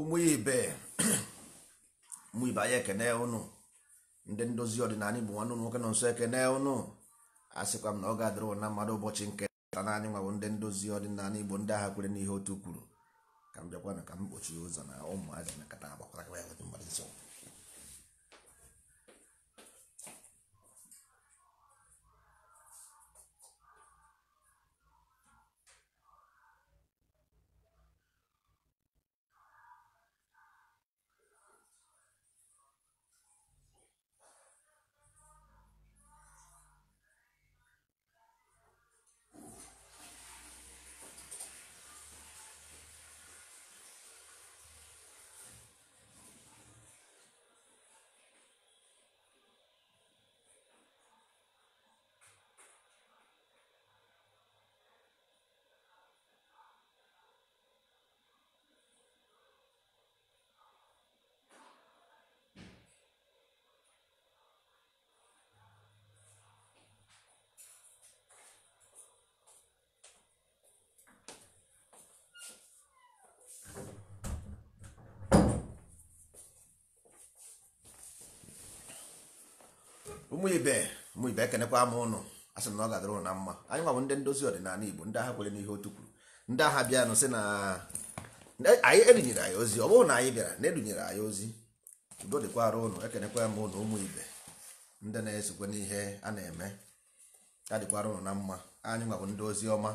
ụmụ ibe ụmụ ibe anyị ekene ụnụ ndị ndozi ọdịnala bụ nwanne ụlọ nwoke nọ nso ekene ụnụ asịkwa m na ọ ga-adịrị na mmadụ ụbọchị nke ta naanị nwa bụ ndị ndozi ọdịnala igbo ndị agha kwere n'ihe otu kwuru ka m bịakwana ka m kpochie ụzọ na ụmụazị na nkata agbakwara ya ụmụ ibe ụmụ ibe ekenekwa m ụnụ a na ọ gadara ụnụ na mma anyị nwa bụ ndị ndozi ọdịnala igbo ndị agha kwere n'ihe otu kwuru ndị agha bịanụ sị na anyị edunyere anyị ozi ọ bụrụ na anyị bịara na edunyere anyị ozi udo dịkwara arụ ụnụ ekenekwa m ụnụ ụmụ ibe ndị na-esokwe n'ihe a na-eme ya ụnụ na mma anyị nwa bụ ndị ozi ọma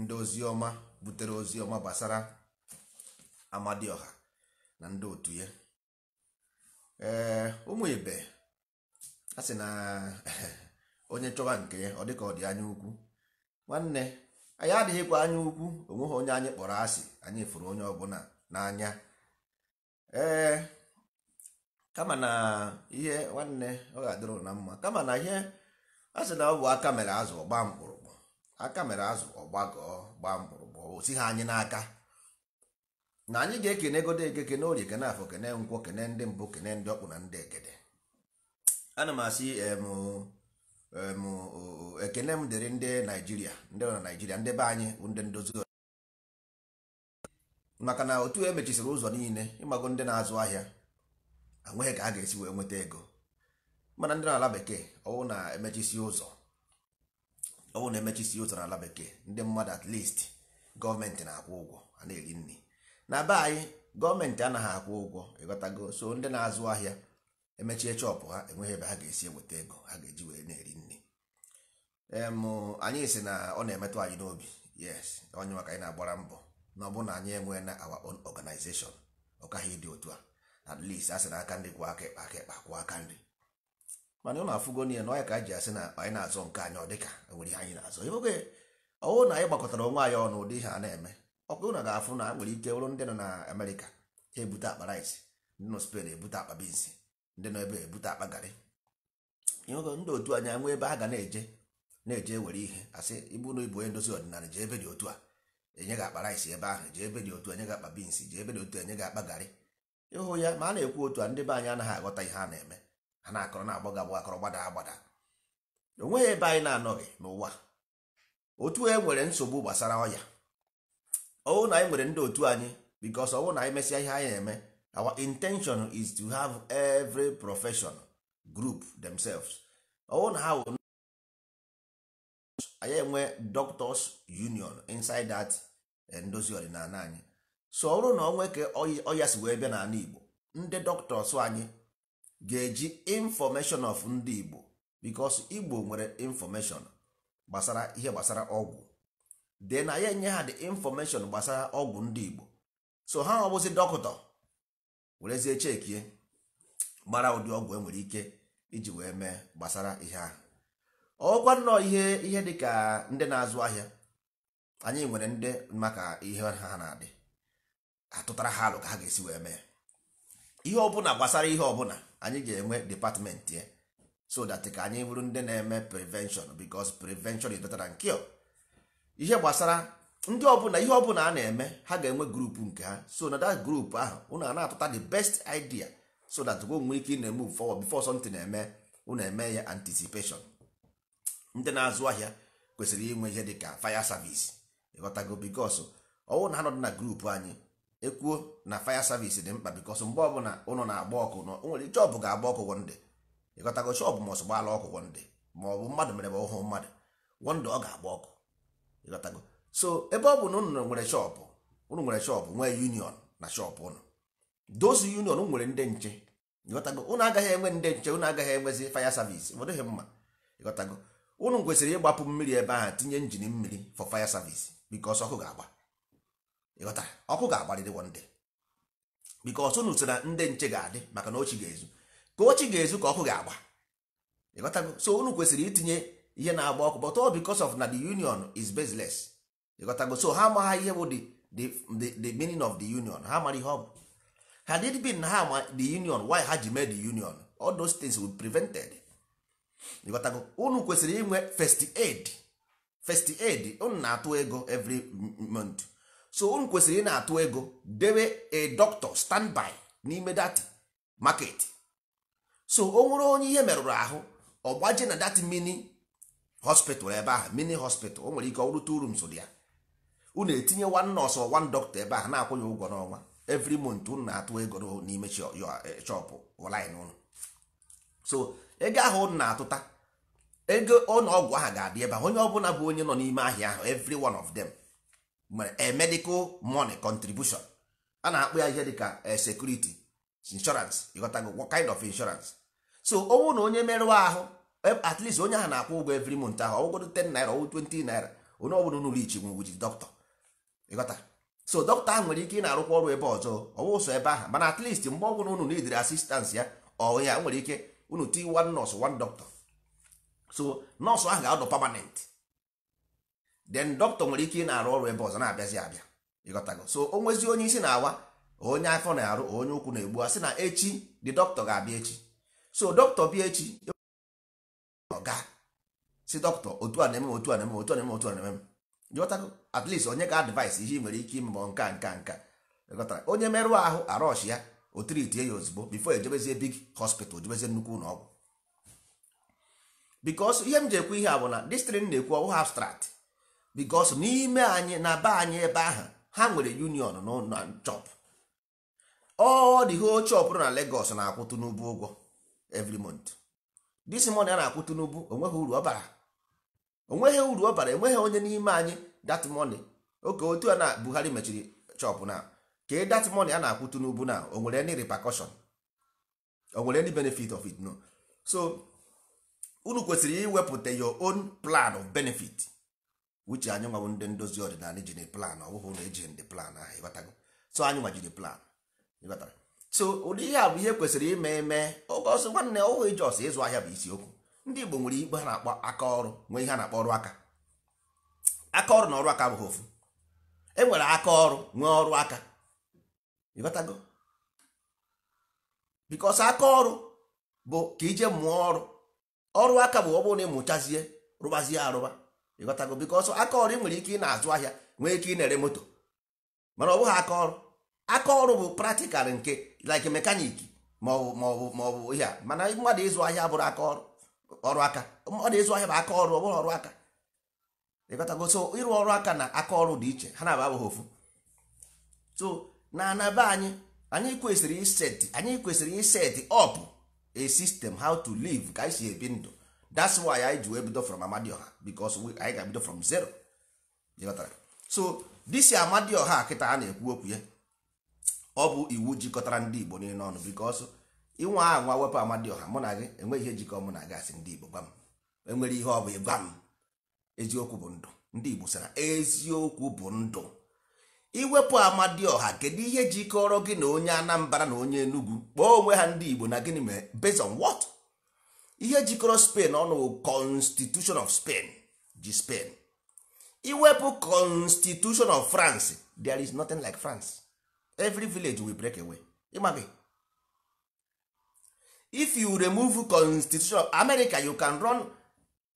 ndị ozi ọma butere ozi ọma gbasara amadioha na ndị otu ya ee ụmụ ibe a sị na onye chọwa nke ya ọ dịka ọ dị anya ukwu nwanne anyị adịghịkwa anya ukwu onweghị onye anyị kpọrọ asị anyị fụrụ onye ọbụla n'anya ee kama na ihe nwanne ọ ga-adịrụ na mma kama na ihe a sị na ọ bụ aka mere azụ ọgba mkpụrụkpụ aka mere azụ ọgbagọọ gbaa mkpụrụkpụ o ha anyị n'aka na anyị ga-ekene egodo eke kene orie kene afọ kene nkwọ kene ndị mbụ kene ndị ọkpụ na ndị egede ana m asị ekene m dịrị ndị naijiria ndị na naijiria ndị be anyị bụ ndị ndozi maka na otu emechisiri ụzọ niile ịmago ndị na-azụ ahịa anweghị ka a ga-esi wee nweta ego mana ndị n'ala bekee ọwụ na-emechisi ụzọ ọwụ na-emechisi ụzọ n'ala bekee ndị mmadụ at least gọọmenti na-akwụ ụgwọ a na-eri nri na be anyị gọọmenti anaghị akwụ ụgwọ ịghọtago so ndị na-azụ ahịa emechie chọpụ ha enweghị ebe ha ga-esi eweta ego ha ga-eji were na-eri nri anyị si na ọ na-emetụ anyị n'obi yes onye maka anyị na-agbara mbọ na ọ bụrụ na anyị enwee na our own organization ọkaghị ịdị otu a at least a sị na aka nri kwụ aka ekpe aka ekpe kwụọ aka nri mana ọ na-afụgo na ya na ọya ka ji asị na anyị na-azọ nke anyị ọ dị ka e nwere ihe anyị na-azọ oge ọwụ na anyị gbakọtara onwe anyị ọnụ ụdị ihe a na-eme ọkụ na ga-afụ na nwere ike bụrụ ndị nọ na Amerịka ha ebute akpa rice ndị nọ ebute akpa ndị nọ ebe ebute akpa garị ndị otu anyị nwee ebe a ga na-eje na-eje were ihe asị ibu na ibu onye ndozi ọdịnala jee ebe dị otu a enye gị akpa rice ebe ahụ jee ebe dị otu enye gị akpa beans jee ebe dị otu enye gị akpa garị ịhụ ya ma a na-ekwu otu a ndị be anyị anaghị aghọta ihe a na-eme ha na-akọrọ na-agbọ akọrọ gbada agbada o ebe anyị na-anọghị n'ụwa otu e nwere nsogbu gbasara ọya ọwụ na anyị nwere ndị otu anyị bikos ọwụ na anyị mesịa ihe anyị na-eme our intention is to have every profession group themselves own how anyị enwe doctors union inside that eh, ndozi ọdịnala anyị so ọ bụrụ na ọ nweke ọya si wee bịa n'ala igbo ndị doctors anyị ga-eji information of ndị igbo because igbo nwere information gbasara ihe gbasara ọgwụ then anyị enye ha the information gbasara ọgwụ ndị igbo so ha ọ bụzi dọkịta werezie chekie mara ụdị ọgwụ enwere ike iji wee mee gbasara ihe ahụ ọkwa nnọọ ihe ihe dịka ndị na-azụ ahịa anyị nwere ndị maka ihe ha na-adị atụtara ha alụ ka ha ga-esi wee mee ihe ọbụla gbasara ihe ọbụla anyị ga-enwe depatmentị ya so ka anyị bụrụ ndị na-eme prevention because prevention is better ihe gbasara ndị ọbụla ihe ọbụla a na-eme ha ga-enwe grupu nke ha so na that group ahụ ụnụ a na-atụta the best idea so that go nwee ike na eme forward before something na-eme unu eme ya anticipation ndị na-azụ ahịa kwesịrị inwe ihe dịka fire service ịghọtago bikos ọwụ na ha nọ na grupu anyị ekwuo na fire service dị mkpa bikos mgbe ọbụla ụnụ na-agba ọkụ na nwere chọbụ ga-agba ọkụ wonde ịghọtago chọbụ ma ọsọ gbala ọkụ wonde ma ọ bụ mmadụ mere ma ọhụụ mmadụ wonde ọ ga-agba ọkụ ịghọtago so ebe ọ bụ na unu nwere shọpụ unu nwere shọpụ nwee union na shọpụ unu dozi union nwere ndị nche ịghọtago unu agaghị enwe ndị nche unu agaghị enwezi fire service ọ mma ịghọtago unu kwesịrị ịgbapụ mmiri ebe ahụ tinye njin mmiri for fire service ọkụ ga-agba ịghọta ọkụ ga-agbarịrị ndị unu sị na ndị nche ga-adị maka na ochi ga-ezu ka ochi ga itinye ihe na-agba ọkụ of union is ịghọtago so ha ama ha ihe bụ the meaning of the union ha mara ihe ọ bụ had it been ha ma the union why ha ji mee the union all those things were prevented ịghọtago unu kwesịrị inwe first aid first aid unu na-atụ ego every month so unu kwesịrị ị na-atụ ego debe a doctor standby n'ime datị market so o nwere onye ihe merụrụ ahụ ọ gbaje na dati mini hospital ebe ahụ mini hospital o nwere ike ọ bụrụ two ya unu etinye one nurse or one doctor ebe a na ya ụgwọ n'ọnwa every month unu na-atụ ego n'ime chọpụ line ụnụ so ego ahụ unu na-atụta ego ọgwụ ahụ ga-adị ebe ahụ onye ọbụla bụ onye nọ n'ime ahịa ahụ every one of them nwere medical money contribution a na-akpụ ya ihe dịka eh, security insurance ịghọtago what kind of insurance so ọnwụ na onye merụwa ahụ eh, at least onye ahụ na-akwụ ụgwọ every month ahụ ọgwụgodo 10 naira ọgwụ 20 naira onye ọbụla unu rich nwụgwụ ji dọkịta ịghọta so dọkịta ahụ nwere ike ị na-arụkwa ọrụ ebe ọzọ ọwụsọ ebe ahụ mana at mgbe ọ bụla unu n'idiri asistans ya ọ ya nwere ike unu ti one nọọsụ one doctor so nọọsụ ahụ ga-adọ permanent then doctor nwere ike ị na-arụ ọrụ ebe ọzọ na-abịazi abịa ịghọtago so o nwezi onye isi na-awa onye afọ na-arụ onye ụkwụ na-egbu asị na echi dị doctor ga-abịa echi so doctor bịa echi ọ ga si doctor otu a na-eme otu a na-eme otu a na-eme otu a na-eme jụtago at least onye ka advice ihe nwere ike ime nka nka nka ghọtara onye merụọ ahụ arọsh ya o ya ozugbo bifo ejebezie big hospital jebezie nnukwu ụlọ ọgwụ bikos ihe m ji ekwu ihe a bụ na distrin na-ekwu ọwụ abstract bikos n'ime anyị na be anyị ebe ahụ ha nwere union na chop ọ dị ho chop na Lagos na akwụtụ Tinubu ụgwọ every month this a na akwụtụ Tinubu onweghị uru ọ bara onweghị uru ọ bara enweghị onye n'ime anyị dat money oke otu a na Buhari mechiri chọpụ na ka dat e money a na-akwụtu n'ubu na o nwere any repercussion o nwere any benefit of it no so unu kwesịrị iwepụta your own plan of benefit uche anyị nwawo ndị ndozi ọdịnala ji plan ọ bụghị na ndị plan ahụ ịghọtago so anyị nwa plan ịghọtara so ụdị ihe a bụ ihe kwesịrị ime eme oge ọsọ nwanne ọhụụ ije ọsọ ịzụ ahịa bụ isiokwu ndị Igbo nwere igbe ha na-akpọ aka ọrụ nwee ihe a na-akpọ ọrụ aka aka ọrụ na ọrụ aka bụghị ofu e nwere aka ọrụ nwee ọrụ aka ịbatago bikos aka ọrụ bụ ka ije mụọ ọrụ ọrụ aka bụ ọ na ịmụchazie rụbazie arụba ịghọtago bikos aka ọrụ ị nwere ike ị na-azụ ahịa nwee ike ị na-ere moto mana ọ bụghị aka ọrụ aka ọrụ bụ praktikal nke like mekaniki maọbụ maọbụ maọbụ ihe a mana mmadụ ịzụ ahịa bụrụ aka ọrụ ọrụ aka ọ na-ezu ahịa bụ aka ọrụ ọ bụrụ ọrụ aka ịgotago so ịrụ ọrụ aka na aka ọrụ dị iche ha na-aba abụghị ofu so na anaba anyị anyị kwesịrị iset anyị kwesịrị iset up a system how to live ka anyị si ebi ndụ that's why anyị ji wee bido from amadioha because anyị ga bido from zero so disi amadioha kịta a na-ekwu okwu ya ọ bụ iwu jikọtara ndị Igbo niile ọnụ because inwe ahụ nwa wepụ amadi ọha mụ na gị enweghị ihe jikọ mụ na gị asị ndị igbo gwa m enwere ihe ọ bụ ịgwa m eziokwu bụ ndụ ndị igbo sara eziokwu bụ ndụ iwepụ ọha kedu ihe jikọrọ gị na onye anambra na onye enugwu kpọọ onwe ha ndị igbo na gịnị mere based on what ihe jikọrọ spain ọnụ constitution of spain ji spain iwepụ constitution of france there is nothing like france every village will break away ịma gị if you remove constitution of america you can run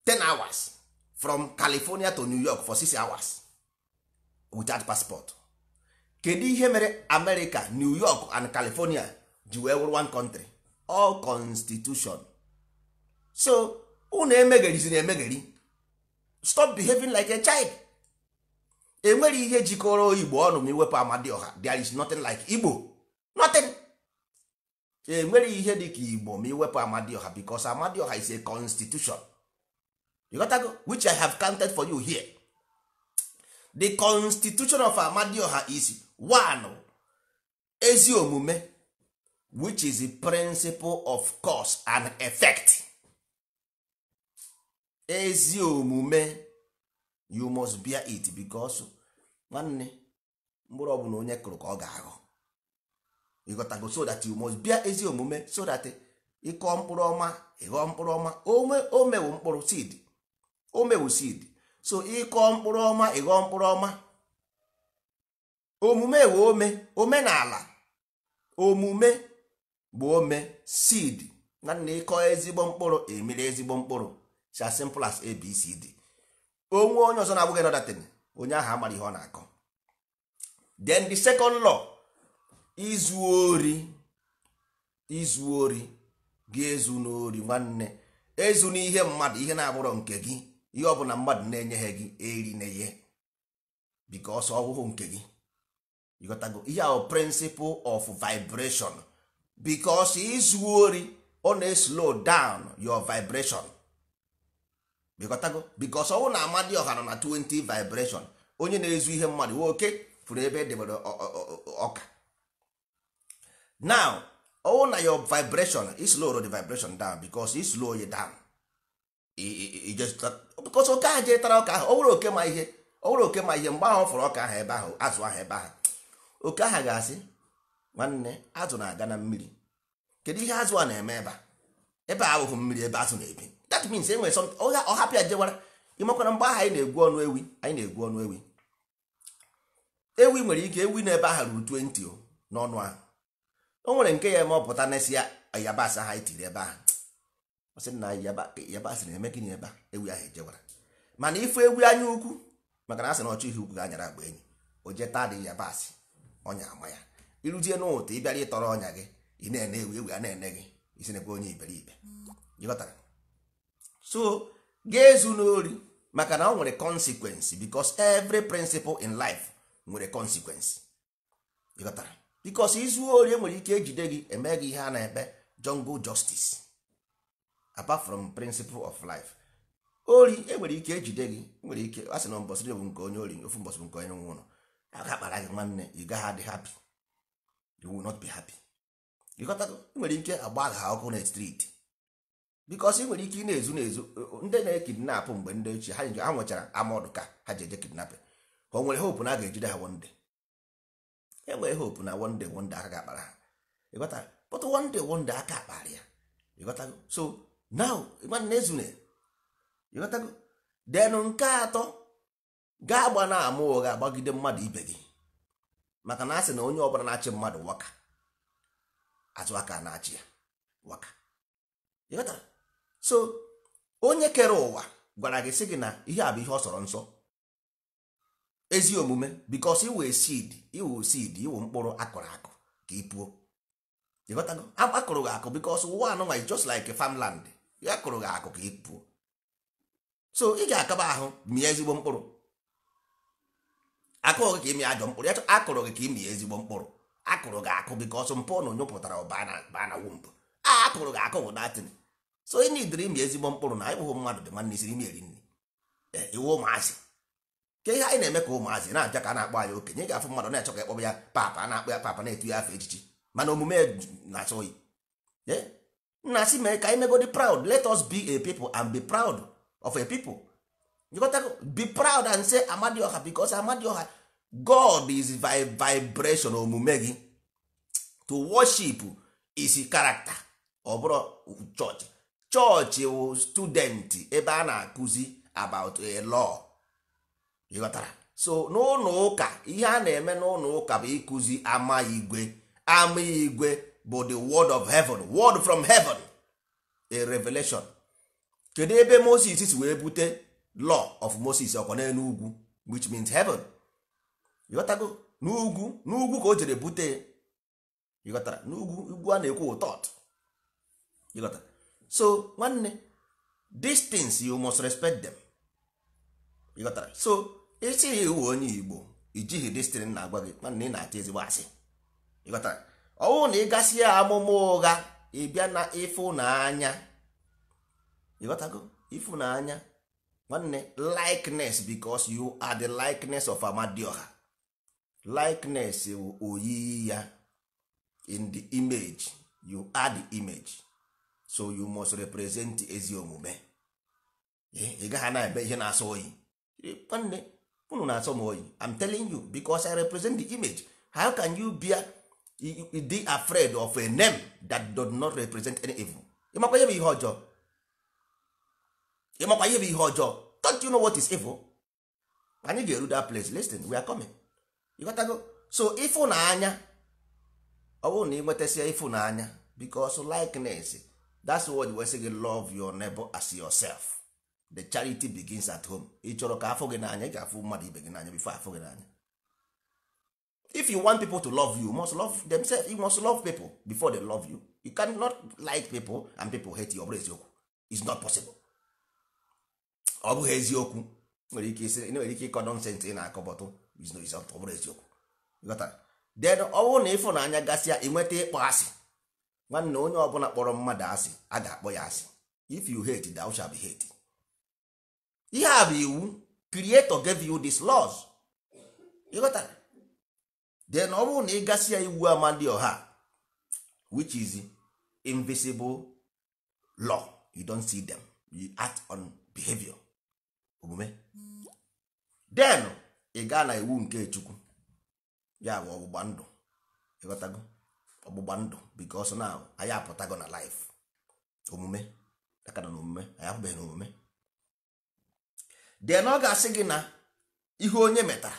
10 hours from california to new york for 6 hours without passport kedu ihe mere america new york and california ji wee wụrụ one country all constitution so unu emegherizi emegheri stop behaving like a child enwere ihe jikọrọ igbo ọnụ ma iwepụ amadioha there is nothing like igbo nothing. E, nwere ihe dịka igbo ma iwepụ amadioha because amadioha is a constitution you got which i have counted for you here the constitution of amadioha is one ezi omume which is the principle of cause and effect ezi omume you must bear it because nwanne mkpụrụ ọbụla onye kụrụ ka ọ ga ahụ ịghọtago so that you must bịa ezi omume so that eh, ịkọ mkpụrụ ọma ịghọ mkpụrụ ọma o mewu mkpụrụ seed so ịkọ mkpụrụ ọma ịghọ mkpụrụ ọma omume wee ome omenala omume bụ ome seed na nna ezigbo mkpụrụ emere ezigbo mkpụrụ so as simple as abcd onwe onye ọzọ na-abụghị nọdatin onye ahụ amara ihe ọ na-akọ then the second law izu ori izu ori gị ezu n'ori nwanne ezu n'ihe mmadụ ihe na-abụrọ nke gị ihe ọbụla mmadụ na-enyeghị gị eri na ihe because ọwụhụ nke gị ịghọtago ihe ahụ principle of vibration because izu ori ọ na-slow down your vibration ịghọtago because ọwụ na amadi ọha nọ na 20 vibreshon onye na-ezu ihe mmadụ nwoke fụrụ ebe edebere ọka now ọwụ oh, na your vibration islow the vibration down because islow you down because oke ahụ jee tara ọka ahụ ọ bụrụ oke ma ihe ọ oke ma ihe mgbe ahụ fọrọ ọka ahụ ebe ahụ azụ ahụ ebe ahụ oke ahụ ga-asị nwanne azụ na-aga na mmiri kedu ihe azụ a na-eme ebe ebe a mmiri ebe azụ na-ebi that means e nwere ọ hapụ jewara ịmakwana mgbe ahụ anyị na-egwu ọnụ ewi anyị na-egwu ọnụ ewi ewi nwere ike ewi na ebe ahụ ruru 20 n'ọnụ ahụ o nwere nke ya eme ọpụta na-esi ya yabasị ha tiri ebe ahụ ọ na yabasị na-eme gịnị ebe a ewu ahụ ejewara mana ifu ewu anya ukwu maka na asị na ọchọ ihe ukwu ga-anyara agba enyi o jee taa dị yabasị ọnya ama ya iruzie ị ịbịara ịtọrọ ọnya gị ị na-ene ewu ewu a na-ene gị isi na-ekwe onye iberibe so ga-ezu n'ori maka na ọ nwere consequence bicos every principle in life nwere consequence ịghọtara bikos izu ori enwere ike ejide gị eme gị ihe a na-ekpe jungle justice apart from principle of life ori enwere ike ejide gị nwere ike e asị na mbọsị bụ nke onye ori ofu mbọsị bụ nke onye nwe ụlọ akakpara gị nwanne ị gaghị adị happy you will not be happy ịghọtago nwere ike agba agha ọkụ na street bikos ị nwere ike ị na-ezu na-ezu ndị na-ekidnapụ mgbe ndị ochie ha nwechara amọdụ ka ha ji eje kidnapin ka o nwere hope na a ga-ejide ha one enwere hope na one day aka ga-akpara ha ịghọta but one day one day aka akpara ya ịghọtago so now na ezune ịghọtago denụ nke atọ gaa agba na ama ụgha agbagide mmadụ ibe gị maka na asị na onye ọbụla na-achị mmadụ waka azụ aka na-achị ya waka ịghọtara so onye kere ụwa gwara gị sị gị na ihe a bụ ihe ọ sọrọ nsọ ezi omume because iwe seed iwe seed iwe mkpụrụ akụrụ akụ ka ipuo akụrụ gị akụ because ụwa anụnwa is just like farmland ya akụrụ gị akụ ka ipuo so ị ga-akaba ahụ mie ezigbo mkpụrụ akụrụ gị ka ịmị ajọ mkpụrụ ya akụrụ gị ka ịmị ezigbo mkpụrụ akụrụ gị akụ because mpụ na onye pụtara ọba na wump a akụrụ gị akụ bụ natin so ị nidiri ịmị ezigbo mkpụrụ na ịbụghị mmadụ dị nwanne isiri ime eri nri eh, iwu ụmụazị ka ihe anyị na-eme ka ụmụazị na-abịa ka a na-akpọ anyị okenye ga-afụ mmadụ na-achọ ka ịkpọba ya papa a na-akpọ ya papa na-etu ya afọ echichi mana omume na-achọ oyi nna asị mee ka anyị megodi proud let us be a people and be proud of a people be proud and say amadioha because amadioha god is vibration omume gị to worship is character ọ bụrụ chọọchị chọọchị wụ student ebe a na-akụzi about a law ịghọtara so n'ụlọ ụka ihe a na-eme n'ụlọ ụka bụ ịkụzi ama igwe ama igwe bụ the word of heaven word from heaven a revelation kedu ebe moses si wee bute law of moses ọkwa n'ugwu which means heaven ịghọtago n'ugwu n'ugwu ka o jere bute ịghọtara n'ugwu ugwu a na-ekwu ụtọt ịghọtara so nwanne these things you must respect them. ịghọtara so ya ewu onye igbo ijighị dịstịrị na-agwa gị mana ị na ata ezigbo asị ịghọtara ọ bụrụ na ị gasị ya amụma ụgha ịbịa na ịfụnanya ịghọtago ịfụnanya nwanne likeness because you are the likeness of amadioha likeness wụ oyiyi ya in the image you are the image so you must represent ezi omume ị gaghị na-ebe ihe na-asọ oyi nwanne unu na-asọ m oyi i'm telling you because i represent the image how can you be dị afraid of a name that does not represent any evil ịmakwa ihe bụ ihe ọjọọ ịmakwa ihe bụ ihe ọjọọ don't you know what is evil anyị ga-eru that place listen we are coming You got go. so ịfụnanya ọ bụrụ na ị nwetasia ịfụnanya because likeness that's what we say love your neighbor as yourself the charity begins at home ị chọrọ ka afọ gị n'anya ị ga-afụ mmadụ ibe gị n'anya bifo afọ gị n'anya if you want people to love you, you must love themselves you must love people before they love you you cannot like people and people hate you ọ eziokwu it's not possible ọ bụghị eziokwu nwere ike isi nwere ike ịkọ nọnsensị ị na-akọ bọtụ ọ bụrụ eziokwu then ọ bụrụ na ịfụnanya gasịa ịnweta ịkpọ asị nwanne onye ọbụla kpọrọ mmadụ asị a ga-akpọ ya asị if you hate thou shall be hated ihe a bụ iwu creator gave you these laws ịghọtara then ọ bụrụ na ị gasị ya iwu amadi ọha which is invisible law you don't see them you act on behavior omume then ị gaa na iwu nke chukwu ya bụ ọgbụgba ndụ ịghọtago ọgbụgba ndụ because now anyị apụtago na life omume aka na omume anyị apụbeghị na omume then ọ ga-asị gị na ihe onye metara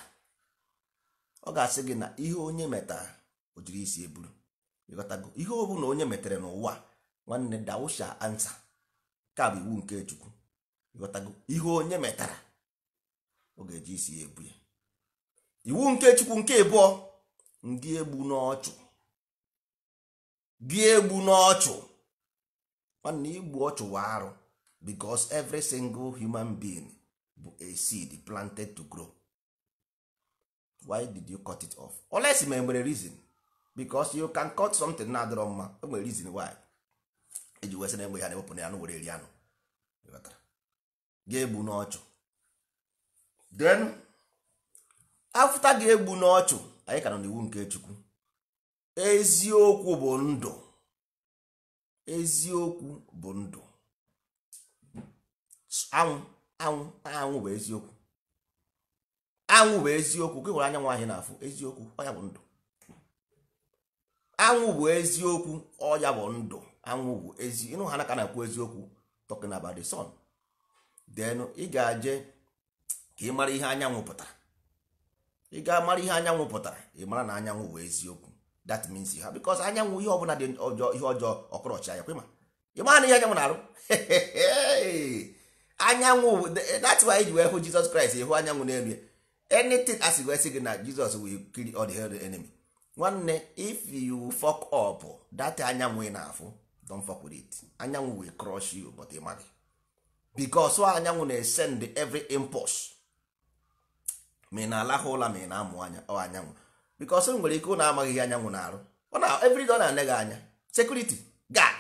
ọ ga-asị gị na ihe onye metara o jiri isi eburu ịghọtago ihe ọ bụla onye metere n'ụwa nwanne dawusha ansa ka bụ iwu nke chukwu ịghọtago ihe onye metara ọ ga-eji isi ebu ya iwu nke chukwu nke ịbụọ ndị egbu n'ọchụ gị egbu n'ọchụ nwanne igbu ọchụ wa arụ because every single human being bụ a seed planted to grow why did you cut it off unless ma nwere reason because you can cut something na-adịrọ mma e nwere reason why eji wesị na-egbe ya na-ewepụ ya anụ were eri anụ ga-egbu n'ọchụ then afta ga-egbu n'ọchụ anyị ka nọ n'iwu nke chukwu eziokwu bụ ndụ eziokwu bụ ndụ anwụ anwụ anwụ bụ eziokwu anwụ bụ eziokwu ka hụrụ anyanwụ ahịa n'afụ eziokwu ọya bụ ndụ anwụ bụ eziokwu ọya bụ ndụ anwụ bụ ezi ịnụ ha naka na akwụ eziokwu talking about the sun then ị ga aje ka ị mara ihe anyanwụ pụtara ị ga-amara ihe anyanwụ pụtara ị mara na anyanwụ bụ eziokwu that means ha because anyanwụ ihe ọbụla dị ọjọọ ihe ọjọọ ọkọrọchi anya kwe ma ị mara na ihe anyanwụ na-arụ anyanwụ that's why ji wee hụ jizọs kraịst ịhụ anyanwụ n'elu ya anything asị wee sị gị na jizọs will kill all the hell enemy nwanne if you fuck up that anyanwụ ị na-afụ don't fuck with it anyanwụ will crush you but ị maghị because anyanwụ na-esend every impulse ma ị na-alahụ ụla ma ị na-amụ anya ọ anyanwụ because o nwere ike ụ na-amaghị ihe anyanwụ na-arụ ọ na every day ọ na-ane gị anya security guard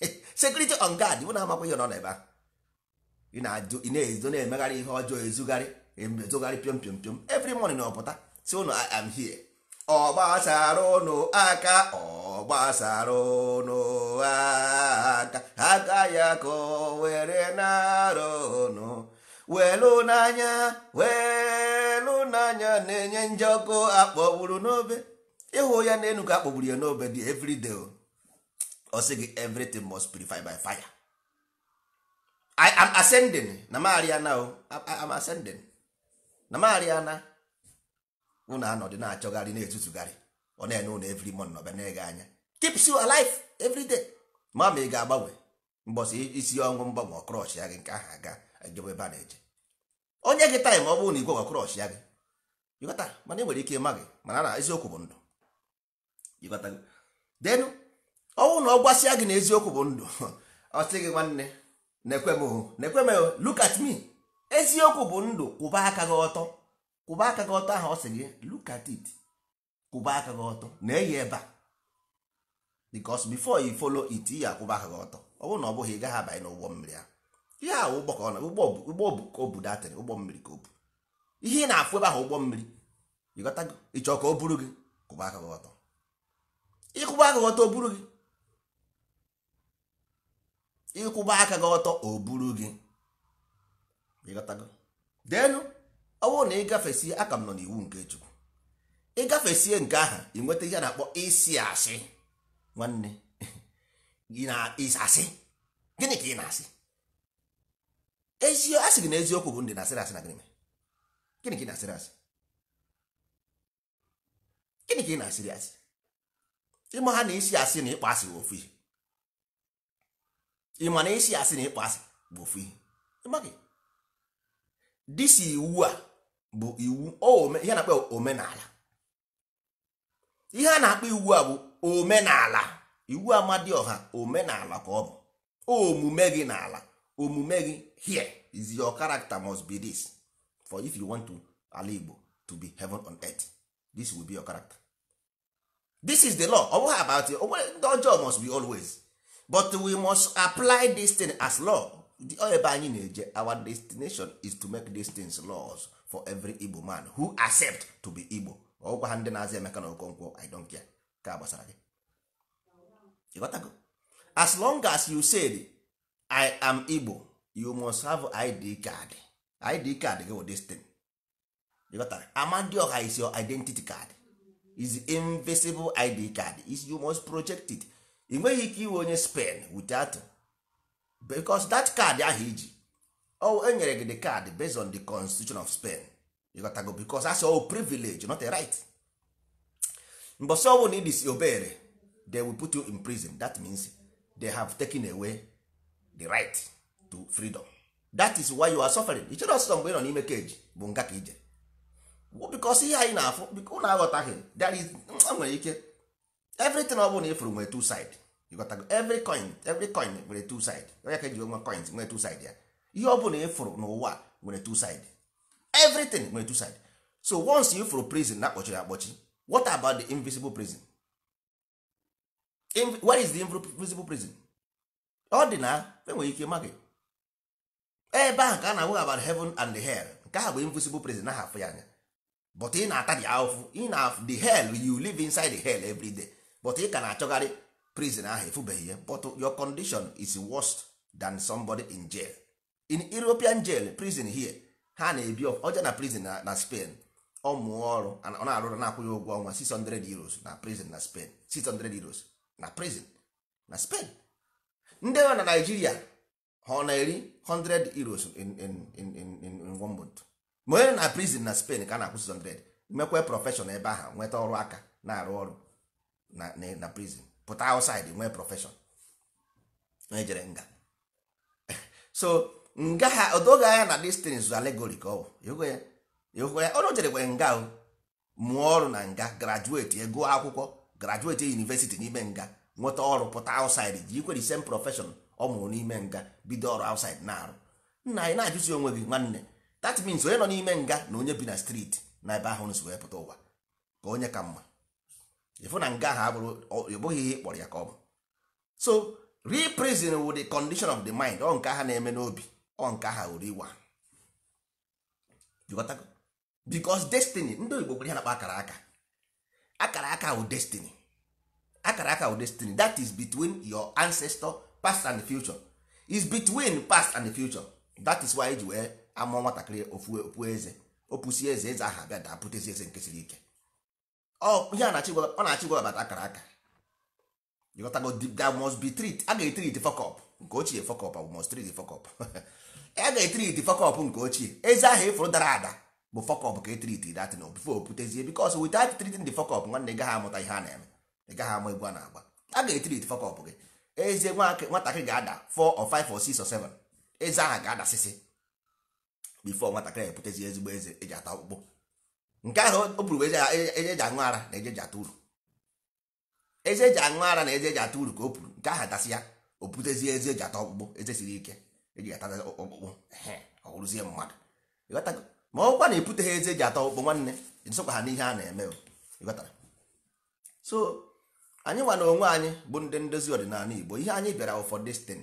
security on guard ụ na-amakwa ihe nọ n'ebe ahụ ị na ezo na-emegharị ihe ọjọọ ezugharị ezogharị pịọm pịọm pịọm every na ọpụta si ụnụ I am here ọgbasara ụnụ aka ọgbasara ụnụ aka aka ya ka o were nara ụnụ welu n'anya n'anya na-enye ọkụ akpọgburu n'obe ịhụ ya na ka akpọgburu ya n'obe dị every day o sị gị everything must purify by fire I am ascending na mariana o am ascending na mariana unu anọdụ na-achọgharị na-etutugharị ọ na-enye ụlọ every month ọbịa na-ege anya keeps you alive every day ma ma ị ga-agbanwe mbọsị isi ọnwụ mgbanwe ọkrọsh ya gị nke ahụ aga ejebe ebe a na-eje onye gị taịm ọ bụrụ na igwe ọkrọsh ya gị ịghọta mana e nwere ike ịma gị mana na eziokwu bụ ndụ ịghọta denu ọnwụ na ọ gbasịa gị na eziokwu bụ ndụ ọ sị gị nwanne na nekwem look at me eziokwu bụ ndụ kwụba aka gị ọtọ kwụba aka gị ọtọ ahụ ọ sị gị look at it kwụba aka gị ọtọ na-eyi ebe a because before you follow it ya akwụba aka gị ọtọ ọ bụrụ na ọ bụghị ị gaghị abanye n'ụgbọ mmiri ahụ ihe ahụ ụgbọ ka ọ na ụgbọ ka o bu datịrị ụgbọ mmiri ka obu ihe ị na-afụ ebe ahụ ụgbọ mmiri ịghọtago ịchọ ka o buru gị kwụba aka gị ọtọ ịkwụba aka gị ọtọ o buru gị ịkwụba aka gị ọtọ o buru gị denu ọ bụrụ na ịgafesie aka m nọ n'iwu nke chukwu ịgafesie nke aha ị nweta ihe na-akpọ isi asị nwanne gị na asị gịnị ka ị na-asị ezi asị gị na eziokwu bụ ndị na-asịrị asị na gịnị gịnị ka ị na-asịrị asị gịnị ka ị na-asịrị asị ha na isi asị na ịkpọ asị ofu ihe ị ma na isi asị na ịkpọ asị bụ ofu ihe ịmaghị disi iwu a bụ iwu ihe na-akpọ omenala ihe a na-akpọ iwu a bụ omenala iwu ọha omenala ka ọ bụ omume gị n'ala omume gị here is your character must be this for if you want to ala Igbo to be heaven on earth this will be your character this is the law ọ bụghị about ndị ọjọọ must be always but we must apply this thing as law the ebe anyị na-eje our destination is to make these things laws for every igbo man who accept to be igbo ọgwa ha ndị na-azị emeka na okonkwo i don't care ka gbasara gị ịghọtago as long as you said i am igbo you must have id card id card gị wụ this thing ịghọtara amandioha is your identity card is invisible id card is you must project it ị nweghị ike iwe onye spen without because that card ahụ iji o enyere gị the card based on the constitution of spain you got to go because that's all privilege not a right mbọsị ọbụ na you obere they will put you in prison that means they have taken away the right to freedom that is why you are suffering ichere ọsụsọ mgbe ị nọ n'ime keji bụ nga ka ije bikos ihe anyị na-afụ biko na aghọtaghị there is nwere ike everything ọ bụla na ifuru nwere two side ịgotago every coin every coin nwere two side onye ka eji nwa coins nwere two side ya ihe ọ bụla ifuru n'ụwa nwere two side everything nwere two side so once you ifuru prison na akpọchiri akpọchi what about the invisible prison In, where is the invisible prison ọ dị na enwere ike maghị ebe ahụ ka a na-agwa about heaven and the hell nke ahụ bụ invisible prison ahụ afụ ya anya but ị na-ata dị ahụfụ ị na the hell you live inside the hell every day but ị ka na-achọgharị prison ahụ efubeghị ya but your condition is worse than somebody in jail in European jail prison here ha na-ebi ọja na prison na Spain ọ mụọ ọrụ ọ na-arụrụ na-akwụghị ụgwọ ọnwa 600 euros na prison na Spain 600 euros na prison na Spain ndị nọ na Nigeria ha ọ na-eri 100 euros in in in in one month ma onye na prison na Spain ka a na-akwụ 600 mekwe prọfeshọn ebe ahụ nweta ọrụ aka na-arụ ọrụ na na prison pụta outside nwee profession onye jere nga so nga ha odoga anya na distance things allegory ka ọ bụ ya ọ jerekwe nga o mụọ ọrụ na nga graduate ego akwụkwọ graduate university n'ime nga nweta ọrụ pụta outside ji ikwere same profession ọ mụrụ n'ime nga bido ọrụ outside na-arụ nna anyị na-ajụzi onwe gị nwanne that means onye nọ n'ime nga na onye bi na street na ebe ahụ nsi pụta ụwa ka onye ka mma ịfụ na nga ha abụghị ihe kpọrọ ya ka ọ bụ so reprison with the condition of the mind ọ nke ha na-eme n'obi ọ nke ha were iwa because destiny ndị oyibo gwere ha na-akpa akara aka akara aka wụ destiny akara aka wụ destiny that is between your ancestor past and future is between past and future that is why eji wee amụọ nwatakịrị ofu eze opusi eze eze aha bịa daa pụtezi eze nke siri ike ihe a na-achị na-achị gwabata akara aka ịghọtago that must be treat ga fọkọp nke ochie fọkọp abụ treat fọkọp nke ochie ịfụrụ dara ada bụ fọkọp ka datin e treating the fọkọp nwanne ị gaghị amụta ihe a na-eme ị gaghị ama egwu a na-agba ga fọkọp gị ezie nwatakịrị ga-ada or or 7 ezi aha ga-adasịsị bifo nwatakịrị eputezi ezigbo eze eji ata ọkpụkpụ nke ahụ o buru eze eji aṅụ ara na ejeji ata uru eze eji aṅụ ara na eze eji ata uru ka o puru nke ahụ atasị ya o butezie eze eji ata ọkpụkpụ eze siri ike eji ata ọkpụkpụ ọ mmadụ ma ọkwa na eputeghị eze eji ata ọkpụkpụ nwanne nsokwa ha n'ihe a na-eme so anyị nwa na onwe anyị bụ ndị ndozi ọdịnala Igbo ihe anyị bịara for destin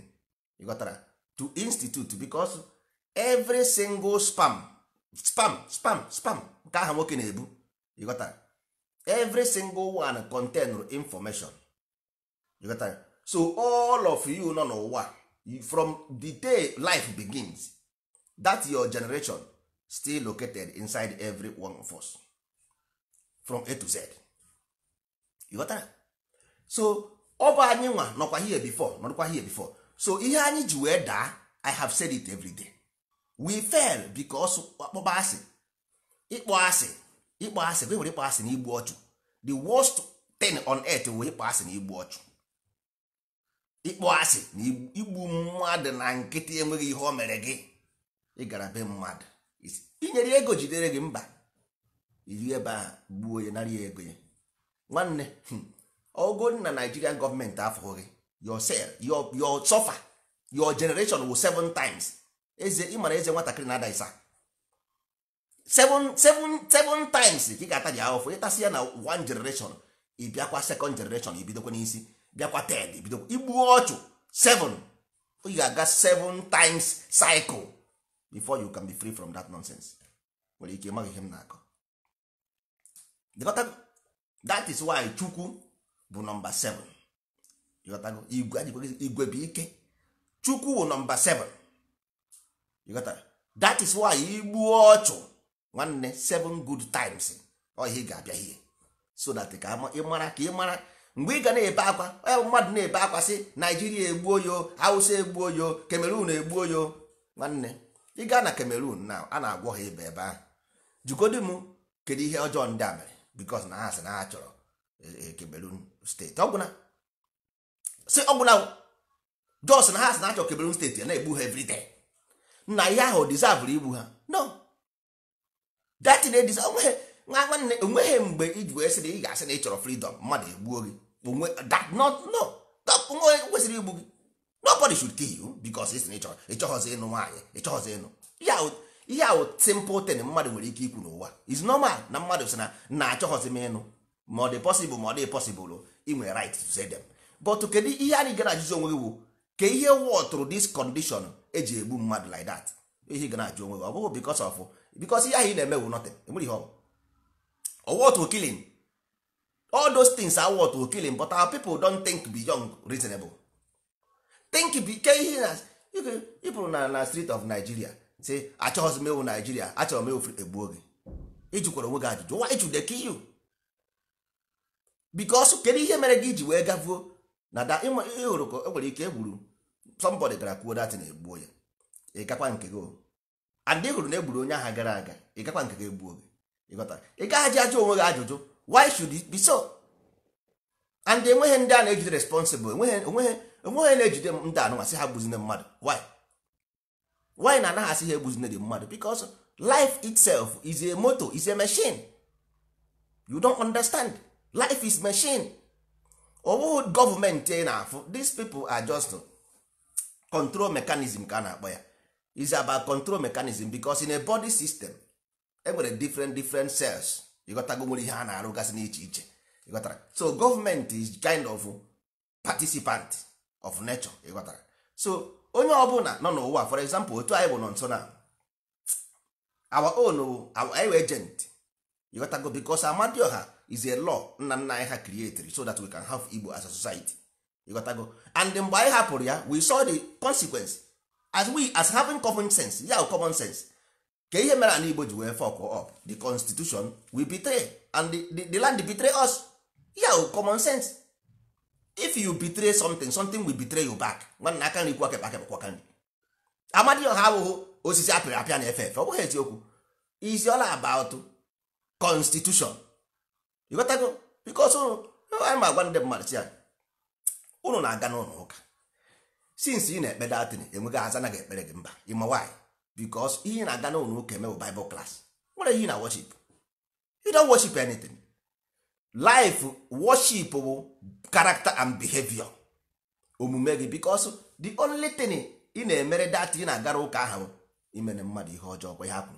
ịghọtara to institute because every single spam spam spam spam nke aha nwoke na-ebu ịghọta every single one contain information ịghọta so all of you nọ n'ụwa from the day life begins that your generation still located inside every one of us from a to z ịghọta so ọ bụ anyị nwa nọkwa here before nọrọkwa here before so ihe anyị ji wee daa i have said it every day we fail because akpọba asị ịkpọ asị ịkpọ asị bụ ịkpọ asị na igbu ọchụ the worst thing on earth wee ịkpọ asị na igbu ọchụ ịkpọ asị na igbu mmadụ na nkịtị enweghị ihe o mere gị ịgara be mmadụ inyere ego jidere gị mba iri ebe a gbuo ya nara ya ego ya nwanne ogo hmm, na Nigerian gọọmenti afọ gị your suffer your generation will seven times eze ịmara eze nwatakịrị na-ada isa seven seven seven times ka ị ga-ataji ahụfụ ịtasị ya na one generation ị e bịakwa second generation ị e bidokwa n'isi bịakwa third e bidokwa igbuo ọchụ seven oyi ga-aga seven times cycle before you can be free from that nonsense nwere ike ịmaghị ihe m na-akọ that is why chukwu bụ nọmba seven. igwe bụ ike chukwu bụ nọmba 7 that is why igbuo ọchụ nwanne seven good times ọhịa ga-abịa ihe so that ka ị mara ka ị mara mgbe ị ga na-ebe akwa onye mmadụ na-ebe akwa sị naijiria egbuo yo hausa egbuo yo kamerun egbuo yo nwanne ị gaa na kamerun na a na-agwọ ha ibe ebe ahụ jikodi m kedu ihe ọjọọ ndị a mere because na ha sị na ha chọrọ kamerun e, e, steeti ọgwụna si ọgwụna jos na ha sị na ha chọrọ kamerun steeti na-egbu ha everyday na ihe ahụ dizavụrụ igbu ha no datin ediz nwa nwanne onweghị mgbe iji wee sị ị ga-asị na ị chọrọ fridom mmadụ egbuo gị onwe onwe kwesịrị igbu gị nobody should kill you because ị sị na chọrọ ịchọghọzi ịnụ nwaanyị ịchọghọzi ịnụ ihe ahụ simple thing mmadụ nwere ike ikwu n'ụwa is normal na mmadụ sị na na achọghọzi m ịnụ ma ọ dị possible ma ọ dị possible inwe right to say them but kedu ihe anyị gara ajụjụ onwe gị wụ ka ihe wọtụrụ this condition eji egbu mmadụ like that ihe gana ajụ onwe gị ọ bụghị because of because ihe ahụ ị na-eme wụ nothing enwere ihe ọwụ killing all those things are worth killing but our people don't think young reasonable think ke ihe na ịpụrụ na na street of Nigeria say achọghịzi m Nigeria achọrọ m egbuo gị ịjụkwara onwe gị ajụjụ why you dey kill you because kedu ihe mere gị iji wee gavuo na da ịhụrụ ka ike egburu somebody gara kwuo datin egbuo ya ị nke gị and hụrụ na egburu onye aha gara aga ị gakwa nke ga-egbu oge ị gaghaji ajụ onwe gị ajụjụ why should it be so and enweghị ndị a na-ejide responsible enweghị na-ejide ndị anụnwa ha gbuzine mmadụ why why na anaghị asị ha egbuzine dị mmadụ because life itself is a moto is a machine you don't understand life is machine ọ bụghị gọọmenti na-afụ these people are just control mechanism ka a na-akpọ ya is about control mechanism because in a body system enwere different different cells ịghọtago nwere ihe a na-arụgasị n'iche iche ịghọtara so government is kind of participant of nature ịghọtara so onye ọbụla nọ n'ụwa for example otu anyị bụ nọ nso na our own our agent ịghọtago because Amadioha is a law nna nna anyị ha created so that we can have Igbo as a society ịghọtago and mgbe anyị hapụrụ ya we saw the consequence as we as having common sense ya yeah, common sense ka ihe mere ala igbo ji wee fọkụ up the constitution we betray and the, the, the land betray us ya yeah, oh, common sense if you betray something something will betray you back nwanna aka nri kwakekpa kekpakwa nri amadi ọha osisi apịrị apịa na efe efe ọ bụghị eziokwu is all about constitution ịghọtago go ụnụ anyị oh, ma agwa ndị mmadụ si ya ụnụ na-aga n'ụlọ ụka since ị na-ekpe datin enweghị aza anaghị ekpere gị mba ịma nwaanyị because ihe na-aga n'ụlọ ụka eme bụ bible class nwere ihe na worship you don't worship anything life bụ karakta and behavior omume gị because the only thing ị na-emere data ị na-agara ụka ahụ imere mmadụ ihe ọjọọ kwa ya hapụ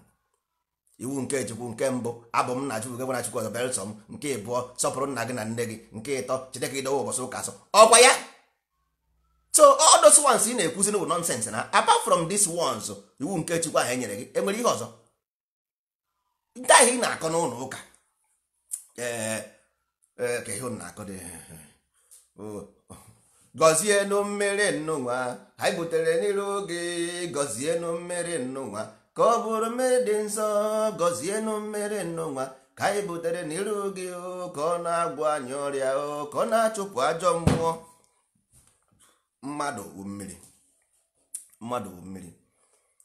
iwu nke chukwu nke mbụ abụ m na chukwu gị gwara chukwu ọzọ belsom nke ịbụọ sọpụrụ nna gị na nne gị nke ịtọ chede ka ụbọchị ụka asọ ọkwa ya so all those ones ị na-ekwuzi bụ nonsense na apart from these ones iwu nke chukwu ahụ enyere gị enwere ihe ọzọ ndị ahụ ị na-akọ n'ụlọ ụka gọzienụ mmiri nnụnwa anyị butere n'iru gị gọzienụ mmiri nnụnwa ka ọ bụrụ mmiri dị nsọ gọzienụ mmiri nnụnwa ka anyị butere n'iru oge oh, ka ọ na-agwọ anyị ọrịa oh, ka ọ na-achụpụ ajọ mmụọ mmadụ bụ mmiri mmadụ bụ mmiri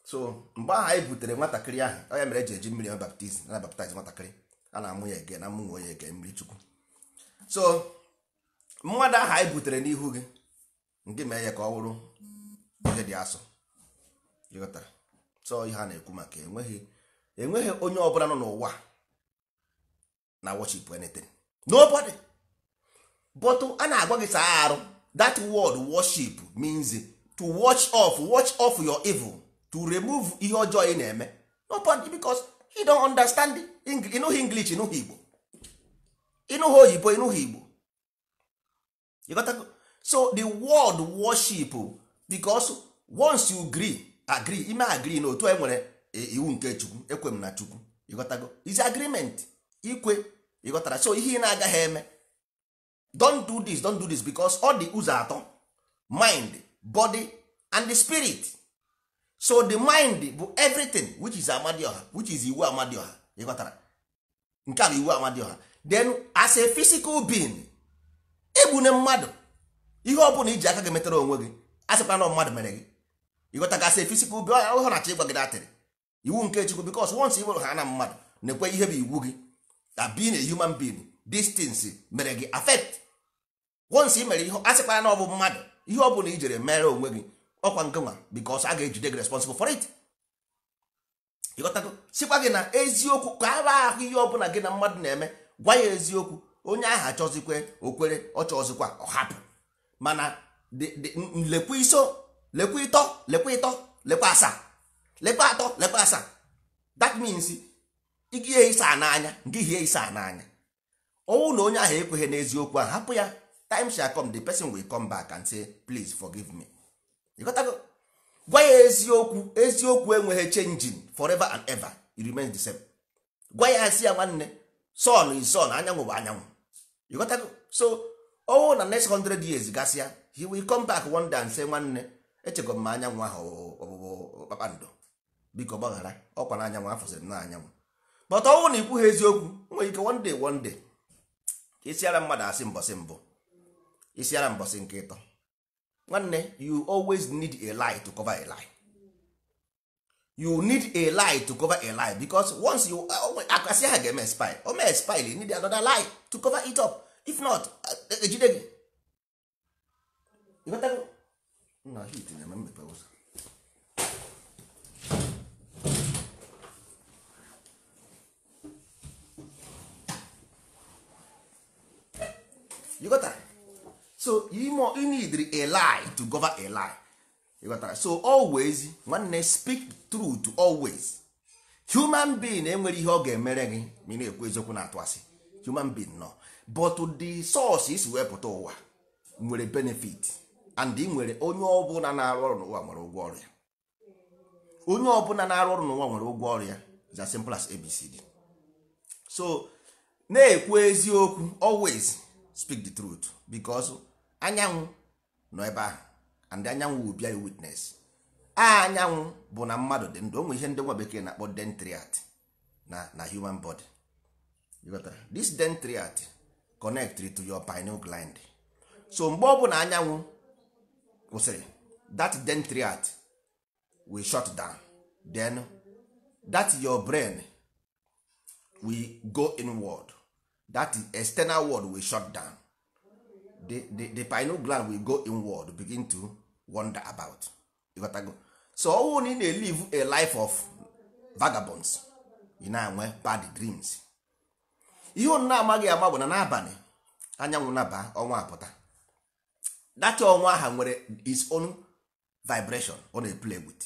so mgbe ahụ anyị butere nwatakịrị ahụ ya mere eji eji mmiri baptizim na baptize nwatakịrị a na-amụ ya ege na amụnwe onye ege mmiri chukwu so mmadụ ahụ anyị butere n'ihu gị nke mee ya ka ọ bụrụ ihe dị asọ so ihe a na-ekwu maka enweghị enweghị onye ọbụla nọ n'ụwa na worship anything nobody bọtụ a na-agwa gị saa arụ that word worship means to watch off watch off your evil to remove ihe ọjọọ ị na-eme no point because he don't understand ịnụghị english ịnụghị igbo ịnụghị oyibo ịnụghị igbo so the word worship because once you gree agree ime agree na otu e nwere e, iwu nke chukwu ekwe m na chukwu ịghọtago is agreement ikwe ịghọtara so ihe ị na-agaghị eme don't do this don't do this because all the ụzọ atọ mind body and the spirit so the mind bụ everything which is amadioha which is iwu amadioha ịghọtara nke a bụ iwu amadioha then as a physical being egbune mmadụ ihe ọ bụla iji aka gị metara onwe gị a sịkwa na mmadụ mere gị ịghọtaga as a physical being ọ ya na-achọ gị datịrị iwu nke chukwu because once i ha na mmadụ na-ekwe ihe bụ iwu gị that being a human being distance mere gị affect once mere ihe a na ọ bụ mmadụ ihe ọ bụla i jere mere onwe gị ọkwa nke nwa because a ga-ejide gị responsible for it sịkwa gị na eziokwu ka a ahụ ihe ọbụla gị na mmadụ na-eme gwa ya eziokwu onye ahụ achọzikwe okwere ọ chọzikwa ọ hapụ mana lekwa iso lekwa ịtọ lekwa ịtọ lekwa asaa lekwa atọ lekwa asaa that means ịgị ihe ịsa n'anya nke ihe ịsa n'anya ọnwụ na onye ahụ ekweghị n'eziokwu ahụ hapụ ya time shall come the person will come back and say please forgive me ịghọtago gwa ya eziokwu eziokwu enweghị changing forever and ever it remains the same gwa ya si ya nwanne son is son anyanwụ bụ anyanwụ so ọnwụ na next hundred years gasịa he will come back one day and say nwanne echego m ma anyanwụ ahụ ọbụbụ kpakpando biko gbaghara ọkwa na anyanwụ afọziri na anyanwụ but ọnwụ na ikwughị eziokwu nwere ike one day one day isiara mmadụ asị mbọsị mbụ isiara mbọsị nke ịtọ nwanne you always need a lie to cover a lie you need a lie to cover a lie because once you oh, oh, akasị ha ga-eme spy o mee spy you need another lie to cover it up if not ejide gị na hit na-eme mmepe ụzọ you so you need a to govern eli. lie so always nwanne speak true to always human being enwere eh, ihe ọ ga-emere gị ma ị na-ekwu eziokwu na-atụ asị human being nọ but the source isi wepụta ụwa nwere benefit and ị nwere onye ọbụla na-arụ ọrụ n'ụwa nwere ụgwọ ọrụ ya onye ọbụla na-arụ ọrụ n'ụwa nwere ụgwọ ọrụ ya is as simple as abcd so na-ekwu eziokwu always speak the truth because anyanwụ nọ ebe ahụ and anyanwụ will a witness anyanwụ bụ na mmadụ dị ndụ onwe ihe ndị nwa bekee na-akpọ dentriat na na human body this dentriat connect to your pineal gland so mgbe ọ bụla anyanwụ kwụsịrị that dentriat will shut down then that your brain will go inward that external world will shut down the, the, the pineal gland will go inward begin to wonder about ịghọtago so ọnwụ na ị na-elive a life of vagabonds ị na-enwe bad dreams ihe ọ na-amaghị ama bụ na n'abalị anyanwụ naba ọnwa apụta data ọnwa aha nwere its own vibration ọ na-eplay with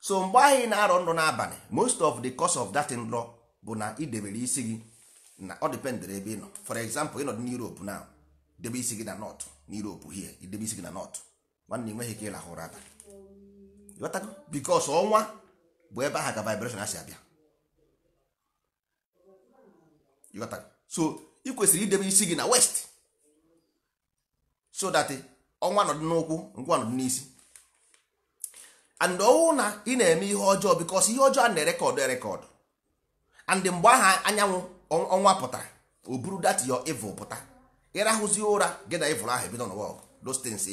so mgbe anyị na-arọ nrọ n'abalị most of the cause of that nrọ bụ na idebere isi gị na ọ ebe ị nọ for example ị nọ n'Europe now debe isi gị na nọt n'Europe hie idebe isi gị na nọt nwanne nweghị ka ị lahụ ụra abalị bikos ọnwa bụ ebe ahụ ka vibreshon a si abịa so ị kwesịrị idebe isi gị na west so that ọnwa eh, nọdụ n'ụkwụ ngwa nọdụ n'isi and ọwụ na ị na-eme ihe ọjọọ bikos ihe ọjọọ a na-erekọdụ erekọdụ and mgbe aha anyanwụ ọnwa pụtara o buru dat yo evil pụta ịrahụzi ụra gị na ịvụrụ ahụ ebido n'ụwa ọgụ dostins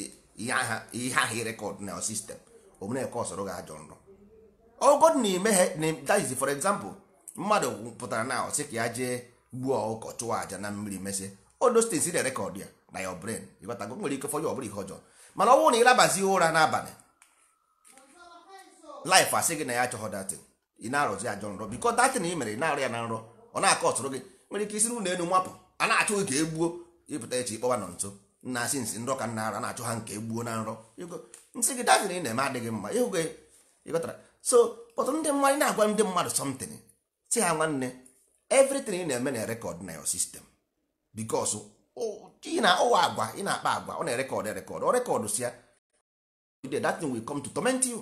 ihe aha ịrekọd na sistem omeneke ọsọrọ gị ajọ nrọ ogod na na daiz for example mmadụ pụtara na sị ka ya jee gbuo ọkụkọ chụwa aja na mmiri mesị o dostins na rekọd ya na ya bren ịgbatago nwere ike fọnye ọbụla ihe ọjọọ mana ọ na ịlabazi ụra n'abalị laif asị gị na ya achọghọ datin ị na-arụzi ajọ nrọ bikọ datin ị mere ị na-arụ ya na nrọ ọ na-akọ ọsọrọ gị nwere ike isi n'ụlọ elu mapụ a na ka e gbuo ịpụta echi ịkpọwa nọ nso nna asị nsị nrọ ka nna ara na-achụ ha nke gbuo na nrọ nsị gị daziri ị na-eme adịghị mma ịhụghị ịghọtara so pọtụ ndị mmadụ na-agwa ndị mmadụ somtin si ha nwanne evritin ị na-eme na rekọd na yo sistem bikos ị na ụwa agwa ị na-akpa agwa ọ na-erekọd erekọd ọ rekọd si ya that thing will come to torment you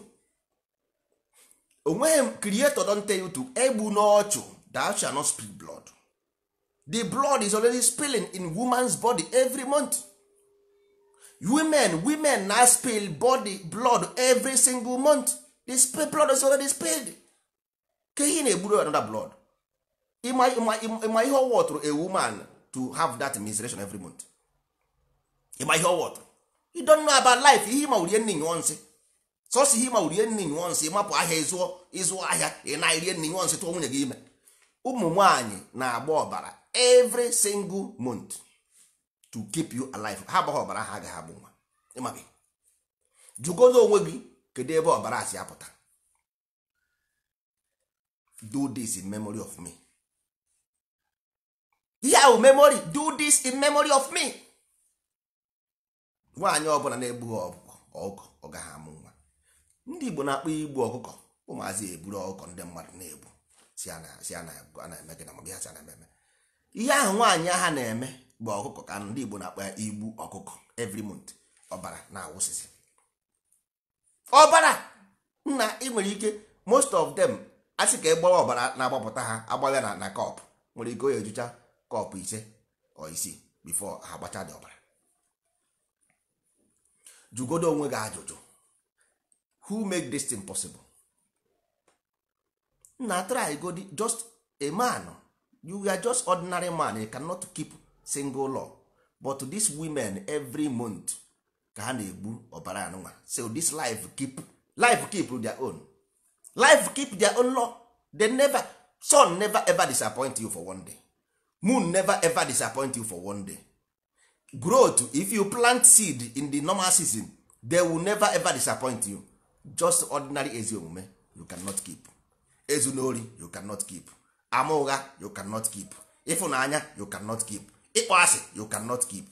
onweghị kriato don tell you to egbu n'ọchụ that shall not blood the blood is already spilling in woman's body every month women women na spill body blood every single month the blood is already spilled ka ihe na-egburu another blood ịma ihe ọwọtụrụ a woman to have that menstruation every month ịma ihe ọwọtụrụ you don't know about life ihe ịma urie nne nyụọ nsị sọsọ ihe ịma urie nne nyụọ nsị ịmapụ ahịa ịzụọ ahịa ị na-erie nne nyụọ nsị tụọ nwunye gị ime ụmụ nwaanyị na-agba ọbara every single month to keep you alive ha agbaghị ọbara ha agaghị abụ nwa ịmabe jụgodo onwe gị kedu ebe ọbara si apụta do this in memory of me ihe ahụ memory do this in memory of me nwaanyị ọbụla na-egbughị ọkụkọ ọkụkọ ọ gaghị amụ nwa ndị Igbo na-akpọ igbu ọkụkọ ụmụazị eburu ọkụkọ ndị mmadụ na-egbu si a na-eme gị na mabe ha si a na-eme ihe ahụ nwaanyị ha na-eme bụ ọkụkọ ka ndị Igbo na-akpa igbu ọkụkọ every month ọbara na-awụsịsị ọbara nna ị nwere ike most of them asị ka egbawa ọbara na-agbapụta ha agbawa na na kọp nwere ike onye ejucha kọpụ ise ọ isii bifo ha gbacha dị ọbara jụgodo onwe gị ajụjụ who make this thing possible na try go just a man you are just ordinary man you cannot keep single law but these women every month ka ha na-egbu ọbara anụnwa so this life keep life keep their own life keep their own law they never sun never ever disappoint you for one day moon never ever disappoint you for one day growth if you plant seed in the normal season they will never ever disappoint you just ordinary ezi omume you cannot keep ezunori you cannot keep ama ụgha you cannot keep ịfụnanya you cannot keep ịkpọ asị you cannot keep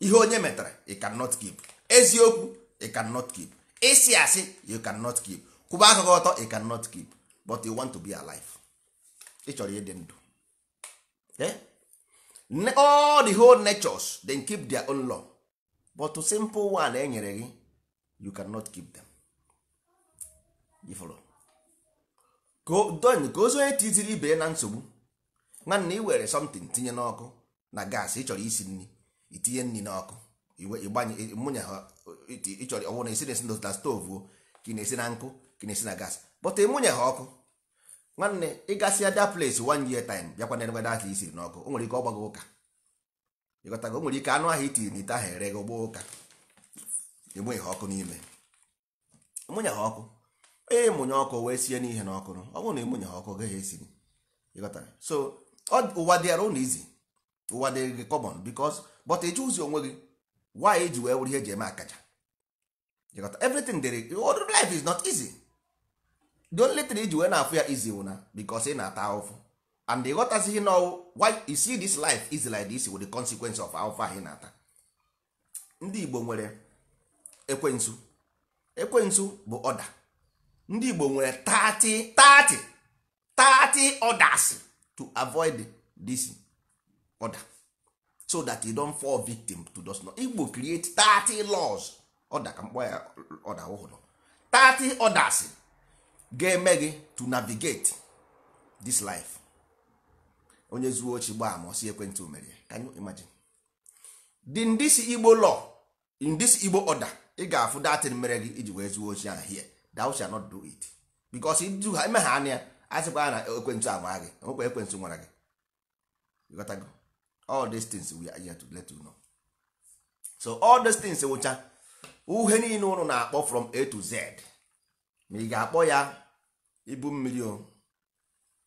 ihe onye metara you cannot keep eziokwu you cannot keep ịsị asị you cannot keep kwụba akụkọ ọtọ you cannot keep but you want to be alive ị chọrọ ịdị ndụ eh? all the whole natures then keep their own law but simple one e nyere gị you cannot keep them. You follow? ka ozi onye tiziri ibe ya na nsogbu nwanne ị were something tinye n'ọkụ na gas ị chọrọ isi nri itinye nri n'ọkụ ịgbanye mụnya ha ịchọrọ ọnwụ na esi na esi na stovu ka ị na-esi na nkụ ka ị na-esi na gas bọta ịmụnya ha ọkụ nwanne ịgasịa da place one year time bịakwa na edebe data isiri n'ọkụ o nwere ike ọgbago ụka ịghọtago o nwere ike anụ ahụ itiri n'ite ahụ ere gị ụka ịmụnye ha ọkụ n'ime ịmụnye ha ọkụ ịmụnye ọkụ wee sie n'ihe na ọkụ ọ bụrụ na ịmụnye ọkụ gị gaghị esiri ịghọtara so ụwa dịara ụlọ izi ụwa dịrị gị kọmọn bikos bọt ịjụ ụzi onwe gị why eji wee wụrụ ihe eji eme akaja ịghọta everything dịrị life is not easy the only thing iji wee na-afụ ya izi wụ bikos ị na-ata ahụfụ and ịghọtazighị na why you see this life is like this with the consequence of ahụfụ ahụ ị na-ata ndị Igbo nwere ekwensu ekwensu bụ ọda ndị Igbo nwere 30 30 30 orders to avoid this order so that you don't fall victim to those law Igbo create 30 laws order ka mkpọ ya order ọhụrụ 30 orders ga-eme gị to navigate this life onye zuo ochi gbaa ma osi ekwentị omere can you imagine in this Igbo law in this Igbo order ị ga-afụ datin mere gị iji wee zuo ochi ahụ here thou shall not do it because idu ha emegha anya ya a sịkwa na ekwentị anwa gị nwekwa ekwentị nwara gị ịghọtago all these things we are here to let you know so all these things wụcha eh, uhe niile ụlọ na-akpọ from a to z ma ị ga-akpọ ya ibu mmiri o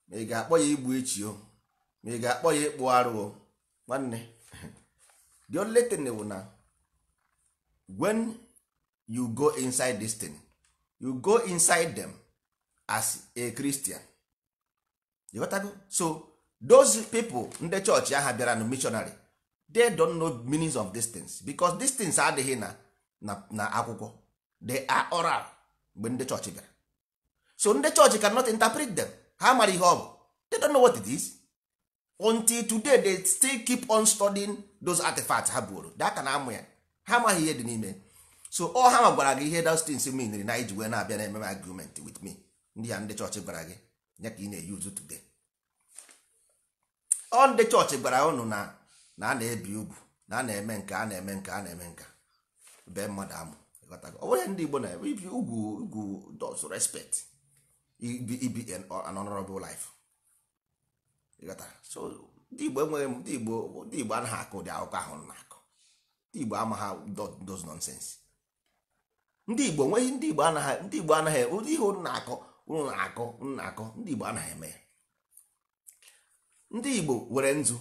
ma ị ga-akpọ ya igbu ichi o ma ị ga-akpọ ya ịkpụ arụ o nwanne the only thing na eh, when you go inside this thing you go inside them as a Christian you got to so those people ndị church aha bịara na missionary they don't know meanings of these things because these things adịghị na na akwụkwọ they are oral mgbe ndị church bịara so ndị chọọchị cannot interpret them ha mara ihe ọ bụ they don't know what it is until today they still keep on studying those artifacts ha buoro daka na amụ ya ha amaghị ihe dị n'ime so ọ ha gwara gị ihe dastins miniri na iji wee na-abịa na ememe argument with me ndị ya ndị chọọchị gwara gị nye ka ị na-eyuzu today ọ ndị chọọchị gwara ụnụ na na a na-ebi ugwu na a na-eme nke a na-eme nke a na-eme nke bee mmadụ amụ ọ bụghị ndị Igbo na-eme ibi ugwu ugwu does respect ibi ibi an honorable life so ndị Igbo enweghị ndị Igbo ndị Igbo anaghị akụ ụdị akụkọ ahụ na-akụ ndị Igbo amaghị does nonsense ndị igbo nweghị ndị igbo anaghị ndị igbo anaghị ụdị ihe unu na-akọ unu na-akọ unu na-akọ ndị igbo anaghị eme ya ndị igbo were nzu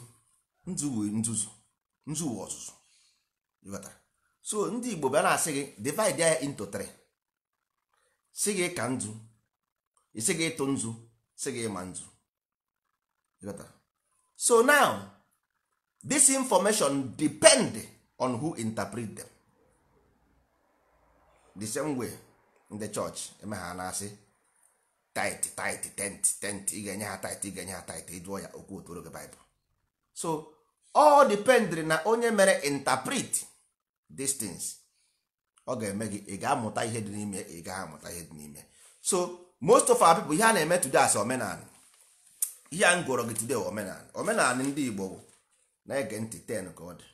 nzu wee nzuzu nzu wee ọzụzụ so ndị igbo bịa na-asị gị divide ya into three si gị ka nzu isi gị ịtụ nzu si gị ịma nzu so now this information depend on who interpret them. the same way ndị chọọchị eme ha na-asị tit tit tent tent ị ga-enye ha tit ị ga-enye ha tit ịjụọ ya okwu otoro gị baịbụl so ọ dependri na onye mere interpret these ọ ga-eme gị ị ga-amụta ihe dị n'ime ị gaghị amụta ihe dị n'ime so most of our people ihe a na-eme today as omenala ihe a m gụrụ gị today omenala omenala ndị Igbo na-ege ntị ten ka ọ dị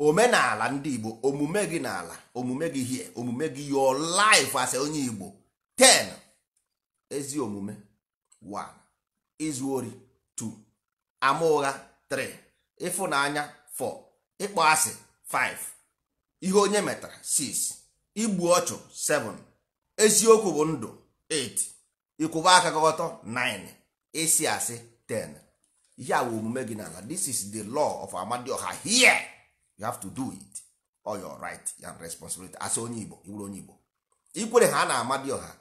omenala ndị igbo omume gị n'ala omume gị hie omume gị your life as onye igbo 10 ezi omume 1 izu ori 2 ama ụgha 3 ịfụnanya 4 ịkpọ asị 5 ihe onye metara 6 igbu ọchụ 7 eziokwu bụ ndụ 8 ịkwụba aka gọtọ 9 ịsị asị 10 Ya a bụ omume gị n'ala this is the law of amadioha here you have to do it all your right and responsibility as onye igbo iwuru onye igbo ikwere ha na-amadi ọha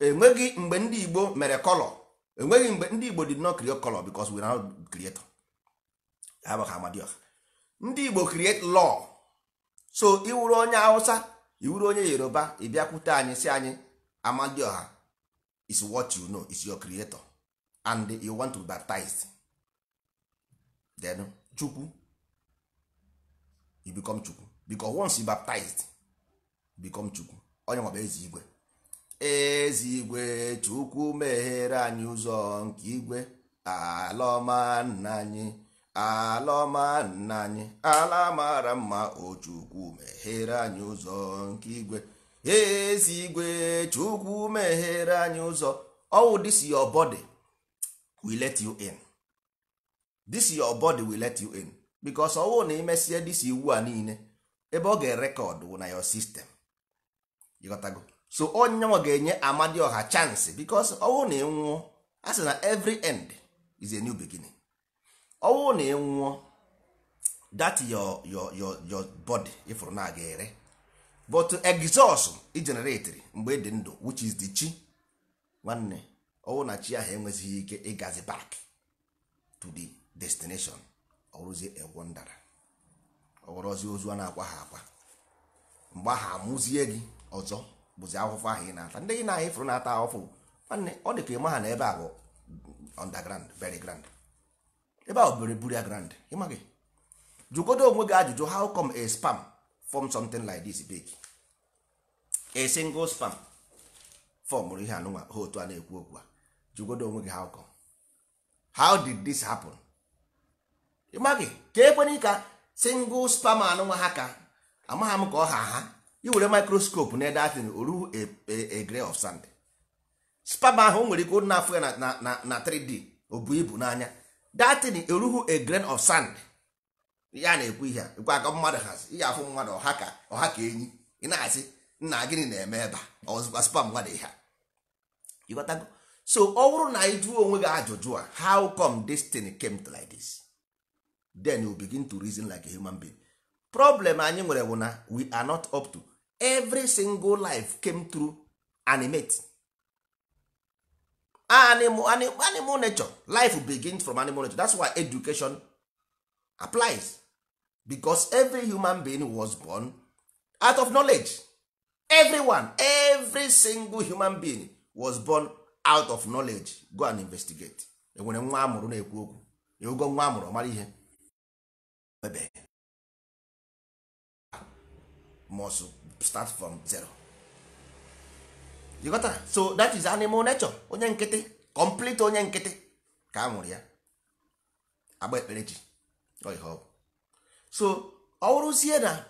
enweghị mgbe ndị igbo mere kọlọ enweghị mgbe ndị igbo did not create color because we are not creator abụghị amadioha ndị igbo create law so iwuru onye hausa iwuru onye yoruba ịbịakwute anyị si anyị amadioha is what you know is your creator and you want to baptize then chukwu you become chukwu because once you baptized become chukwu onye nwa bụ igwe ezi igwe chukwu meghere anyị ụzọ nke igwe alọma nna anyị alọma nna anyị ala mara mma o chukwu meghere anyị ụzọ nke igwe ezi igwe chukwu meghere anyị ụzọ ọwụ this your body will let you in this your body will let you in bikos ọwụ na imesie dis iwu a niile ebe ọ ga-erekọdụ wụ na yo sistem ịghọtago so onyenwa ga-enye amadioha chansị bikos ọwụ na ịnwụọ a sị na every end is a new beginning ọwụ na ịnwụọ that your your your your body na aga ere but exhaust igeneratri mgbe dị ndụ which is the chi nwanne ọwụ na chi ahụ enwezighị ike ịgazi back to the destination ọrụzie egwo ndara ọghọrọzi ozu a na-akwa ha akwa mgbe ahụ amụzie gị ọzọ bụzi akwụkwọ ahụ ị na-ata ndị gị na ifuru na-ata ahụfụ nwanne ọ dị ka ịma ha na ebe a bụ underground very grand ebe ahụ bere buru ya grand ịmaghị jụgodo onwe gị ajụjụ how come a spam form something like this big a single spam fọmụrụ ihe anụnwa ha otu a na-ekwu okwu a jụgodo onwe gị how come how did this happen? ịmaghị ka ekwenye ka single sperm anụnwa ha ka amagha m ka ọ ha ha iwere microscope na ede atịn oru a e, e, e grain of sand sperm ahụ o nwere ike na afọ ya na 3D o bu ibu n'anya datin eruhu a grain of sand ya na-ekwu ihe a, ekwe aka mmadụ hazi ihe afụ mmadụ ọha ka ọha ka enyi ị na-asị nna gịnị na-eme ebe a ọzụkwa spam mmadụ ihe ịghọtago so ọ bụrụ na ị jụọ onwe gị ajụjụ a how come this thing came to like this then you begin to reason like a human being problem anyị nwere bụ na we are not up to every single life came through animate animal, animal, animal nature life begins from animal nature that's why education applies because every human being was born out of knowledge everyone every single human being was born out of knowledge go and investigate enwere nwa amụrụ na-ekwu okwu nwa amụrụ ihe ebe must start from zero you got that? so that is animal nature onye nkịtị complete onye nkịtị ka a nwụrụ ya agba ekpere ji so ọ wụrụzie na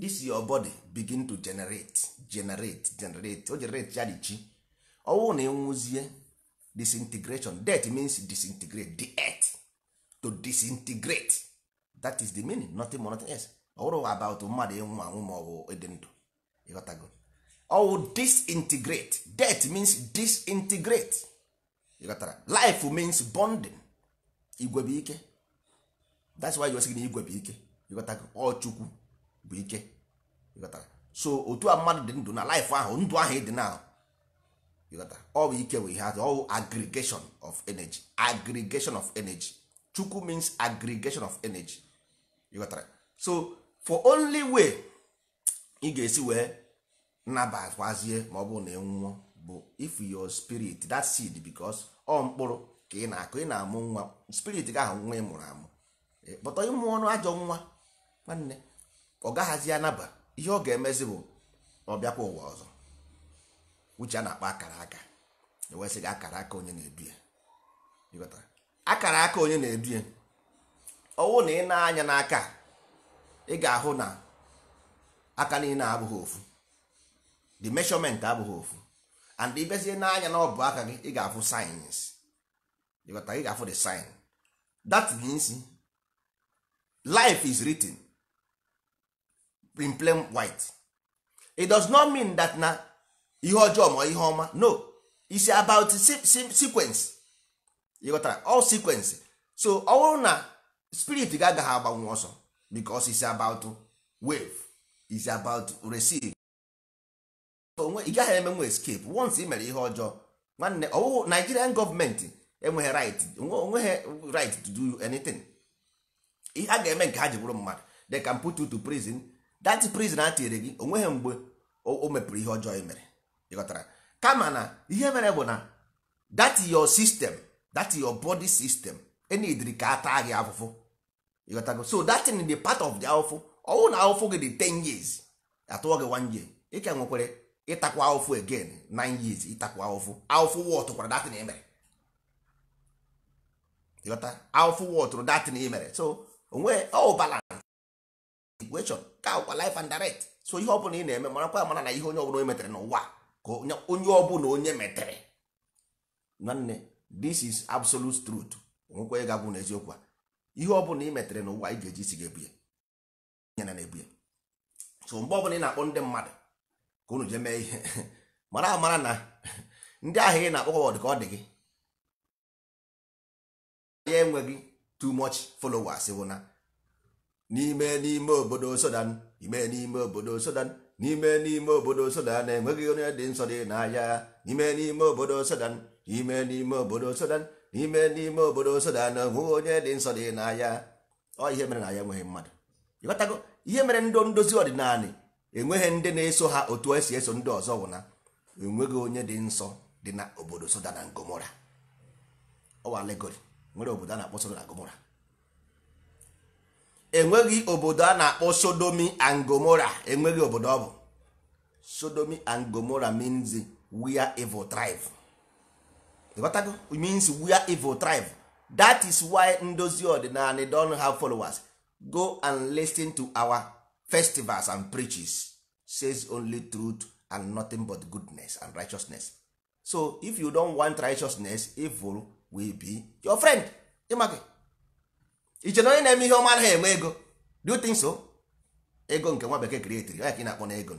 this your body begin to generate generate generate o generate ya dị chi na enwuzie disintegration death means disintegrate the earth to disintegrate that is the meaning nothing more nothing else ọwụrụ about mmadụ ịnwụ anwụ ma ọ bụ ịdị ndụ ịghọtago ọwụ disintegrate death means disintegrate ịghọtara life means bonding igwe bụ ike that's why you sị na igwe bụ ike ịghọtago ọchukwu bụ ike ịghọtara so otu a mmadụ dị ndụ na life ahụ ndụ ahụ ịdị na ịghọtara ọ bụ ike bụ ihe atụ ọwụ aggregation of energy aggregation of energy chukwu means aggregation of energy you so for only way ị ga-esi wee nabakwazie ma ọ bụrụ na nwụọ bụ if your spirit that seed because ọ mkpụrụ ka ị na-akụ ị na-amụ nwa spirit ga ahụ nwa ị mụrụ amụ kpọtọ ịmụ ọnụ ajọ nwa nwanne ọ gaghazi anaba ihe ọ ga-emezi bụ ọ bịakwa ụwa ọzọ uche a na-akpọ akara aka ewesịghị akara aka onye na-edu ya akara aka onye na-edu ya ọwụ na ị na-anya n'aka ị ga-ahụ na aka niile abụghị ofu the measurement abụghị ofu and ibezie n'anya na ọbụ aka gị ị ga-afụ sayensị ịghọta ị ga-afụ the sign that means life is written in plain white it does not mean that na ihe ọjọọ ma ihe ọma no it's about sequence ịghọtara all sequence so ọ na spirit ga agaghị agbanwe ọsọ because is about wave is about receive onwe ị gaghị emenwe escape once ị mere ihe ọjọọ nwanne ọwụwụ Nigerian gọọmenti enweghị right onweghị right to do anything ihe a ga-eme nke ha ji bụrụ mmadụ they can put you to prison that prison a tinyere gị onweghị mgbe o mepụrụ ihe ọjọọ ị mere ịghọtara kama na ihe mere bụ na that your system that your body system enidiri ka a gị afụfụ ịghọtago so that thing the part of the awụfụ ọwụ na awụfụ gị dị 10 years atụọ gị one year ị ka nwekwere ịtakwa awụfụ again 9 years ịtakwa awụfụ awụfụ wọtụkwara datin emere ịghọta awụfụ wọtụrụ datin emere so onwe ọwụ balance equation ka ọkwa life and direct so ihe ọbụla ị na-eme marakwa amara na ihe onye ọbụla onye metere n'ụwa ka onye ọbụla onye metere nwanne this is absolute truth onwekwa ịgagwu n'eziokwu a ihe ọ bụla ị metere n'ụwa ị ga-eji isi ga-ebu ya nyere na-ebu ya so mgbe ọbụla ị na-akpọ ndị mmadụ ka unu jee mee ihe mara amara na ndị ahụ ị na-akpọkwa dị ka ọ dị gị ya enweghị too much followers bụ na n'ime n'ime obodo sodan ime n'ime obodo sodan n'ime n'ime obodo Sudan enweghị onye dị nsọ dị n'ahịa n'ime n'ime obodo sodan ime n'ime obodo sodan n'ime n'ime obodo Soda na hụ onye dị nsọ dị n'ahịa ọ ihe mere na ya enweghị mmadụ ịghọtago ihe mere ndị ndozi ọdịnala enweghị ndị na-eso ha otu esi eso ndị ọzọ wụ na enweghị onye dị nsọ dị na obodo Soda sodana gomora ọwa legori nwere obodo a na-akpọ na gomora enweghị obodo a na-akpọ sodomi angomora enweghị obodo ọ bụ sodomi angomora gomora means where evil thrive ịghọtago means we are evil tribe that is why ndozi ọdịnala don have followers go and listen to our festivals and preaches says only truth and nothing but goodness and righteousness so if you don want righteousness evil will be your friend ịmaka iche onye na-eme ihe ọma eme ego do you think so ego nke nwa bekee kreetiri ya ka ị na-akpọ na ego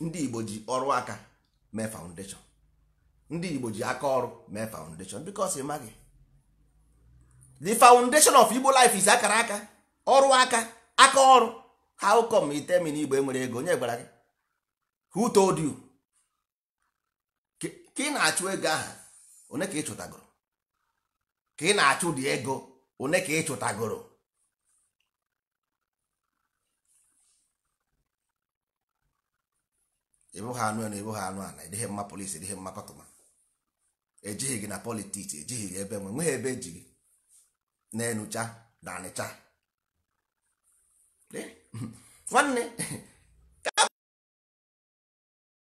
ndị Igbo ji ọrụ aka mee foundation ndị igbo ji aka ọrụ mee foundation because ịmaghị the foundation of igbo life is akara aka ọrụ aka aka ọrụ how come itemi na igbo enwere ego onye gwara gị who told you ka ị na-achụ ego aha one ka ị chụtagoro ka ị na-achụ dị ego one ka ị chụtagoro ịbụghị anụ elu ịbụghị anụ ala ịdịghị mma polisi ịdịghị mma kọtụma ejighị gị na politiks ejighị gị ebe nwe nweghị ebe eji gị na-enucha na anịcha nwanne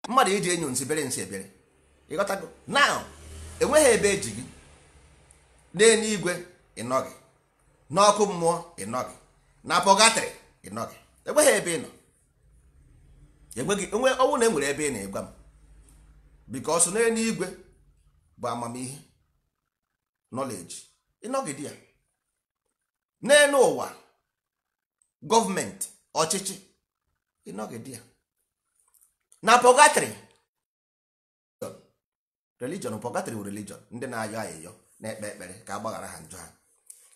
mmadụ iji enyo nsị bere nsị ebere ịghọtago na enweghị ebe eji gị n'eluigwe ịnọghị n'ọkụ mmụọ ịnọghị na pọgatrị ịnọghị enweghị ebe ị nọ enweghị onwe ọnwụ na enwere ebe ị na-egwa m bikos n'eluigwe bụ amamihe nọleji ịnọgide ya n'elu ụwa gọọmenti ọchịchị ịnọgide ya na pọgatrị religion pọgatrị bụ religion ndị na-ayọ ayịyọ na-ekpe ekpere ka agbaghara ha njọ ha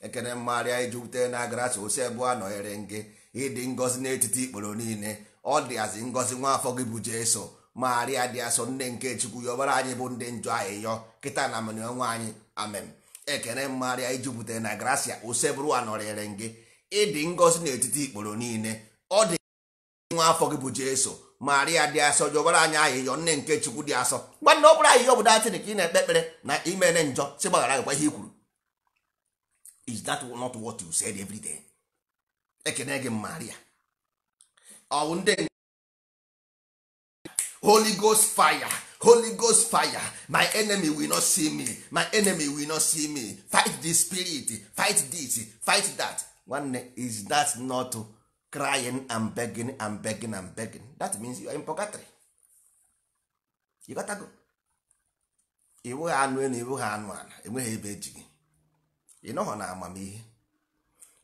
ekene mmarịa iji wute na agras osi ebe a nọghere gị ịdị ngọzi n'etiti ikporo niile ọ dịazi ngọzi nwa gị bụ Jesu magharịa dị asọ nne nke chukwu ya ọbara anyị bụ ndị njọ anyị yọ kịta na mani ọnwa anyị amen ekene mmagharịa ijupụtara na gracia osebụrụ anọrịrị gị ịdị ngọzi n'etiti ikporo niile ọ dị nwa afọ gị bụ jesu maria dị asọ ji ọbara anyị ahịhịọ nne nke chukwu dị asọ nwanne ọ bụrụ ayịyọ bụ datịrị ka ị na-ekpe ekpere na imene njọ si gbaghara gịkwa ihe i kwuru is that not what you said every day ekene gị maria ọwụ ndị holy ghost fire holy ghost fire my enemy will not see me my enemy will not see me fight the spirit fight this fight that nwanne is that not crying and begging and begging and begging that means you are in purgatory you gotta go ha anụ elu iwu ha anụ ala enweghị ebe eji gị ịnọghọ na amamihe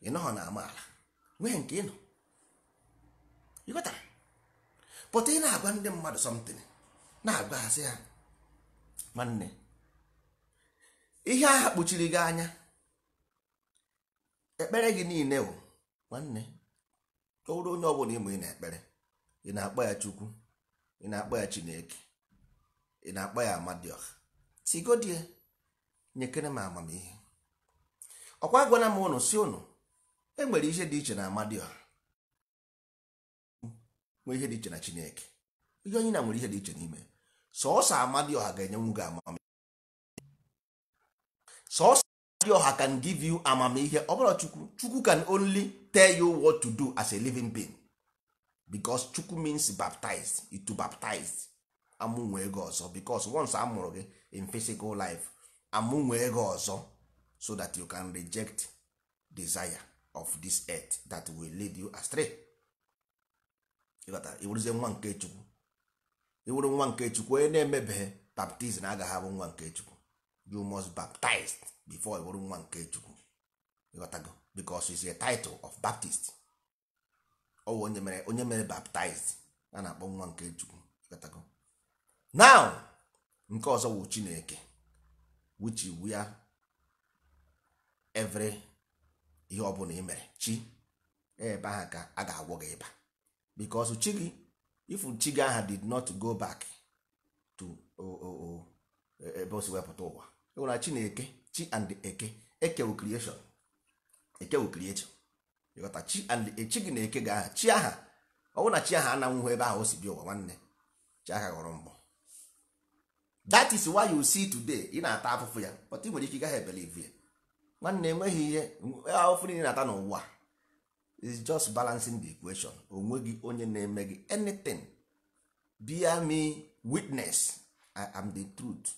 ịnọghọ na amaala wee nke ịnọ you gotta pụta ị na-agwa ndị mmadụ something na-agwa asị ha nwanne ihe ahụ kpuchiri gị anya ekpere gị niile bụ nwanne tụrụ onye bụla ịmụ ị na-ekpere ị na-akpọ ya chukwu ị na-akpọ ya chineke ị na-akpọ ya amadioha tigodie nyekere m amamihe ọkwa gwana m ụnụ si ụnụ enwere ihe dị iche na Amadioh. nwee ihe dị iche na chineke ihe onye na nwere ihe dị iche n'ime sọọsọ ọha ga-enyenwu gị amamihe sọọsọ ọha can give you amamihe ọ bụrụ chukwu chukwu can only tell you what to do as a living being because chukwu means baptized to baptize amụnwee ego ọzọ because once a mụrụ gị in physical life amụnwee ego ọzọ so that you can reject desire of this earth that will lead you astray. ịghọta iwuruzie nwa nke chukwu iwuru nwa nke chukwu onye na-emebeghị baptizim agaghị abụ nwa nke chukwu you must baptize before iwuru nwa nke chukwu ịghọtago because is a title of baptist ọ bụ onye mere onye mere baptized a na-akpọ nwa nke chukwu ịghọtago now nke ọzọ wụ chineke which iwu ya every ihe ọ bụla ị mere chi ebe ahụ ka a ga-agwọ gị ịba because chi gị if chi aha did not go back to ebe o si wepụta ụwa enwere chi na-eke chi and eke ekewu creation ekewu creation ịghọta chi and e, chi gị na-eke ga aha chi aha ọ bụrụ na chi aha ananwụhụ ebe ahụ o si bịa ụwa nwanne chi aha ghọrọ mgbọ that is why you see today ị na-ata afụfụ ya but ị nwere ike ị gaghị ebelive ya nwanne enweghị ihe e, afụfụ niile na-ata n'ụwa is just balancing the equation onweghị onye na-eme gị anything bear me witness I am the truth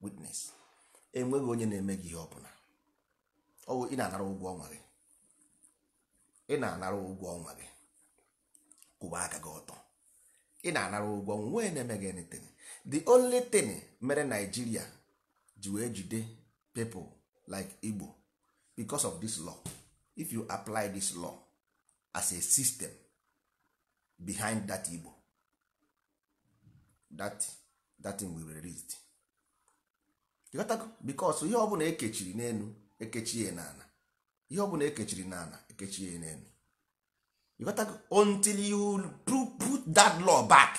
witness enweghị onye na-eme gị ihe ọbụla ọwụ ị na-anara ụgwọ ọnwa gị ị na-anara ụgwọ ọnwa gị kwụba aka gị ọtọ ị na-anara ụgwọ nwee na-eme gị anything the only thing mere Nigeria ji wee jide people like Igbo because of this law. if you apply this law as a system behind that igbo that that thing will be released because ihe ọbụla ekechiri n'elu ekechie n'ala ihe ọbụla ekechiri n'ala ekechie n'elu until you put that law back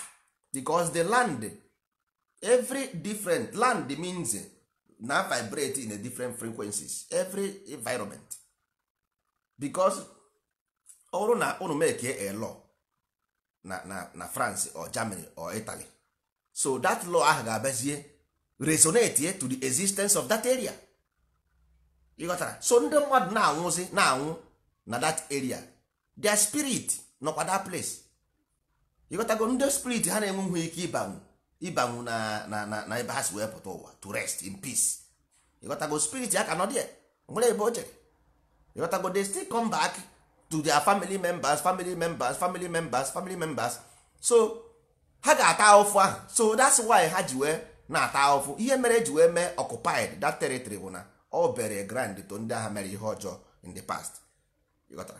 because the land every different land means na vibrate in a different frequencies every environment bikos ọ na unu meke a law na na na France or Germany or itali so that law ahụ ga-abazie resonate to the existence of that area ịghọtara so ndị mmadụ na-anwụzi na-anwụ na that area their spirit nọkwa that place ịghọtago ndị spirit ha na-enweghị ike ịbanwu ịbanwu na na na ebe ha si wee pụta ụwa to rest in peace ịghọtago spirit ya ka nọ dị nwere ebe o jere but they still come back to their family members family members family members family members so ha ga-ata ahụfụ ahụ so that's why ha ji wee na-ata ahụfụ ihe mere eji wee mee occupied that territory bụ na ọ bere grand to ndị agha mere ihe ọjọọ in the past ịghọtara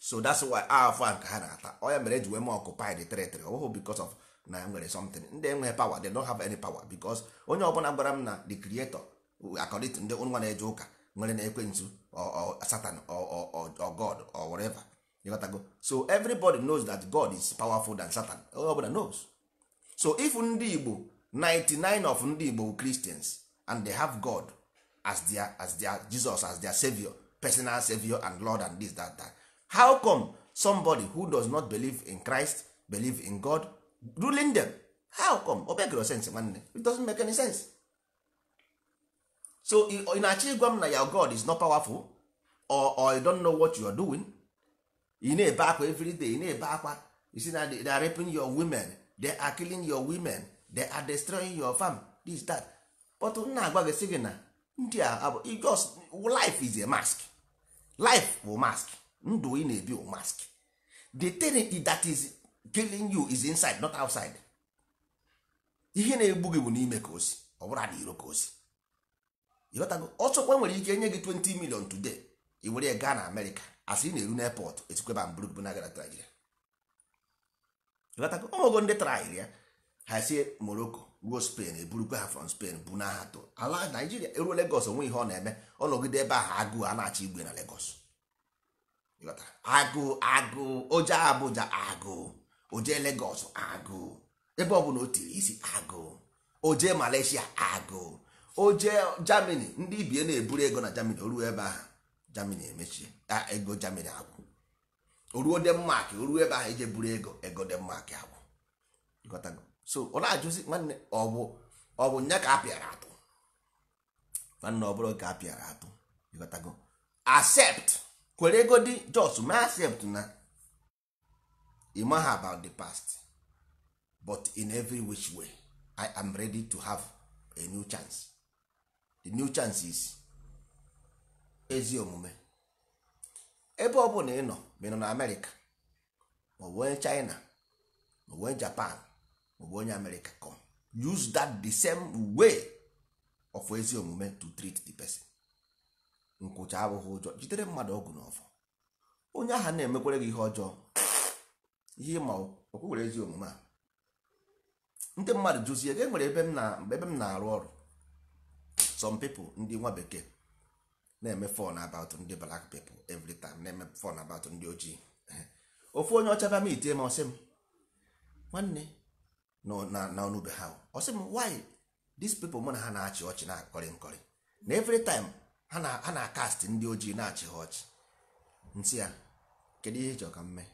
so that's why ahụfụ ahụ ka ha na-ata ọ ya mere eji wee mee occupied territory ọ bụghị because of na e nwere something ndị enweghị power they don't have any power because onye ọbụla gwara m na the creator according ndị nwa na-eje ụka nwere na ekwensu satan or god or whatever you gotta go so everybody knows that god is powerful than satan Everybody ọbụla knows so if ndị igbo 99 of ndị igbo christians and they have god as their, as their jesus as their savior personal savior and lord and this that that how come somebody who does not believe in christ believe in god ruling them how come o sense nwanne it doesn't make any sense so ị na-achọ ịgwa m na your god is not powerful or, or you don't know what you are doing ị na-ebe akwa everyday ị na-ebe akwa you see na they are raping your women they are killing your women they are destroying your farm this that but nna agwa gị sị gị na ndị a just life is a mask life bụ mask ndụ ị na-ebi bụ mask the thing that is killing you is inside not outside ihe na-egbu gị bụ n'ime ka osi ọ bụrụ na iro ka osi ọchọkwa ọsọkwa nwere ike nye gị 20 million today i were ya gaa na amerịka asị ị na-eru n'epọt etikweba mburubu na naijiria ịghọtago ọmụgo ndị trail ya ha sie ruo spain eburukwa ha from spain bụ na ha ala naijiria eruo legos onwe ihe ọ na-eme ọ nọgide ebe ahụ agụụ a na-achọ igwe na legos agụụ agụụ oje abụja agụụ oje legos agụụ ebe ọ bụla o tiri isi agụụ oje malaysia agụụ o jee Germany ndị ibie na-eburu ego na Germany oruo ebe ahụ Germany emechie ego Germany agwụ oruo Denmark oruo ebe ahụ ije e buru ego ego Denmark agwụ so ọ na-ajụzi nwanne ọ ọbụ ọ bụ nya ka apịara atụ nwanne ọ bụrụ ka apịara atụ ịghọtago accept kwere ego dị just ma accept na ịmaha about the past but in every which way I am ready to have a new chance the new chances ezi omume ebe ọ bụla ị nọ ma ị nọ na amerịka maọbụ onye china maọbụ onye japan maọbụ onye amerịka com use that the same way of ezi omume to treat the person nkwụcha abụghị ụjọ jidere mmadụ ọgwụ ọfọ onye ahụ na-emekwere gị ihe ọjọọ ihe ịma okwuwere ezi omume a ndị mmadụ jụzie ga enwere ebe m na-arụ ọrụ some people ndị nwa bekee na-eme fon about ndị black people every na-eme fon about ndị ojii ofu onye ọcha bịa ite itie ma ọsị m nwanne na ọnụbe ha ọsị m why these people mụ na ha na-achị ọchị na-akọrị nkọrị na every ha na-akast ndị ojii na-achị ha ọchị nsị ya kedu ihe ịchọ ka m mee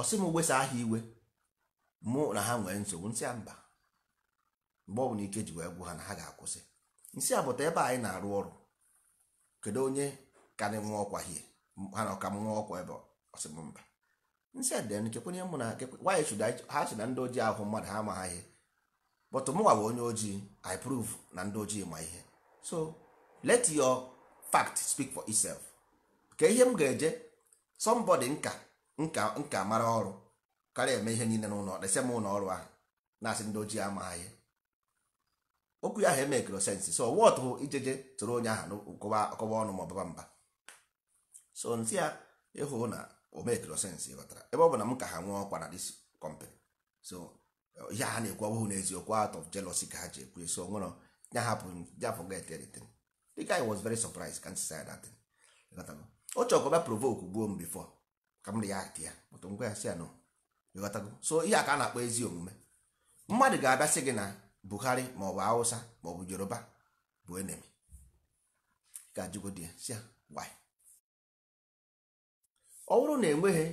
ọsị m wesa aha iwe mụ na ha nwee nsogbu nsị ya mba mgbe ọ bụla ike ji wee gwụ ha na ha ga-akwụsị nsị bụta ebe anyị na-arụ ọrụ kedu onye ka anyị nwa ọkwa hie ha na ọka m nwa ọkwa ebe ọsịmba nsị adịrị na chekwenye mụ na nwaanyị chụda ha si na ndị ojii ahụ mmadụ ha ama ha ihe but mụnwa onye ojii i na ndị ojii ma ihe so let your fact speak for itself ka ihe m ga-eje somebody nka nka nka mara ọrụ karịa eme ihe niile n'ụlọ desem ụlọ ọrụ ahụ na-asị ndị ojii ama ha ihe okwu ya ahụ emekro sensi so wọt hụ ijeje tụrụ onye ahụ kọwa ọnụ ma ọbaba mba so ntị ya ịhụ na omekro sensi ghọtara ebe ọ bụ na m ka ha nwee ọkwa na dis kọmpanị so ihe ha na-ekwu ọbụghị n'eziokwu out of jealousy ka ha ji ekwu so nwere ya hapụ ya forget everything the guy was very surprised can say that thing O chọrọ ka provoke gbuo m before ka m dị ya bụtụ ngwa ya si ya nọ so ihe a ka a na-akpọ ezi omume mmadụ ga-abịa gị na buhari ma ọ maọbụ hausa maọbụ yoruba bụ enemi ka jigodi si why ọ bụrụ na enweghị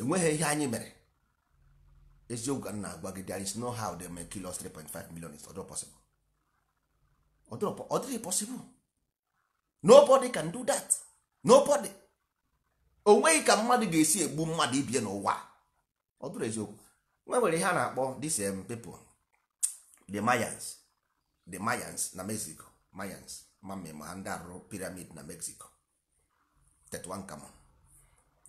enweghị ihe anyị mere eziokwu ka nna agwa gị there is no how they may kill us 3.5 million is not possible ọ dịghị possible nobody can do that nobody O nweghị ka mmadụ ga-esi egbu mmadụ ibie n'ụwa ọ dụrụ eziokwe nwewere ihe a na-akpọ this um, people the mayans the mayans na mexico mayans mamem ha ndị arụ piramid na mexico 31 kamon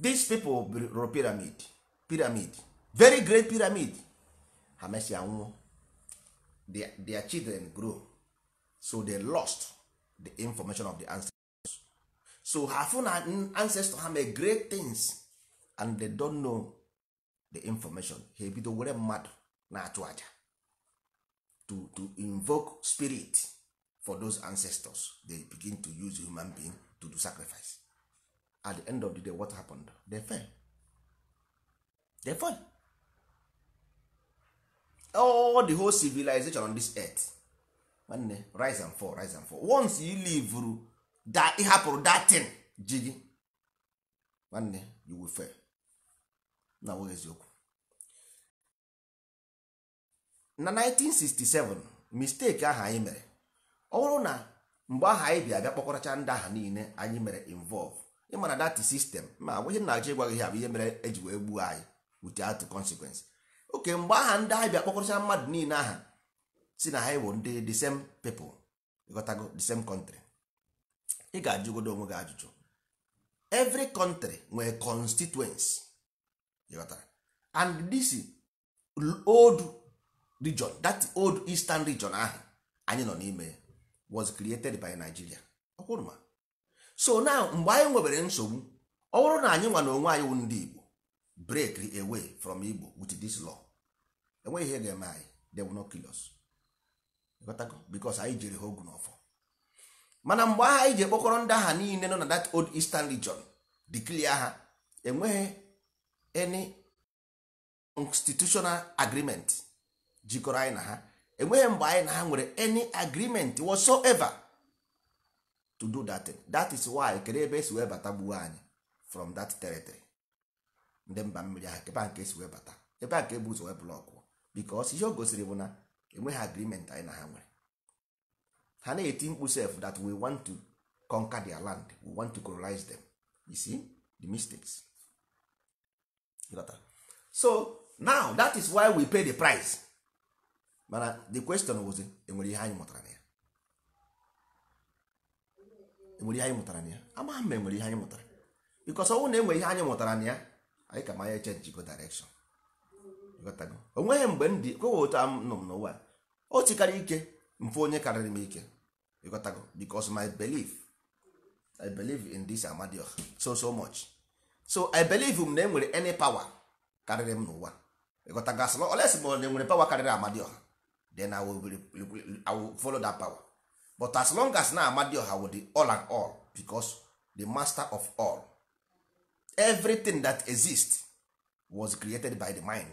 these people rụrụ piramid piramid very great pyramid ha mesịa nwụọ their, their children grow so they lost the information of the ancestors so her fụ na ancestor ha mee great things and they don't know the information ha ebido were mmadụ na-achụ aja to to invoke spirit for those ancestors they begin to use human being to do sacrifice at the end of the day what happened they fell they fell all the whole civilization on this earth nwanne rise and fall rise and fall once you leave that hapụrụ that thing ji gị nwanne you will fail na eziokwu na 1967 mistake aha anyị mere ọ bụrụ na mgbe aha anyị bịa bịa kpọkọrọcha ndị aha niile anyị mere involve ịmana dati sistem ma agwaghị na-achọ ịgwa gị ha bụ ihe mere eji wee gbuo anyị without consequence oke mgbe aha ndị ahụ bịa kpọkọrọcha mmadụ niile aha si na ha bụ ndị the same people ịghọtago the same country ị ga-ajụgodo onwe gị ajụjụ every country nwere constituency ịghọtara and this old region that old eastern region ahụ anyị nọ n'ime was created by Nigeria ọkwụrụma so now mgbe anyị nwebere nsogbu ọ bụrụ na anyị nwa na onwe anyị wụ ndị Igbo break away from Igbo with this law enweghị ihe ga-eme anyị they will not kill us because anyị jiri ha ogu ọfọ. mana mgbe agha anyị ji ekpokọrọ ndị agha niile nọ na that old eastern region declare ha enweghị any institutional agreement jikọrọ anyị na ha enweghị mgbe anyị na ha nwere any agreement whatsoever to do that thing. that is why kedu ebe esi wee bata gbuo anyị from that territory ndị mba mmiri ahụ ebe nke esi wee bata ebe a ka ebu ụzọ wee blọkụ because ihe o gosiri bụ na enweghị agreement anyị na ha nwere ha na-eti mkpu sef that we want to conquer their land we want to colonize them you see the mistakes so now that is why we pay the price mana the question was enwere ihe anyị mụtara na ya enwere ihe anyị mụtara na ya amaghị m enwere ihe anyị mụtara because ọnwụ na enwere ihe anyị mụtara na ya anyị ka manya chenjigo direction onweghị mgbe m dị kwewe otu nọ m n'ụwa o tikarị ike mfe onye karịrị m ike ịghọtago because my belief I believe in this Amadioha so so much so I believe m na enwere any power karịrị m n'ụwa ịghọtago asị ma olesi ma na enwere power karịrị Amadioha then I will, I will follow that power but as long as na I will the all and all because the master of all everything that exists was created by the mind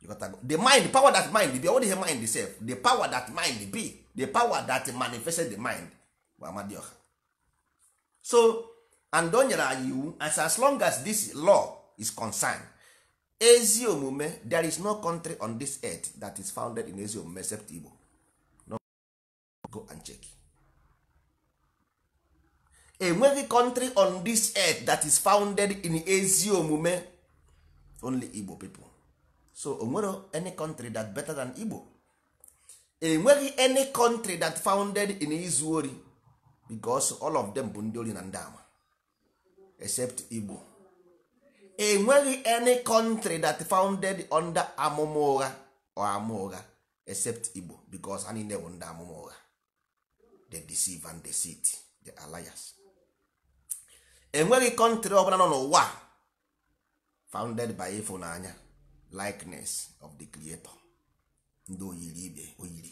you got to the mind power that mind be all the mind itself the power that mind be the power that manifested the mind bụ amadioha so and o nyere anyị iwu as as long as this law is concerned ezi omume there is no country on this earth that is founded in ezi omume except Igbo no go and check enweghị country on this earth that is founded in ezi omume only Igbo people so onwere any country that better than Igbo enweghị any country that founded in izu ori because all of them bụ ndị ori na ndị ama except Igbo enweghị any country that founded under amụma ụgha or ama ụgha except igbo because ha niile bụ ndị amụma ụgha they deceive and deceit the alliance enweghị country ọbụla nọ n'ụwa founded by ịfụnanya likeness of the creator ndị oyiri ibe oyiri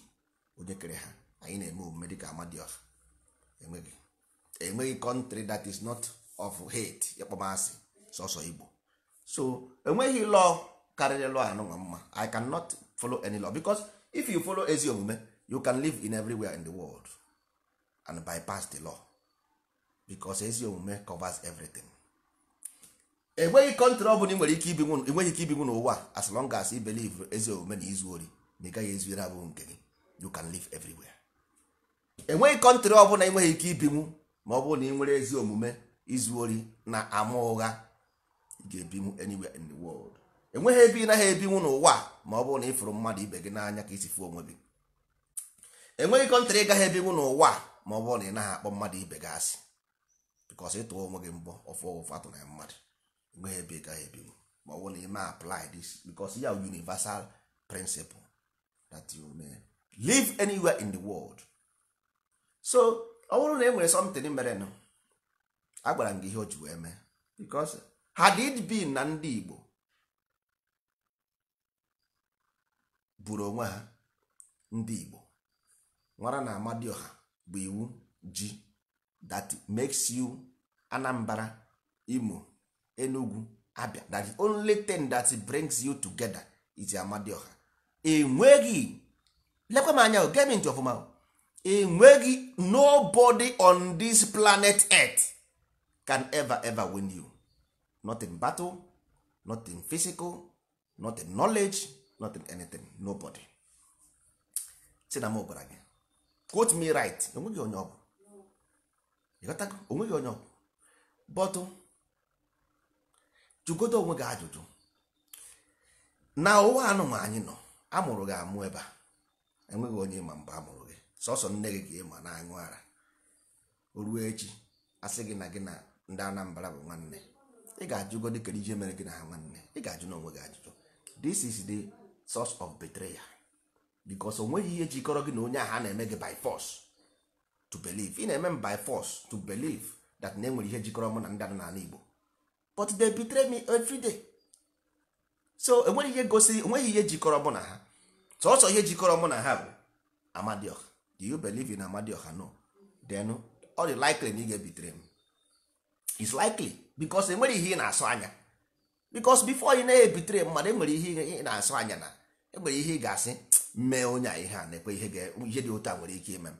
onye kere ha anyị na-eme omume dịka amadioha enweghị enweghị country that is not of hate ịkpọmasị sọsọ igbo so enweghị lọ karịrị law anụnwa mma i cannot follow any law because if you follow ezi omume you can live in everywhere in the world and bypass the law because ezi omume covers everything enweghị kọntrị ọbụla nwere ike ibi enweghị ike ibinwu n'ụwa as long as i believe ezi omume na izu ori na ị gaghị ezuere abụghị nke gị you can live everywhere enweghị kọntrị ọbụla enweghị ike ibinwu ma ọ bụrụ na ị nwere ezi omume izu ori na ama ụgha ga-ebinwu anywhere in the world enweghị ebe ị naghị ebinwu n'ụwa ma ọ bụrụ na ị fụrụ mmadụ ibe gị n'anya ka isi fụ onwe gị enweghị kọntrị ịgaghị ebinwu n'ụwa ma ọ bụrụ na ị naghị akpọ mmadụ ibe gị asị ị ịtụọ onwe gị mbọ ọfụ ọfụ atụ na mmadụ enweghị ebe ị gaghị ebinwu ma ọ bụrụ na ị ma apply this bịkọs ya universal principle that you may live anywhere in the world so ọ bụrụ na e nwere something merenụ agwara m gị ihe o ji wee mee bịkọs had it been na ndị Igbo buru onwe ha ndị Igbo nwara na Amadioha bụ iwu ji that makes you Anambra Imo Enugu Abia that the only thing that brings you together is Amadioha enweghị lekwa m anya gem ntị ọfụma enweghị nobody on this planet earth can ever ever win you not battle nothing physical nothing knowledge nothing anything nobody si na m gwara gị quote me right onweghị onye ọgwụ ịghọtago onweghị onye ọbụ, bọtụ jụgodo onwe gị ajụjụ na ụwa anụma anyị nọ amụrụ gị amụ ebe a enweghị onye ịma mgbe amụrụ gị sọsọ nne gị ka ịma na anyụ ara o ruo echi asị gị na gị na ndị Anambra bụ nwanne ị ga-ajụgodi kedu ije mere gị na ha nwanne ị ga-ajụ n'onwe gị ajụjụ this is the source of betrayal because o nweghị ihe jikọrọ gị na onye ahụ a na-eme gị by force to believe ị na-eme m by force to believe that na enwere ihe jikọrọ mụ na ndị n'ala Igbo but they betray me everyday. so enweghị ihe gosiri enweghị ihe jikọrọ mụ na ha sọsọ ihe jikọrọ mụ na ha bụ amadioh do you believe in amadioh no then all the likely na ị ga-ebitere m is likely bikos enwere ihe ị na-asụ anya bikos bifo ị na-ebitere mmadụ enwere ihe ị na-asụ anya na enwere ihe ị ga-asị mee onye a ihe a na-ekwe ihe dị otu a nwere ike ime m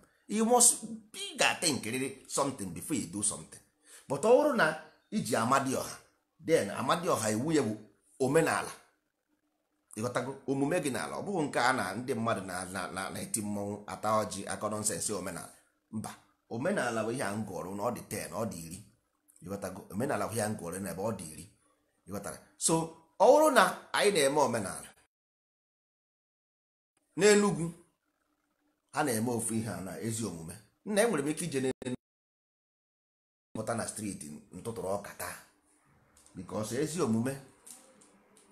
ị ga-ate nkiriri something before you do something but ọ bụrụ na iji amadioha den amadioha iwu ya bụ omenala ịghọtago omume gị n'ala ọ bụghị nke a na ndị mmadụ na-eti mmọnwụ ata ọjị akọ nọnsensị omenala mba omenala bụ ihe a m na ọ dị 10 ọ dị iri ịghọtago omenala hụ ya na n'ebe ọ dị iri ịghọtara so ọ bụrụ na anyị na-eme omenala n'enugwu a na-eme ofu ihe a na ezi omume nna enwere m ike ije n'enugwu na streeti ntụtụrụ ọka taa ezi omume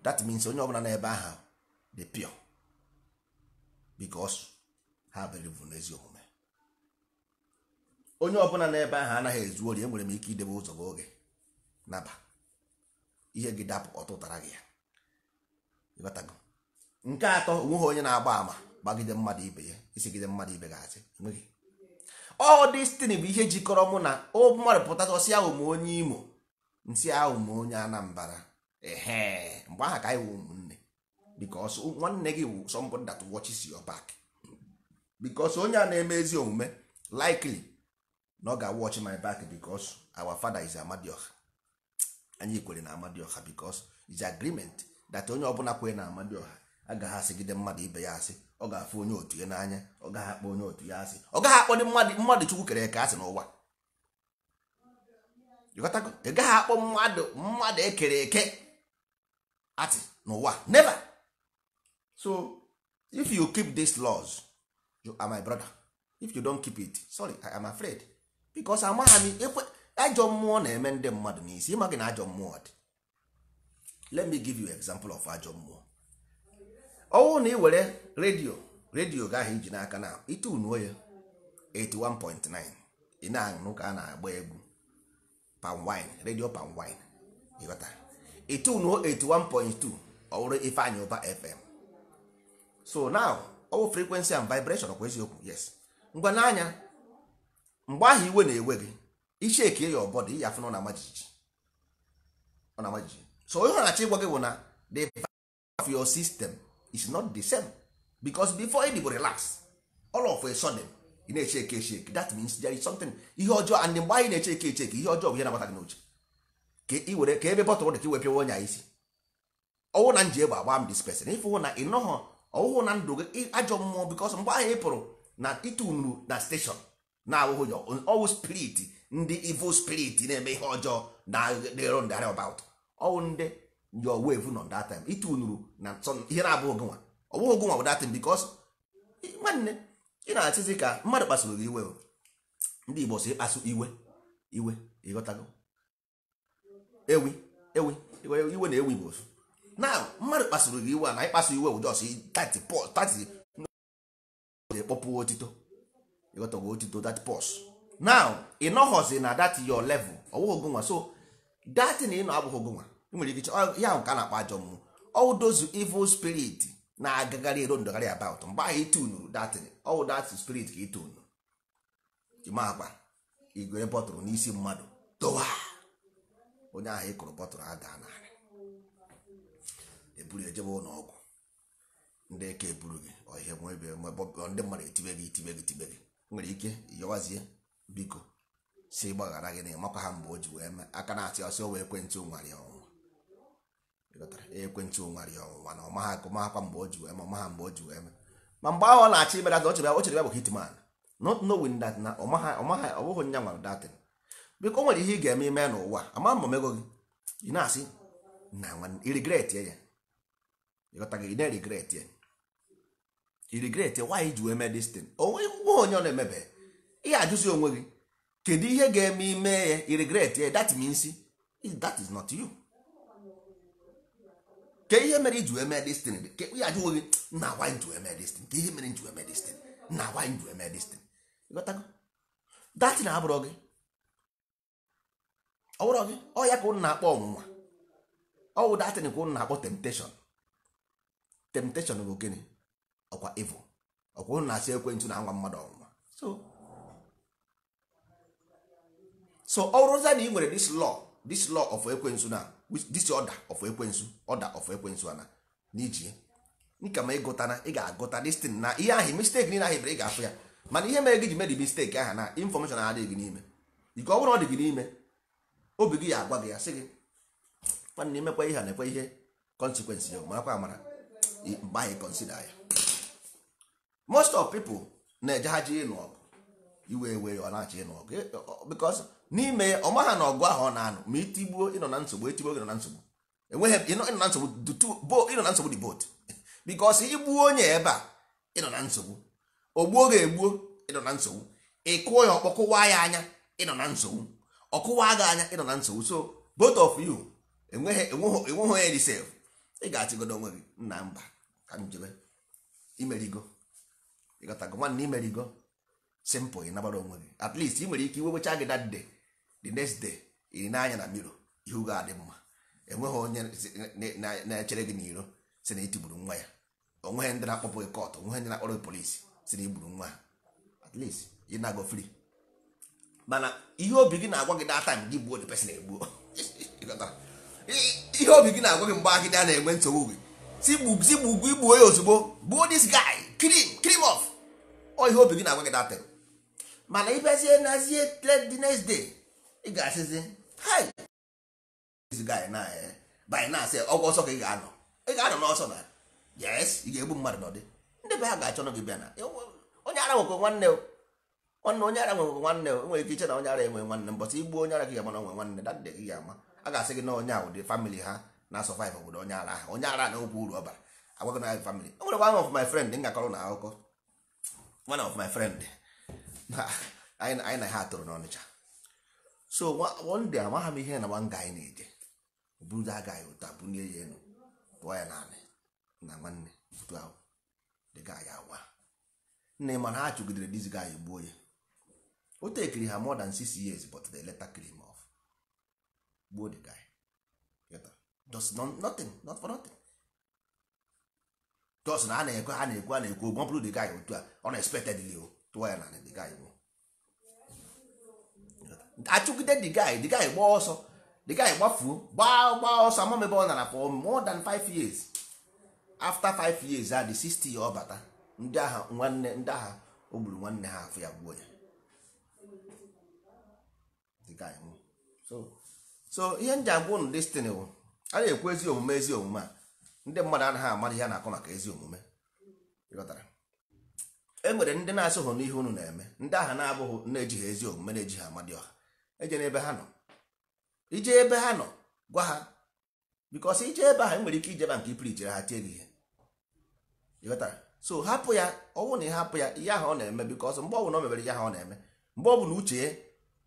that means onye ọbụla n'ebe ahụ dị pịọ because ha believe n'ezi omume onye ọbụla n'ebe ahụ anaghị ezu ori enwere m ike idebe ụzọ oge naba ihe gị dapụ ọtụtara gị ya nke atọ onweghị onye na-agba ama gbagide mmadụ ibe ya isigide mmadụ ibe ga-asị enweghị ọ destin bụ ihe jikọrọ mụ na mmadụ ọsị ahụ ma onye imo nsị ahụ m onye anambara ehe mgbe aha ka anyị wụ ụmụnne because nwanne gị wụ somebody that watches your back because onye a na-eme ezi omume likely na ọ ga-awọchi my back because our fada is amadioha anyị kwere na amadioha because is agreement that onye ọbụla kwere na amadioha agaghị asịgide mmadụ ibe ya asị ọ ga-afụ onye otu ya n'anya ọ gaghị akpọ onye otu ya asị ọ gaghị akpọ mmadụ mmadụ chukwu kere eke asị n'ụwa ị gaghị akpọ mmadụ mmadụ ekere eke atị n'ụwa neva so if you keep these laws you are my brother if you don't keep it sorry i am afraid bikos amagha m ajọ mmụọ na-eme ndị mmadụ n'isi ịma gị na ajọ mmụọ dị let me give you example of ajọ mmụọ ọnwụ na ị were redio redio gahụ iji n'aka na itunuo ya 81.9 ị na-anụ ka a na-agba egwu panwine redio panwine ịghọta itunuo 81.2 ọwụrụ ifeanyị ụba fm so now ọwụ frequency and vibration kwa eziokwu yes ngwa n'anya mgbe ahụ iwe na-ewe gị iche eke ya ọbọdụ iyi afụ na majiji so onye na-achọ ịgwa gị bụ na the value of your system is not the same because before it go relax all of a sudden ị na-eche eke eche eke that means there is something ihe ọjọọ and mgbe anyị na-eche eke eche eke ihe ọjọọ bụ ihe na-agbata gị n'oche ka ị were ka ebe bọtụrụ dị ka iwepịa onye a isi ọwụ na nji egbe agba m dispesin ịfụhụ na ịnọghọ ọwụhụ na ndụ gị ajọ mmụọ because mgbe ahụ ị pụrụ na ịtụnuru na steshọn na-awụghị ya ọwụ spirit ndị evil spirit na-eme ihe ọjọọ na dero ndị arịa about ọwụ ndị your wave nọ that time ịtụ nuru na nsọ ihe na-abụ ogunwa ọwụ ogunwa bụ that time because nwanne ị na-achịzi ka mmadụ kpasụrụ gị iwe ndị Igbo si ịkpasu iwe iwe ịghọtago ewi ewi iwe na ewi igbo osu na mmadụ kpasụrụ gị iwe na ịkpasu iwe bụ jos 30 30 na-ekpọpụ otito you got to go to do that pause now ị nọghọzi na that your level ọwụghị ogonwa so that na ịnọ abụghị ogonwa nwere ike ya nke a na-akpa ajọ mmụọ all those evil spirit na-agagharị ero ndọgharị about mgbe ahụ itunuru that all dat spirit ka itunu ịma akpa igwere bọtụrụ n'isi mmadụ dowa onye ahụ ịkụrụ bọtụrụ ada narị eburu ejebe ụlọ ọgwụ ndị ka eburu gị ọhịa ndị mmadụ etibe gị etibe gị tibe gị nwere ike yọwazie biko si gbaghara gị na ịmakwa ha mgbe o ji wee mee aka na-asị ọsị ọwa ekwentị onwarị ọnwụnwa ekwentị onwarị ọnwụnwa na ọma ha akụmakwa mgbe o ji wee mee ọma ha mgbe o ji wee mee ma mgbe ahụ ọ na-achị ibera ọ chere o chere bụ hitman not knowing that na ọma ha ha ọ bụghị nya nwara datin biko nwere ihe ị ga-eme ime n'ụwa ama mma mego gị ị na-asị na regret ya ịghọta gị ị na-regret ya regret why ji wee mee destin onwe onye ọ na-emebe ihe ajụzi onwe gị kedu ihe ga-eme ime ya iregret ya that means that is not you ke ihe mere iji wee mee destin ke ajụ onwe gị na why ji wee mee destin ke ihe mere ji wee mee destin na why ji wee mee destin dat na abụrọ gị ọ gị ọ ya ka ụnụ na-akpọ ọnwụnwa ọ wụ datin ka ụnụ na-akpọ temptation temptation bụ gịnị ọkwa evil ọkwa ụnụ na-asị ekwentị na-anwa mmadụ ọnwụnwa so so ọrụza na ị nwere this law this law of ekwensu na this order of ekwensu order of ekwensu ana n'iji nka ma ịgụta na ị ga-agụta destin na ihe ahụ mistake niile ahụ bere ị ga-afụ ya mana ihe mere gị ji medi mistake ahụ na infọmeshọn adịghị gị n'ime ike ọ bụrụ ọ dị gị n'ime obi gị ya agwa gị ya sị gị nwanne imekwa ihe a na-ekwe ihe consekwensị ya marakwa amara mgbe anyị konsida ya most of people na-eje ha ji ịnụ ọgụ iwe ewe ọ na-achọ ịnụ ọgụ e, because n'ime ya ọma ha na ọgụ ahụ ọ na-anụ ma itigbuo ịnọ na nsogbu etigbuo gị nọ na nsogbu enweghị ịnọ na nsogbu ịnọ na nsogbu dị bot because igbuo onye ebe a ịnọ na nsogbu ogbuo gị egbuo ịnọ na nsogbu ịkụọ ya ọkpọkụwa ya anya ịnọ na nsogbu ọkụwa gị anya ịnọ na nsogbu so both of you enweghị enweghị onye dị sef ị ga-achịgodo onwe gị nna mba ka njebe imerigo ịgọtago nwanne imerigo simple ị nabara onwe gị at least ị nwere ike iwewecha gị that day the next day iri n'anya na miro ihu ga adị mma enweghị onye na-echere gị n'iro si na itigburu nwa ya onweghị ndị na-akpọpụ gị kọtụ onweghị ndị na-akpọrọ gị polisi si na igburu nwa ya at least ị na-agọ free mana ihe obi gị na-agwa gị data gị gbuo the person egbuo ihe obi gị na-agwa gị mgbe agịdị na-enwe nsogbu gị si gbugwu igbuo ya ozugbo gbuo this guy clean clean off ọ ihe obi gị na-agwa gị datịrị mana ịbịazie nazie the next day ị ga-asịzi hi eh, by na asị ọgwụ ọsọ ka ị ga-anọ ị ga-anọ n'ọsọ na yes ị ga-egbu mmadụ n'ọdị ndị be ha ga-achọ gị bịa na onye ara nwekwe nwanne nwanne onye ara nwekwe nwanne nwere ike iche na onye ara enwe nwanne mbọsị igbu onye ara gị ga-ama na onwe nwanne dadị gị ga-ama a ga-asị gị na onye ahụ dị famili ha na-asọvaịv obodo onye ara ahụ onye ara na okwu uru ọ bara agwago na family o nwere one of my friend m gakọrọ na akụkọ one of my friend anyị na ha atụrụ n'ọnịcha so one day amaghị m ihe na nwa nga anyị na-eje burudo aga anyị ụta bunye ya elu pụọ ya naanị na nwanne otu ahụ dịga anyị agwa Nne ma na ha chụgidere dizi ga anyị gbuo ya o tekiri ha more than six years but they later kill him off gbuo the guy just nothing not for nothing jos na a na-ekwe ha na-ekwu a na-ekwu ogwo bụrụ the otu a ọ na expectedly tụọ ya na the guy bụ achụgide the guy the guy gbaa ọsọ the guy gbafuo gbaa gbaa ọsọ ama ebe ọ nara for more than 5 years after 5 years a the 60 ya ọ bata ndị agha nwanne ndị agha o gburu nwanne ha afọ ya gbuo ya the guy so so ihe m ji agwa ụnụ destiny bụ a na-ekwu ezi omume ezi omume a ndị mmadụ anaghị amara ihe na-akọ maka ezi omume e nwere ndị na-asụghị n'ihe unu na-eme ndị aha na-abụghị na-ejighị ezi omume na-ejighị amadị ọha eje n'ebe ha nọ ije ebe ha nọ gwa ha bikọs ije ebe ahụ e nwere ike ijeba nke ipiri ijere ha tie gị ihe so hapụ ya ọnwụ na ị hapụ ya ihe ahụ ọ na-eme bikọs mgbe ọbụla ọ mebere ihe ahụ ọ na-eme mgbe ọ bụla uche ya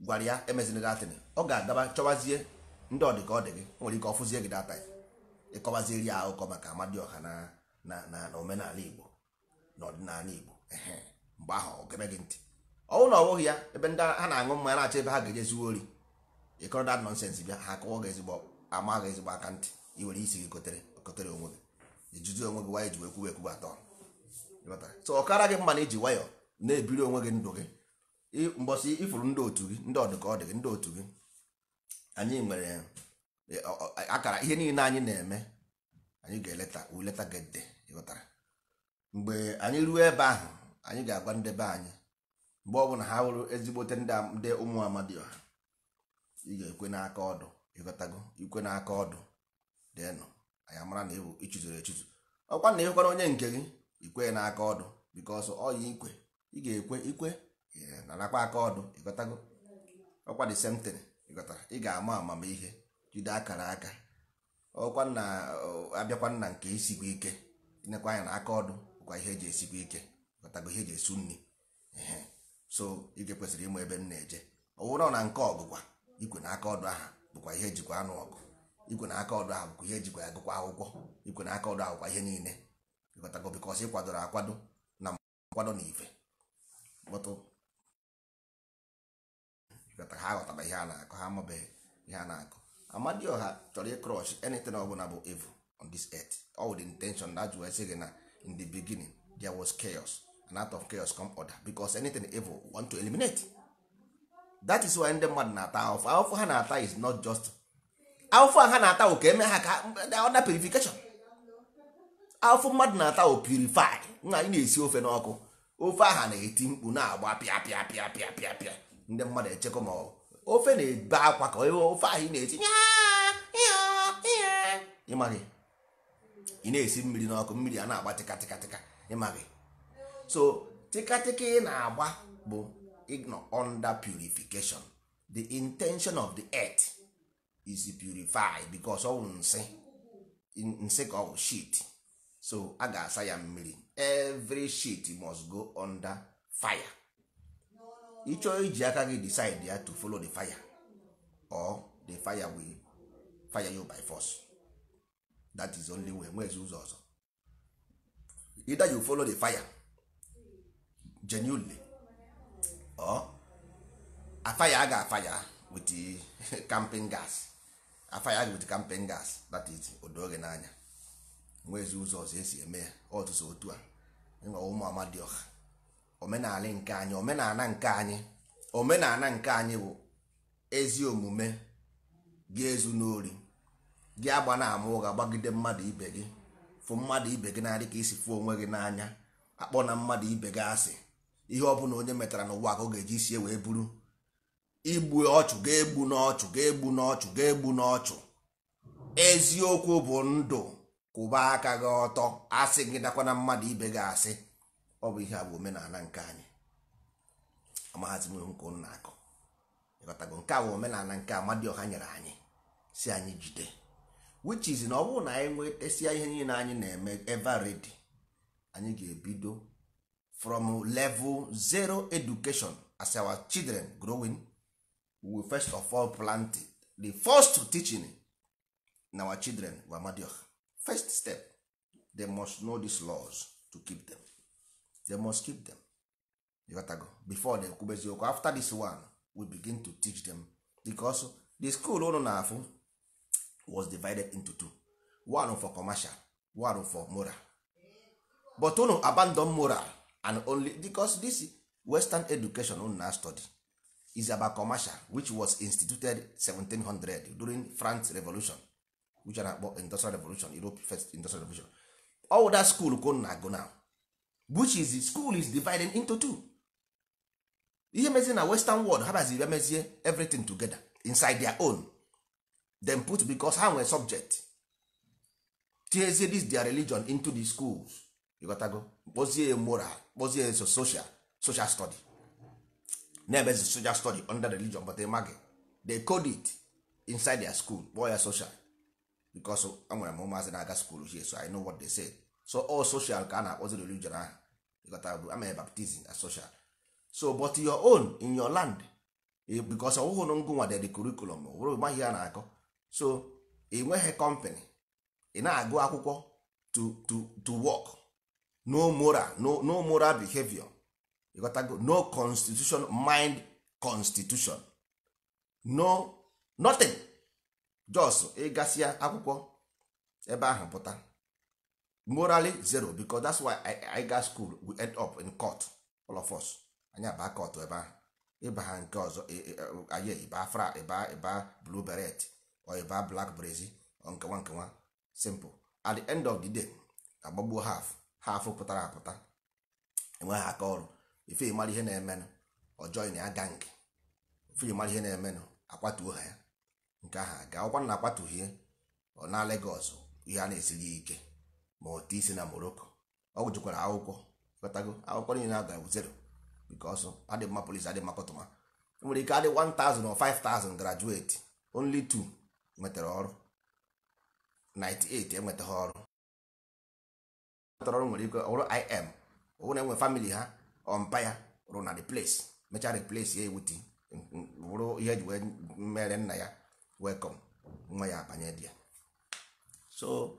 gwara ya emezina ọ ga-adaba chọwazie ndị ọdị ka ọ dị gị nwere ike ọ gị data ya ịkọwaziri ya akụkọ maka amadioha ọha na omenala igbo na ọdịnala igbo mgbe ahụ ọ gị ntị ọnwụ na ọbụghị ya ebe ndị ha na-aṅụ mmanya na-achọ ebe ha ga-eje zuo ori ịkọrọ dat nọnsens bịa ha akọwọ gị ezigbo ama gị ezigbo aka ntị iwere isi gị kotere onwe gị ijuzi onwe gị wayọ ji wee kwuwe ekwuwe atọ so ọkara gị mma na iji nwayọ na-ebiri onwe gị ndụ gị mbọsị ifuru ndị otu gị ndị ọdụ ka ọ dị gị ndị otu gị anyị nwere akara ihe niile anyị na-eme anyị ga-eleta uleta gede ịghọtara mgbe anyị ruo ebe ahụ anyị ga-agwa ndebe anyị mgbe ọbụla ha hụrụ ezigbote ndị ụmụ amadioha ị ga-ekwe n'aka ọdụ ịghọtago ikwe n'aka ọdụ dịnụ anyị amara na ịbụ ịchụzuru echụzụ ọkwa na ịhụkwara onye nke gị ikwe n'aka ọdụ bikos ọyị ikwe ị ga-ekwe ikwe na n'akwa aka ọdụ ịghọtago ọkwa dị semtin ịghọtara ị ga-ama amamihe jide akara aka ọkwa na abịakwa nna nke isikwa ike inekwa anya na aka ọdụ bụkwa ihe eji esikwa ike kọtago ihe eji esu nri so ike kwesịrị ịmụ ebe m na-eje ọ na nke ọgụgwa igwe na aka ọdụ aha bụkwa ihe ejikwa anụ ọgụ ikwe na aka ọdụ aha bụkwa ihe ejikwa agụkwa akwụkwọ igwe na aka ọdụ ahụkwa ihe niile ịkọtago bikọs ịkwadoro akwado na nkwado na ife ha aghọtara ihe a na-akọ ha amabeghị ihe a na akụ ọha chọrọ ịkrọsh anything ọbụla bụ evu on this earth all the intention that you sị gị na in the beginning there was chaos and out of chaos come order because anything evil want to eliminate that is why ndị mmadụ na-ata alpha alpha ha na-ata is not just alpha ha na-ata ụka ka eme ha ka order purification alpha mmadụ na-ata o purify nna anyị na-esi ofe n'ọkụ ofe aha na-eti mkpu na-agba pịa pịa pịa pịa pịa pịa ndị mmadụ echekwa ma ọ ofe na-ebe akwa ka ofe ahụ ị na-eti ịmaghị ị na-esi mmiri n'ọkụ mmiri a na-agba tịkatịkatịka ịmaghị so tịkatịka ị na-agba bụ under purification the intention of the earth is purify because ọ nsị nsị ka ọ bụ shit so a ga-asa ya mmiri every shit must go under fire ịchọọ iji aka gị decide ya to follow the fire or the fire will fire you by force that is only way nwezi ụzọ ọzọ either you follow the fire genuinely or afaya aga afaya wit with camping gas aga with camping gas that is odoge n'anya nwezi ụzọ ọzọ esi eme ya ọtụtụ otu a enwe ụmụ amadioha omenala nke anyị omenala nke anyị omenala nke anyị bụ ezi omume gị ezu n'ori gị agba na ama ga gbagide mmadụ ibe gị fụ mmadụ ibe gị na-adị ka isi fụ onwe gị n'anya akpọ na mmadụ ibe gị asị ihe ọ onye metara n'ụwa ka ga-eji wee buru igbu ọchụ ga-egbu n'ọchụ ga-egbu n'ọchụ ga-egbu n'ọchụ eziokwu bụ ndụ kwụba aka gị ọtọ asị gị dakwa mmadụ ibe gị asị ọ bụ ihe a bụ omenala nke anyị amaghazi m ihu ụnụ na-akụ ịghọtago nke a bụ omenala nke Amadioha nyere anyị si anyị jide which is na ọ bụrụ na anyị nwetesịa ihe niile anyị na-eme ever ready anyị ga-ebido from level zero education as our children growing we first of all planted the first teaching in our children were Amadioha first step they must know these laws to keep them they must keep them ịghọtago before they ekwube eziokwu after this one we begin to teach them because the school ụnụ oh, na-afụ was divided into two one for commercial one for moral but ụnụ oh, abandon moral and only because this western education ụnụ oh, na study is about commercial which was instituted 1700 during france revolution which are na industrial revolution europe first industrial revolution all that school ka na-agụ now which is school is divided into two ihe mezie na western world ha baziri mezie everything together inside their own then put because ha nwere subject tinyezie this their religion into the schools ịghọtago kpozie moral kpozie social social study na-emezi social study under religion but maghị they code it inside their school kpọọ ya social because enwere m ụmụazị na-aga school here so I know what they say so all social ka a na-akpọzi religion ahụ ịghọtara amere baptizim asocial so but your own in your land bikos ọwụhụ na ngụ nwadede kurikulum bụrụ maghị ya na-akọ so ị nweghị company ị na-agụ akwụkwọ to to to work no moral no, no moral behavior ịghọtago no constitution mind constitution no nothing just ịgasịa eh, akwụkwọ ebe ahụ pụta morally zero because that's why I, I got school we end up in court all of us anyị aba ebe ahụ ịba ha nke ọzọ anyị ịba fra ịba e ịba e blue beret ọ ịba e black brazi nkewa nkewa simple at the end of the day agbagbuo half half pụtara apụta enweghị aka ọrụ ife mara ihe na-emenụ ọ na ya gang ife mara ihe na-emenụ akwatuo ha ya nke ahụ aga ọkwa na akwatughie ọ na legos ihe a na esighi ike ma otu isi na moroko ọ gụjụkwara akwụkwọ kọtago akwụkwọ niile na-ada zero because adị mma polisi adị mma kọtụma e nwere ike adị 1000 or 5000 graduate only two nwetara ọrụ 98 enweta ha ọrụ nwetara ọrụ nwere ike ọrụ im ọwụ na enwe famili ha ọmpaya rụ na replace mechaa replace ya ewuti bụrụ ihe eji wee mere nna ya welcome nwa ya abanye di ya so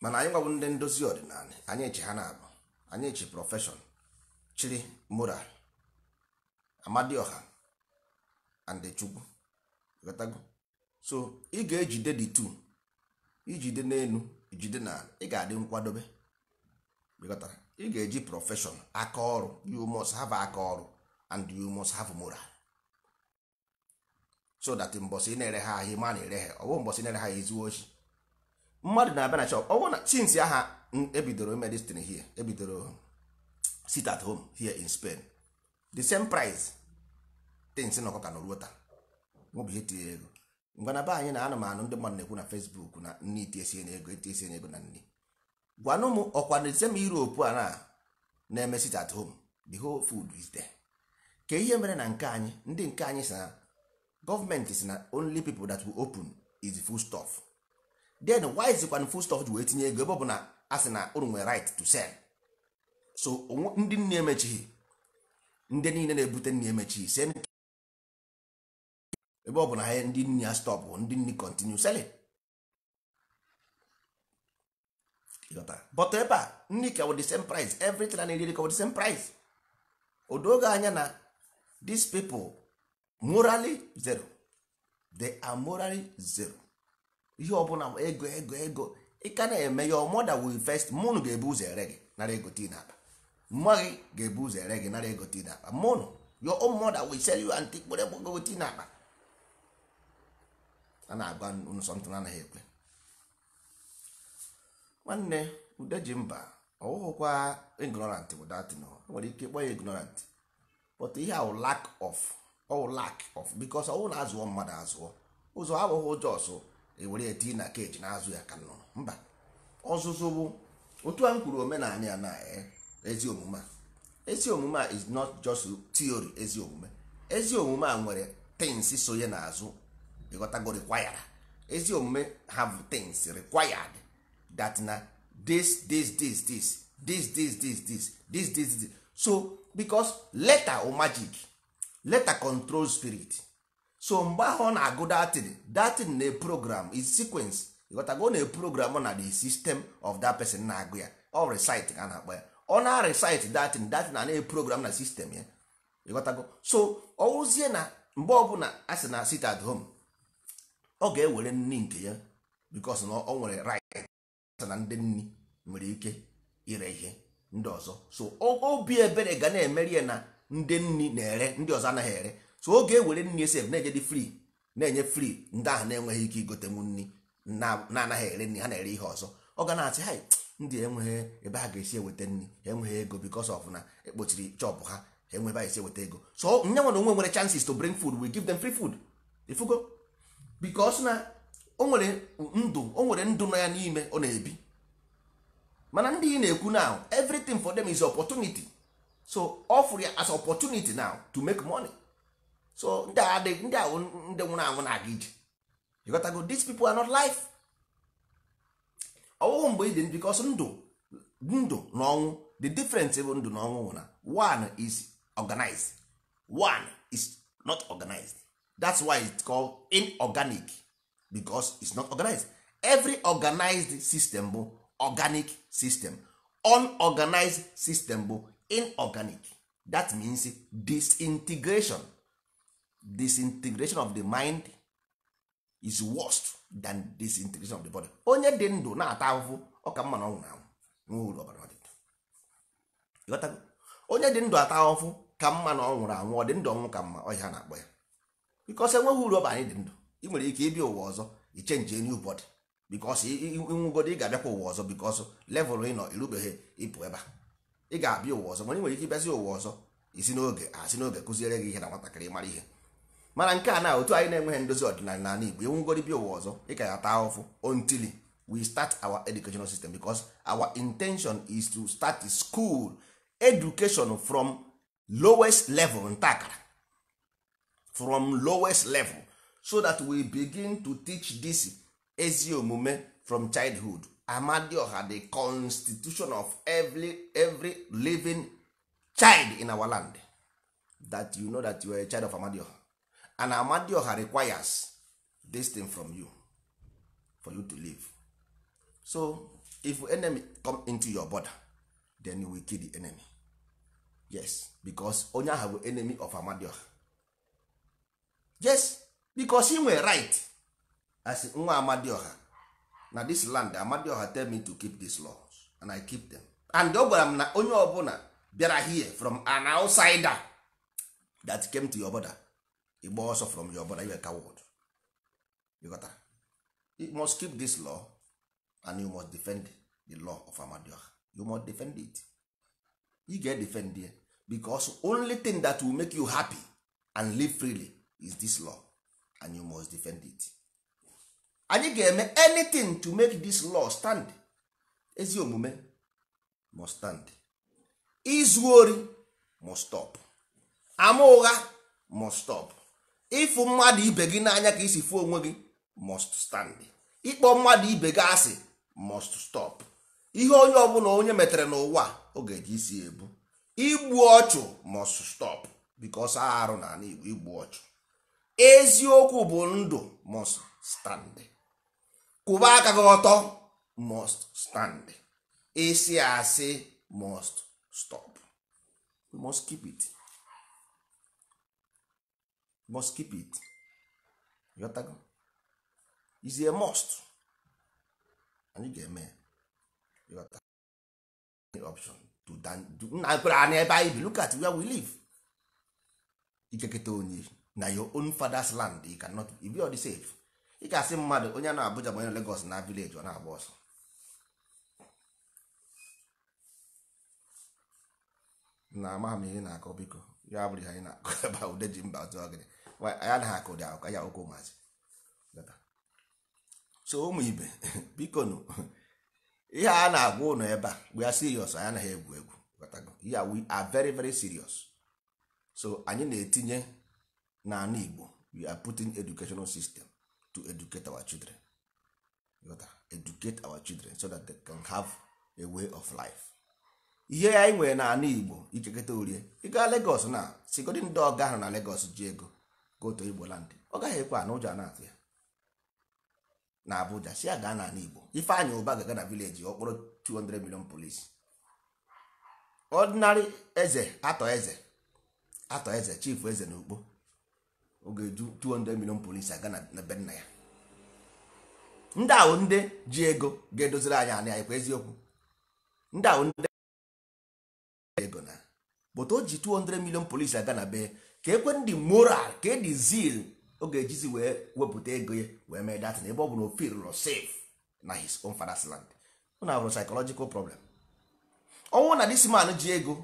mana anyị gwabụ ndị ndozi ọdịnala anyị eche ha na-abụ anyị eche prọfeshọn chiri moral amadioha and chukwu so ị ga-ejide dị tu ijide n'elu jide na ị ga-adị nkwadobe ị ga-eji prọfeshọn aka ọrụ you must have aka ọrụ and you must have moral so that mbọsị ị na-ere ha ahịa ma na-ere ha ọbụ bụ na-ere ha ezigbo ochi mmadụ na-abịa na shop ọ bụrụ na since aha ebidoro medicine here ebidoro sit at home here in Spain the same price tins na ọkọka na oruo taa ihe tinye ego ngwa na be anyị na anụmanụ ndị mmadụ na-ekwu na Facebook na nne itiesie na ego itiesie na ego na nne gwanụ m ọkwa na same Europe a na eme sit at home the whole food is there ka ihe mere na nke anyị ndị nke anyị si na gọọmenti si na only people that will open is full stuff then why is zikwan full stop ji wee tinye ego ebe ọ na a sị na unu nwere right to sell so ndị nne emechighị ndị niile na-ebute nne emechighị same ebe ọ na ha ndị nne ya stop ndị nne kontinu selling but ebe a nne ka the same price everything a na-eri ka the same price odo oge anya na these people morally zero they are morally zero ihe ọbụla ego ego ego ị ka na-eme ya ọmọda wil fest mụnụ ga-ebu ụzọ ere gị nara ego tii na mma gị ga-ebu ụzọ ere gị nara ego tii na n'akpa mụnụ yo ọmọda wil sel yu antị kpere ego tii na n'akpa a na-agwa nsọntụ anaghị ekwe nwanne ude ji mba ọwụghụkwa ignorant bụ datin nwere ike ịkpọ ya ignorant but ihe ahụ lack of ọwụ lack of because ọwụ na azụọ mmadụ azụọ ụzọ abụghị ụjọ ọsụ ewere ya tii na keji na-azụ ya ka nnụnụ mba ọzụzụ bụ otu a m kwuru omenala ya na ezi omume a ezi omume a is not just theory ezi omume ezi omume a nwere things sonye n'azụ ịghọtago required ezi omume have things required that na this this this this this this this this this this this so because letter o magic letter control spirit so mgbe ahụ ọ na-agụ datin datin na program is sequence ịghọtago na program na the system of that person na-agụ ya ọ resit ka na-akpọ ya ọ na recite datin datin na na program na system ya ịghọtago so ọ wụzie na mgbe ọbụla a sị na sit at home ọ ga-ewere nni nke ya because na ọ nwere right na ndị nni nwere ike ire ihe ndị ọzọ so obi ebere ga na-emeri ya na ndị nni na-ere ndị ọzọ anaghị ere so oge ewere nri esef na enye dị free na-enye free ndị ahụ na-enweghị ike igotenwu nri na-anaghị ere nri ha na-ere ihe ọzọ ọ ga na-asị ha ndị enweghị ebe ha ga-esi eweta nri ha enweghị ego because of na ekpochiri chọpụ ha ha enwe ebe ha esi eweta ego so nye nwere onwe nwere chances to bring food we give them free food ifugo because na o nwere ndụ o nwere ndụ nọ ya n'ime ọ na-ebi mana ndị ị na-ekwu now everything for them is opportunity so offer ya as opportunity now to make money so ndị a adịghị ndị a ndị nwụrụ anwụ na-aga ije you gotta go these people are not life ọwụwụ mgbe ị dị because ndụ ndụ na ọnwụ the difference bụ ndụ na ọnwụ na one is organized one is not organized that's why it's called inorganic because it's not organized every organized system bụ organic system unorganized system bụ inorganic that means disintegration disintegration of the mind is worst than disintegration of the body onye dị ndụ na-ata ahụhụ ọ ka mma na ọnwụ anwụ onye dị ndụ ata ahụhụ ka mma na ọ anwụ ọ dị ndụ ọnwụ ka mma ọhịa na-akpọ ya bikos enweghị uru ọba anyị dị ndụ ị nwere ike ịbịa ụwa ọzọ i chenji enyi ụbọdị bikos ịnwụgodo ị ga-abịakwa ụwa ọzọ bikos levụl ị nọ irubeghị ịpụ ebe a ị ga-abịa ụwa ọzọ mana ị nwere ike ịbịazi ụwa ọzọ isi n'oge asị n'oge kụziere gị ihe na nwatakịrị mara ihe mana nke a na otu anyị na-enweghị ndozi ọdịnala n'ala Igbo enwegori bịa ụwa ọzọ ị ka ya ahụfụ until we start our educational system because our intention is to start the school education from lowest level ntakara from lowest level so that we begin to teach this ezi omume from childhood amadioha the constitution of every, every living child in our land that you know that you are a child of amadioha and amadioha requires this thing from you for you to live so if enemy come into your border then you will kill the enemy yes because onye ahụ bụ enemy of amadioha yes because he nwere right as nwa amadioha na this land amadioha tell me to keep these laws and i keep them and ọ gwara m na onye ọbụla bịara here from an outsider that came to your border igba ọsọ from your brother you are coward you got that? you must keep this law and you must defend the law of Amadioha you must defend it you get defend it because only thing that will make you happy and live freely is this law and you must defend it anyị ga-eme anything to make this law stand ezi omume must stand izu ori must stop ama ụgha must stop ịfụ mmadụ ibe gị n'anya ka isi fụ onwe gị must stand ịkpọ mmadụ ibe gị asị must stop ihe onye ọbụla onye metere n'ụwa ọ ga-eji isi ebu igbu ọchụ must stop because arụ na Igbo igbu ọchụ eziokwu bụ ndụ must stand kwụba aka gị ọtọ must stand ịsị asị must stop must keep it must keep it yotago is a must anyị ga-eme yota option to nna kwere anyị ebe anyị bi look at where we live ikeketa onye na your own father's land you cannot be all the safe ị ga-asị mmadụ onye na Abuja ma onye na Lagos na village ọ na-agba ọsọ na amaghị ihe na-akọ biko ya anyị na-akọ ji mba ọzọ gịnị anyị na akụ dị akụ ya ụkwụ maazị so ụmụ ibe biko nụ ihe a na-agwa ụnụ ebe a we are serious anyị anaghị egwu egwu ya we are very very serious so anyị na-etinye n'ala Igbo we are putting educational system to educate our children educate our children so that they can have a way of life ihe anyị nwere n'ala Igbo ichekọta orie ịga Lagos na sigodi ndị ọga ahụ na Lagos ji ego goto igbo land ọ gaghị ekwe ana ụjọ na-atụ ya na Abuja si ya gaa n'ala Igbo Ifeanyị Ụba ga-aga na vileji ọ kpọrọ 200 million polisi ọdịnarị eze atọ eze atọ eze chifu eze na ukpo ọ ga-eju 200 million polisi aga na be nna ya ndị ahụ ndị ji ego ga-edoziri anyị anya anyị eziokwu ndị ahụ ndị ego na bụta o ji 200 million polisi aga na be ka ekwe ndị moral ka dị zeal ọ ga-ejizi wee wepụta ego ya wee mee na ebe ọ bụ na o feel no safe na his own father's land na abụrụ psychological problem ọnwụ na this man ji ego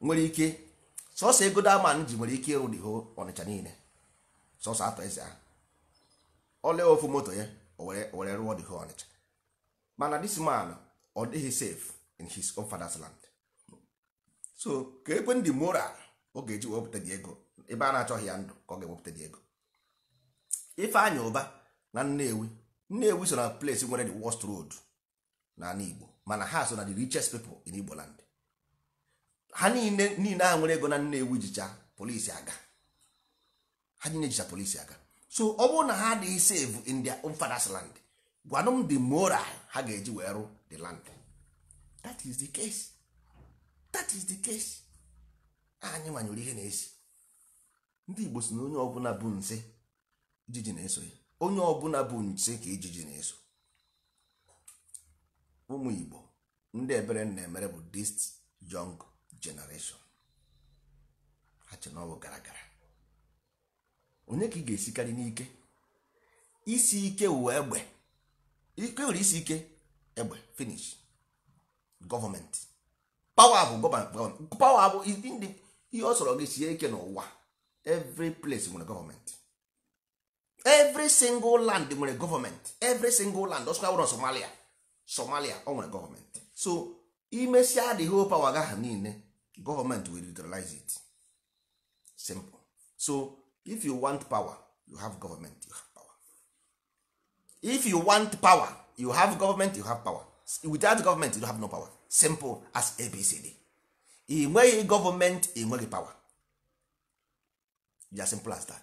nwere ike sọsọ ego da man ji nwere ike ịrụ the whole ọnịcha niile sọsọ atọ eze ahụ ole ofu moto ya were rụọ the whole ọnịcha mana dis man ọ dịghị safe in his own father's land so ka ekwe ndị moral ọ ga-eji wepụta gị ego ebe a na-achọghị ya ndụ ka ọ ga-ewepụta gị ego Ifeanyị Ụba na Nnewi Nnewi so na place nwere the worst road na ala Igbo mana ha so na the richest people in Igbo land ha niile niile ha nwere ego na Nnewi jicha polisi aga ha niile jicha polisi aga so ọ bụrụ na ha adịghị save in their father's land gwanụ m the moral ha ga-eji wee rụ the land that is the case that is the case anyị nwanyere ihe na-esi ndị igbo si na onye ọbụla bụ nse ijiji na-eso ya onye ọbụla bụ nse ka ijiji na-eso ụmụ igbo ndị ebere na-emere bụ dis young generation ha che na gara gara onye ka ị ga-esikarị n'ike isi ike wee egbe ike nwere isi ike egbe finish gọọmenti pawa bụ gọọmenti pawa bụ ihe ọ sọrọ gị sie ike n'ụwa every place nwere gọọmenti every single land nwere gọọmenti every single land ọsụkwa wụrụ somalia somalia ọ nwere gọọmenti so imesia the whole power pawa gaa niile gọọmenti will utilize it simple so if you want power you have government you have power if you want power you have government you have power without government you have no power simple as abcd ị nweghị gọọmenti ị nweghị pawa ya simple as that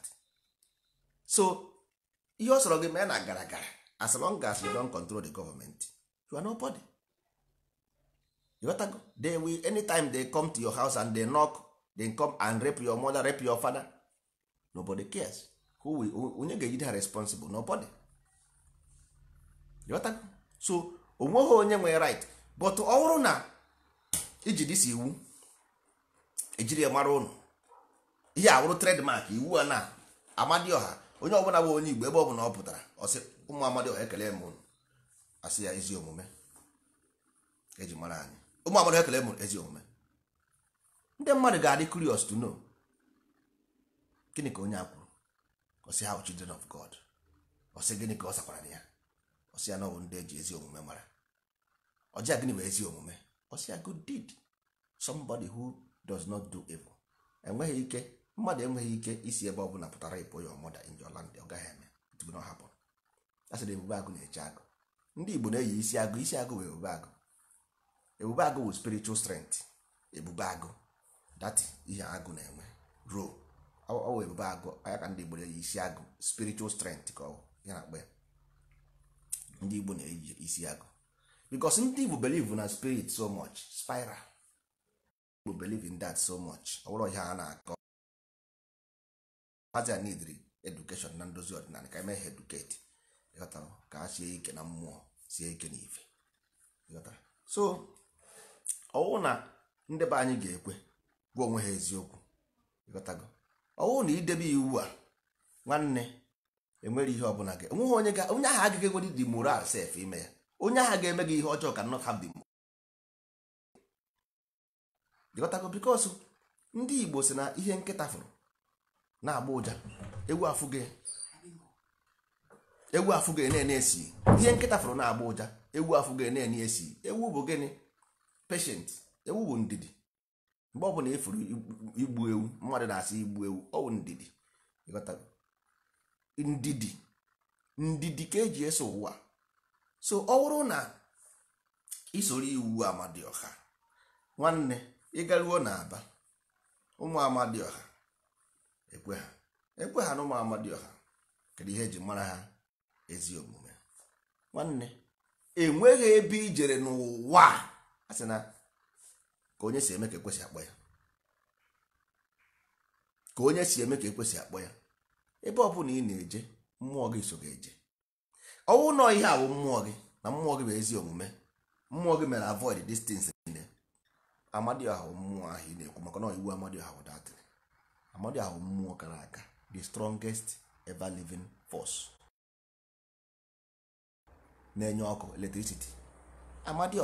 so ihe ọ sọrọ gị mee na gara gara as long as you don control the government you are nobody you got to go they will anytime they come to your house and they knock they come and rape your mother rape your father nobody cares who will onye ga-ejide ha responsible nobody you got to go so onweghị onye nwere right but ọ bụrụ na iji dịsi iwu ejiri ya mara ụnụ ihe awụrụ tredmark iwu a na amadioha onye ọbụla bụ onye igbo ebe ọ bụla ọ pụtara ọsị ụmụ amadioha ekele m ụnụ asị ya ezi omume eji mara anyị ụmụ amadioha ekele m ezi omume ndị mmadụ ga-adị curious to know gịnị ka onye a kwuru ọsị ha children of god ọsị gịnị ka ọ sakwara na ya ọsị ya na ọbụ ndị eji ezi omume mara ọjị gịnị bụ ezi omume ọsị ya good deed somebody who does not do evil enweghị ike mmadụ enweghị ike isi ebe ọ bụla pụtara ịpụ ya ọmụda in your land ọ gaghị eme it will not happen a sịrị ebube agụ na-eche agụ ndị Igbo na-eyi isi agụ isi agụ bụ ebube agụ ebube agụ bụ spiritual strength ebube agụ dati ihe agụ na-enwe ruo ọ bụ ebube agụ anya ka ndị Igbo na-eyi isi agụ spiritual strength ka ọ bụ ya na-akpa ya ndị Igbo na-eyi isi agụ because ndị Igbo believe na spirit so much spiral people believe in that so much ọ bụrụ ihe a na-akọ a needri education na ndozi ọdịnala ka emeghe eduketi ka a sie ike na mmụọ sie ike na ife so ọwụ na ndị be anyị ga-ekwe gwa onwe ha eziokwu ọwụ na idebe iwu a nwanne enwere ihe ọbụla gị onweghị onye onye agaghị dị moral ime ya onye ahụ ga-eme gị ihe ọjọọ ka not have ịghọtago bikos ndị igbo si na ihe nkịta fụrụ na-agba ụja egwu afụgị na-ene esi ihe nkịta fụrụ na-agba ụja egwu afụgị na-ene esi ewu bụ gịnị peshent ewu bụ ndidi mgbe ọ bụla efuru igbu ewu mmadụ na-asị igbu ewu ọ bụ ndidi ndidi ndidi ka eji eso ụwa so ọ bụrụ na isoro iwu ọha nwanne ịgaruo na aba ụmụ amadioha ekwe ha ekwe ha na ụmụ amadioha kedu ihe eji mara ha ezi omume nwanne enweghị ebe ijere n'ụwa a sị na ka onye si eme ka ekwesị akpọ ya ka onye si eme ka ekwesị akpọ ya ebe ọ bụla ị na-eje mmụọ gị so ga-eje ọnwụ nọ ihe awụ mmụọ gị na mmụọ gị bụ ezi omume mmụọ gị mere avoid distance niile amadioha mmụọ ahụ ị na-ekwu maka na iwu amadioha bụ datin amadioha bụ mmụọ kara aka the strongest ever living force na-enye ọkụ electricity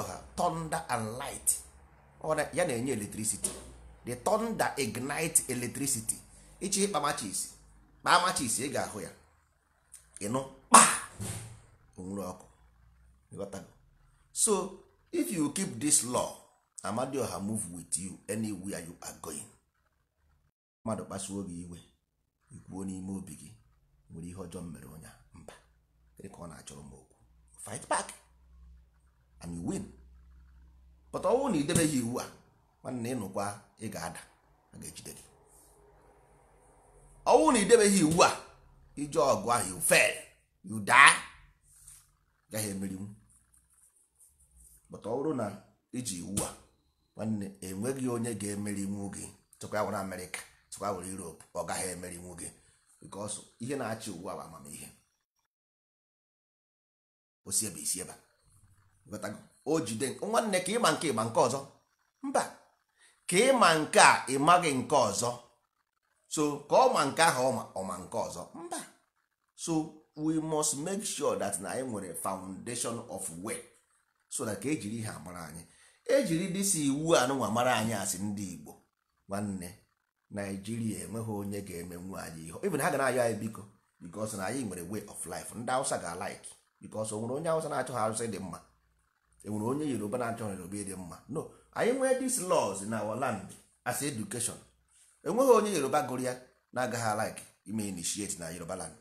ọha thunder and light ya na-enye electricity the thunder ignite electricity ichi ịkpa machis kpaa ị ga-ahụ ya ịnụ kpa onwere ọkụ so if you keep this law ọha move with you anywhere you are going mmadụ kpasuo gị iwe ikwuo n'ime obi gị nwere ihe ọjọọ mere onye mba gịnị ka ọ na-achọrọ m okwu fight back and you win but ọwụ na idebeghị iwu a nwanne ịnụkwa ị ga-ada a ga-ejide gị ọwụ na idebeghị iwu a ije ọgụ ahụ you fail you die gaghị emerinwu but ọ bụrụ na iji iwu a nwanne enweghị onye ga-emerinwu gị tụkwa ya were amerịka tụkwa were europe ọ gaghị emerinwu gị because ihe na-achị ugbu a bụ amamihe osiebe isi ebe o jide nwanne ka ịma nke ịma nke ọzọ mba ka ịma nke a ịmaghị nke ọzọ so ka ọ ma nke ahụ ọma nke ọzọ mba so we must make sure that na anyị nwere foundation of way so that ka ejiri ihe amara anyị ejiri dịsi iwu anụnwa mara anyị asị ndị Igbo nwanne Naijiria enweghị onye ga-emenwu anyị ihe na ha ga na-ayọ anyị biko because na anyị nwere way of life ndị awụsa ga-alaik because o nwere onye awụsa na-achọghị Hausa dị mma enwere onye Yoruba na-achọghị Yoruba ịdị mma no anyị nwee these laws in our land as education enweghị onye Yoruba gụrụ ya na-agaghị alaik ime initiate na Yoruba land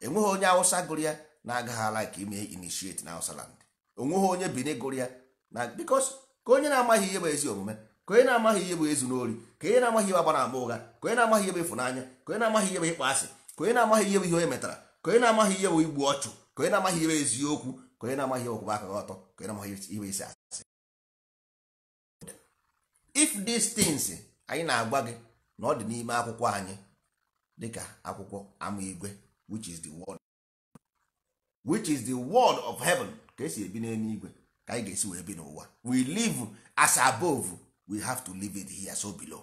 enweghị onye awụsa gụrụ ya na-agaghị alaik ime initiate na Hausa land enweghị onye Benin gụrụ ya na because ka onye na-amaghị ihe bụ ezi omume ka onye na-amaghị ihe bụ ezu n'ori ka onye na-amaghị ihe agbara agba ụgha ka onye na-amaghị ihe bụ ịfụnanya ka onye na-amaghị ihe bụ ịkpọ asị ka onye na-amaghị ihe bụ ihe onye metara ka onye na-amaghị ihe bụ igbu ọchụ ka onye na-amaghị ihe bụ eziokwu ka onye na-amaghị ihe ọkwụba aka ọtọ ka onye na-amaghị ihe isi asị if these things anyị na-agwa gị na ọ dị n'ime akwụkwọ anyị dịka akwụkwọ ama igwe which is the word of heaven ka esi ebi ka anyị ga-esi wee bi n'ụwa we live as above we have to live it here so below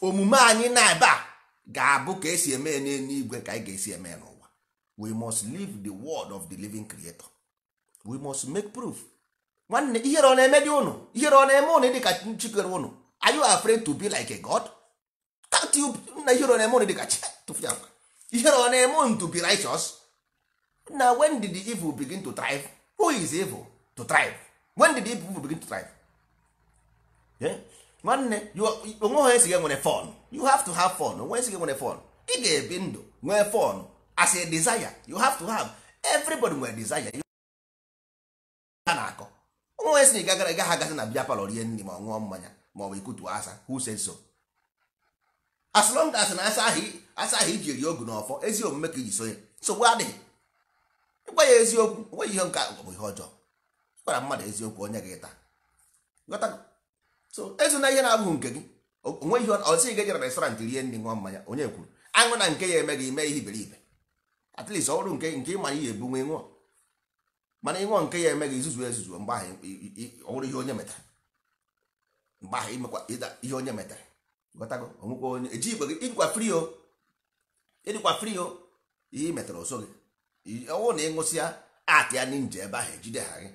omume anyị na ebe a ga-abụ ka esi eme n'eluigwe ka anyị ga-esi eme n'ụwa we must live the word of the living creator we must make proof nwanne ihere ọ na-eme dị ụnụ ihere ọ na-eme ụnụ dịka chikere ụnụ are you afraid to be like a god na ihere ọ na-eme ụnụ dịka chitụfịakwa ihere ọ na-eme ụnụ to be righteous na when did the evil begin to thrive who is evil to thrive when did the people begin to thrive nwanne onwe ha esighị nwere fon you have to have fun onwe esighị nwere fon ị ga-ebi ndụ nwee fon as a desire you have to have everybody nwere desire ha na-akọ onwe si na ịgagara gaghị agazi na bịa palọ rie nri ma ọ ṅụọ mmanya ma ọ bụ ikutu asa who says so as long as na asa ahụ iji eri ogu n'ọfọ ezi omume ka iji so ya nsogbu adịghị ịgwa ya eziokwu nweghị ihe nke ihe ọjọọ gwara mmadụ eziokwu onye gị taa ghọta so ezuna ihe na-abụghị nke gị onwe ihe ọsị ga ejere restaurant rie nri nwa mmanya onye kwuru aṅụ na nke ya eme gị ime ihe iberibe at least ọrụ nke nke ịmara ihe ebu nwe nwụọ mana ịṅụọ nke ya eme gị izuzu ezuzu mgbe ahụ ọhụrụ ihe onye metara mgbe ahụ imekwa ịda ihe onye metara ghọtago onwekwa onye eji igwe gị ịdịkwa fri o ịdịkwa fri o ihe metara ọsọ gị ọwụ na ịṅụsịa atị ya n'inje ebe ahụ ejide ha gị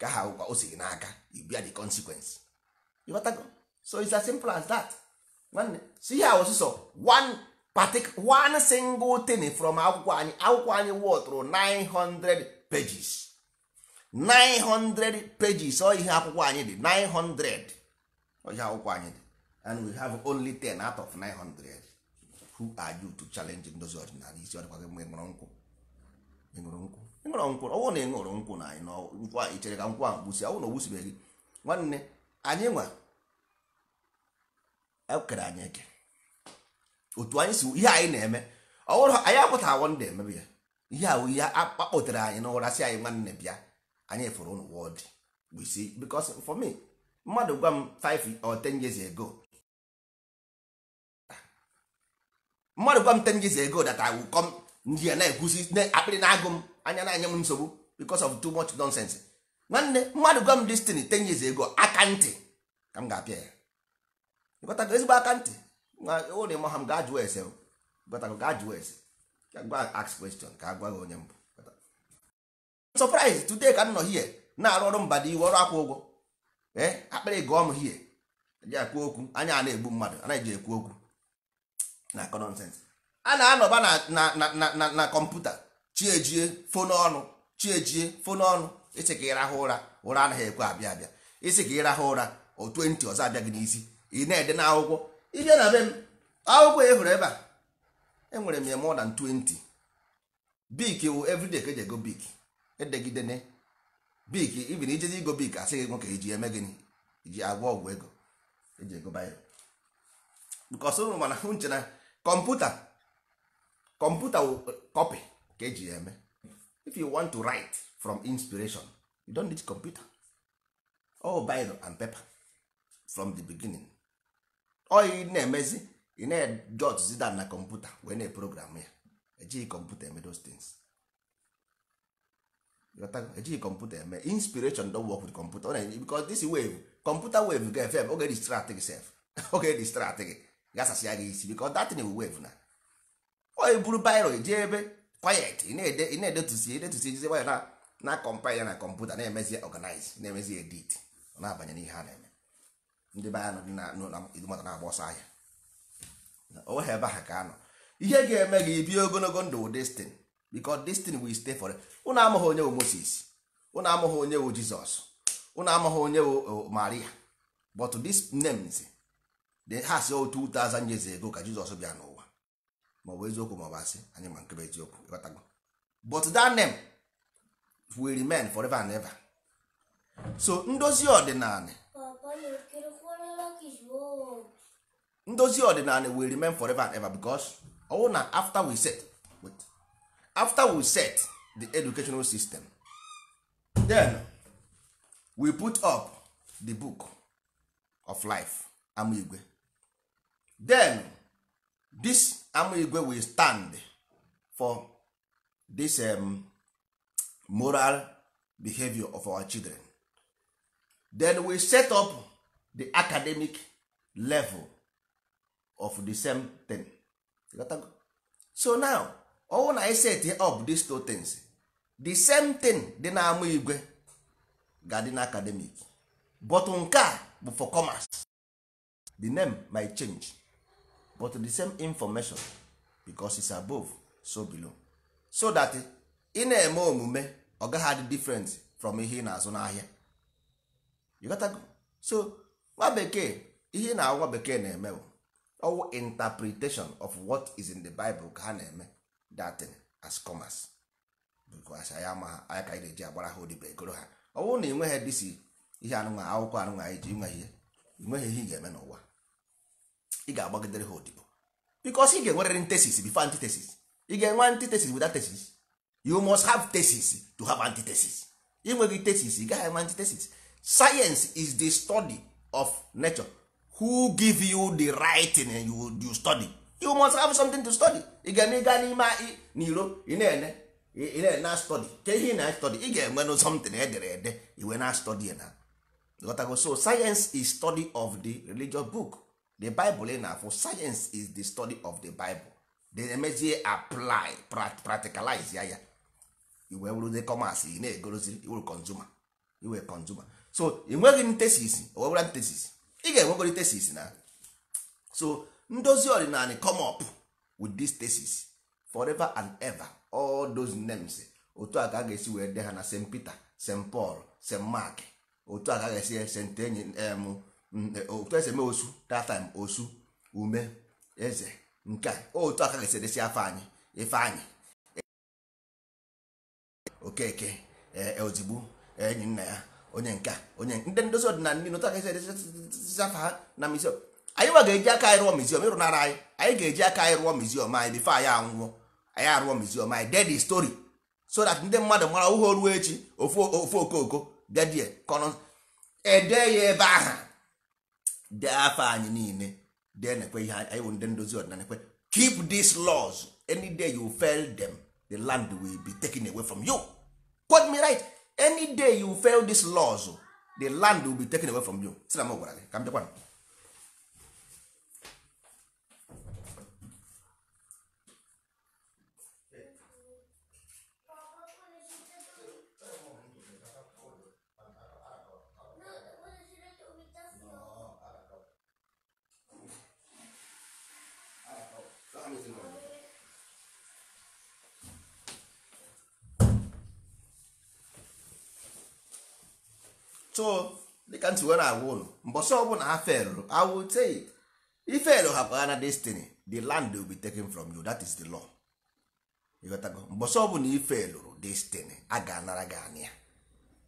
ka ha ụkwa o siri n'aka you bear the consequence ịghọtago so it's as simple as that nwanne so ihe a ọsụsọ one particular one single thing from akwụkwọ anyị akwụkwọ anyị wọtụrụ 900 pages 900 pages ọ ihe akwụkwọ anyị dị 900 ọ ihe akwụkwọ anyị dị and we have only 10 out of 900 who are you to challenge ndozi ọdịnala isi ọdịkwa gị mgbe ṅụrụ nkwụ nkwụ ịṅụrọ nkwụ ọwụ na ịṅụrụ nkwụ na anyị nkwụ anyị chere ka nkwụ ahụ gbusi ọwụ na ogbusibeghị nwanne anyị nwa ekere anyị eke otu anyị si ihe anyị na-eme ọwụrụ anyị akwụta awọ ndị emebe ya ihe ahụ ihe akpọtere anyị n'ụra si anyị nwanne bịa anyị fụrụ ụlọ wọd gbisi because for me mmadụ gwa m 5 or 10 years ago mmadụ gwa m 10 years ago that I will come ndị a na-ekwusi akpịrị na-agụ m anya na-anya m nsogbu because of too much nonsense nwanne mmadụ gwa m destiny ten years ego aka ntị ka m ga-apịa ya ịgọtago ezigbo aka ntị onye ma ha m gaa jụọ ese ịgọtago gaa jụọ ese ka gwa ask question ka agwa gị onye mbụ surprise today ka m nọ hie na-arụ ọrụ mba dị iwe ọrụ akwụ ụgwọ ee akpịrị gụọ m hie ji akwu okwu anya a na-egbu mmadụ anaghị eji ekwu okwu na akọ nonsense a na-anọba na na kọmputa chiejie fon ọnụ chiejie fon ọnụ isi ka ịrahụ ụra ụra anaghị ekwe abịa abịa isi ka ịrahụ ụra o 20 ọzọ abịa gị n'isi ị na-ede na akwụkwọ ịbịa na be m akwụkwọ ya e hụrụ ebe a enwere m ya more than 20 bik wụ everyday ka eji ego bik edegidene bik ibin ijezi igo bik asị gị nwoke iji eme gịnị iji agwọ ọgwụ ego eji ego bayo bikọs ụrụ mana hụ nche na kọmputa kọmputa eh, copy ka eji ya eme if you want to write from inspiration you don't need computer all Bible and paper from the beginning ọ ị na-emezi ị na-ejot down na kọmputa wee na program ya ejighị kọmputa eme those things ejighị kọmputa eme inspiration don work with computer because this wave computer wave ga-efe oge distract gị sef oge distract gị gasasịa gị isi because that thing wave na ọ buru bairo jee ebe quiet ị na-edetusi edetusi ejizi waya na na kọmpil ya na kọmputa na-emezi ọganiz na-emezi edit ọ na-abanye n'ihe a na-eme ndị be anyị na-agba ọsọ ahịa o ebe ha ka anọ ihe ga-eme gị bie ogologo ndụ destin because destin will stay for ụnụ amụghị onye wu Moses ụnụ amụghị onye wu Jizọs ụnụ amụghị onye wu Maria but these names they has 2000 years ago ka Jizọs bịa n'ụwa ma ọ bụ eziokwu ma ọ bụ asị anyị ma nke bụ eziokwu ịghọtago but that name will remain forever and ever so ndozi ọdịnala ndozi ọdịnala will remain forever and ever because ọwụ na after we set wait, after we set the educational system then we put up the book of life amigwe then this amigwe will stand for this um, moral behavior of our children then we set up the academic level of the same thing so now all na set up these two things the same thing dị na ama igwe ga na academic but nke bụ for commerce the name might change but the same information because it's above so below so that ị na-eme omume ọ gaghị adị different from ihe ị na-azụ n'ahịa you got go so nwa bekee ihe na agwa bekee na-eme ọwụ interpretation of what is in the Bible ka ha na-eme that as commerce because anyị ama ha anyị ka anyị na-eji agbara ha odibo egoro ha ọwụ na ị nweghị dịsi ihe anụnwa akwụkwọ anụnwa anyị ji nwe ihe ị nweghị ihe ị ga-eme n'ụwa ị ga-agbagidere ha odibo because ị ga-enwerịrị tesis before antitesis ị ga-enwe antitesis without tesis you must have tesis to have antitesis ịnweghị tesis ị gaghị enwe antitesis science is the study of nature who give you the right and you, you study you must have something to study ị ga-eme ịga n'ime n'iro ị na-ene ị na-ene na study ke ihe ị na study ị ga-enwenụ something edere ede iwe na study na gotago so science is study of the religious book the bible ị na-afụ science is the study of the bible then emezie apply practicalize ya ya iwee wụrụzie commerce na-egorozi iwuru consumer iwe consumer so ị nweghị m tesis owewera tesis ị ga-enwegori tesis na so ndozi ọdịnala come up with this tesis forever and ever all those names otu a ka a ga-esi wee de ha na st peter st paul st mark otu a ka a ga-esi st enyi otu esi eme osu that time osu ume eze nke oh, otu aka ga edesi afọ anyị ife anyị okeke eh, eh, ozigbo eh, enyi nna ya onye nke onye ndị ndozi ọdịnala ndị otu aka edesi afọ ha na miziọm anyị nwa ga-eji aka anyị rụọ miziọm ịrụnara anyị anyị ga-eji aka anyị rụọ miziọm anyị bifo anyị anwụọ anyị arụọ miziọm anyị ded stori so that ndị mmadụ mara ụhọ ruo echi ofu okooko dedie kọnọ ya ebe aha dee afọ anyị niile dee nekwe ihe anyị bụ ndị ndozi ọdịnala nekwe keep these laws any day you fail them the land will be taken away from you quote me right any day you fail these laws the land will be taken away from you si na m gwara gị ka m so dịka ntị wee na-agwa ụlọ mbọsọ ọbụla ha felụ awụ say ifelụ hapụ ha na destiny the land will be taken from you that is the law ịghọtago mbọsọ ọbụla ifelụrụ destiny a ga-anara gị anị ya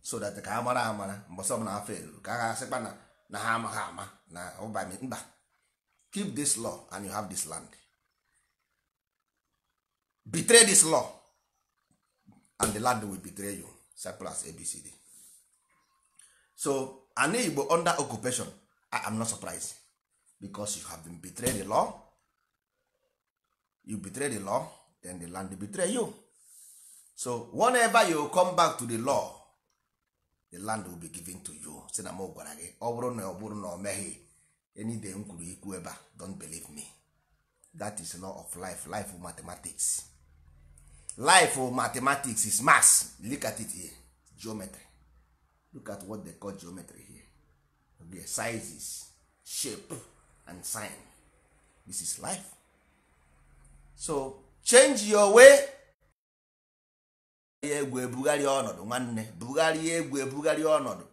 so that ka ha mara amara mbọsọ ọbụla ha felụrụ ka ha sịkpa na na ha amaghị ama na ụbami mba keep this law and you have this land betray this law and the land will betray you simple as abcd so ana igbo under occupation i am not surprised because you have been betrayed the law you betray the law then the land betray you so whenever you come back to the law the land will be given to you si na m gwara gị ọ bụrụ na ọ bụrụ na ọ meghị m kwuru ikwu ebe don't believe me that is law of life life of mathematics life of mathematics is mass look at it here geometry look at what they call geometry here okay, sizes shape and sign this is life so change your way egwu ebugharịa ọnọdụ nwanne bugharịa egwu ebugharịa ọnọdụ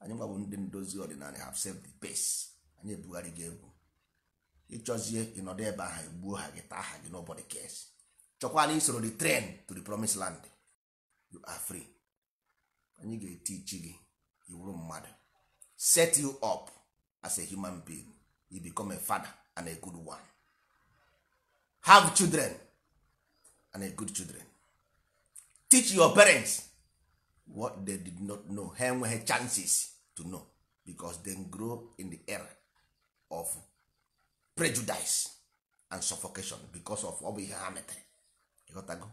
anyị nwa bụ ndị ndozi ọdịnala have saved the pace anyị ebugharị gị egwu ịchọzie ịnọdụ ebe ahụ egbuo ha gị taa ha gị nobody cares chọkwana isoro the train to the promised land you are free anyị ga-etichi gị iwuru mmadụ set you up as a human being you become a father and a good one have children and a good children teach your parents what they did not know ha enweghị chances to know because they grow in the era of prejudice and suffocation because of ọ bụ ihe ha metere ịghọtago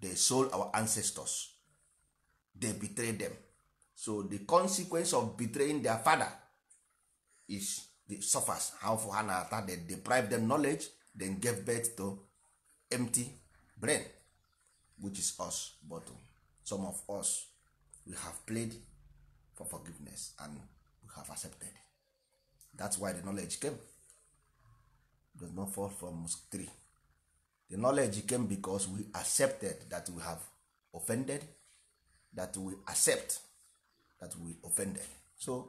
they sold our ancestors they betrayed them so the consequence of betraying their father is the suffers how for ha ata they deprive them knowledge then gave birth to empty brain which is us but some of us we have played for forgiveness and we have accepted that's why the knowledge came it does not fall from three the knowledge came because we accepted that we have offended that we accept that we offended so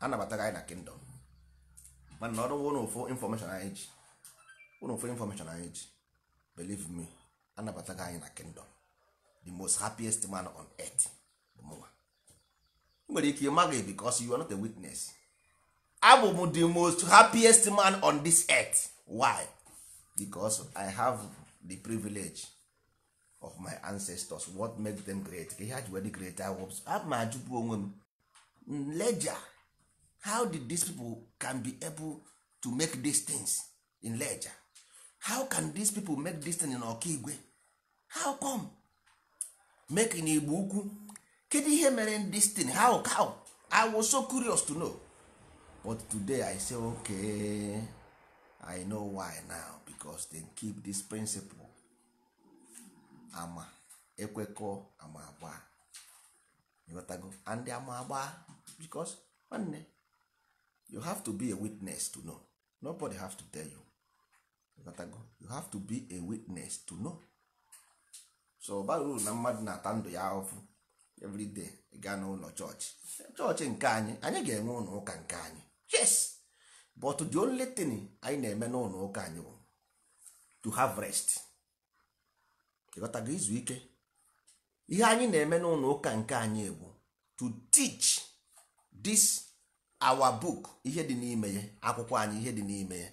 anabataga anyị na kingdom mana na ọrụ ụnụ ụfụ information anyị ji ụnụ ụfụ information anyị ji believe me anabataga anyị na kingdom the most happiest man on earth bụ mụnwa nwere ike ịmaghị because you are not a witness abụ m the most happiest man on this earth why because i have the privilege of my ancestors what make them great ka ihe ha ji wee dị great awops a ajụpụ onwe m how did these people can be able to make these things in leja how can these people make this thing in ọkaigwe how come make in igbo ukwu kedu ihe mere this thing how how i was so curious to know but today i say okay i know why now because they keep this principle ama ekwekọ ama agba ịghọtago and ama agba because nwanne you have to be a witness to know nobody have to tell you ịghọtago you have to be a witness to know so bara na mmadụ na-ata ndụ ya ahụfụ everyday gaa n'ụlọ chọọchị chọọchị nke anyị anyị ga-enwe ụlọ ụka nke anyị yes but the only thing anyị na-eme n'ụlọ ụka anyị bụ to have rest ịghọtago izu ike ihe anyị na-eme n'ụlọ ụka nke anyị egwu to teach this our book ihe dị n'ime ya akwụkwọ anyị ihe dị n'ime ya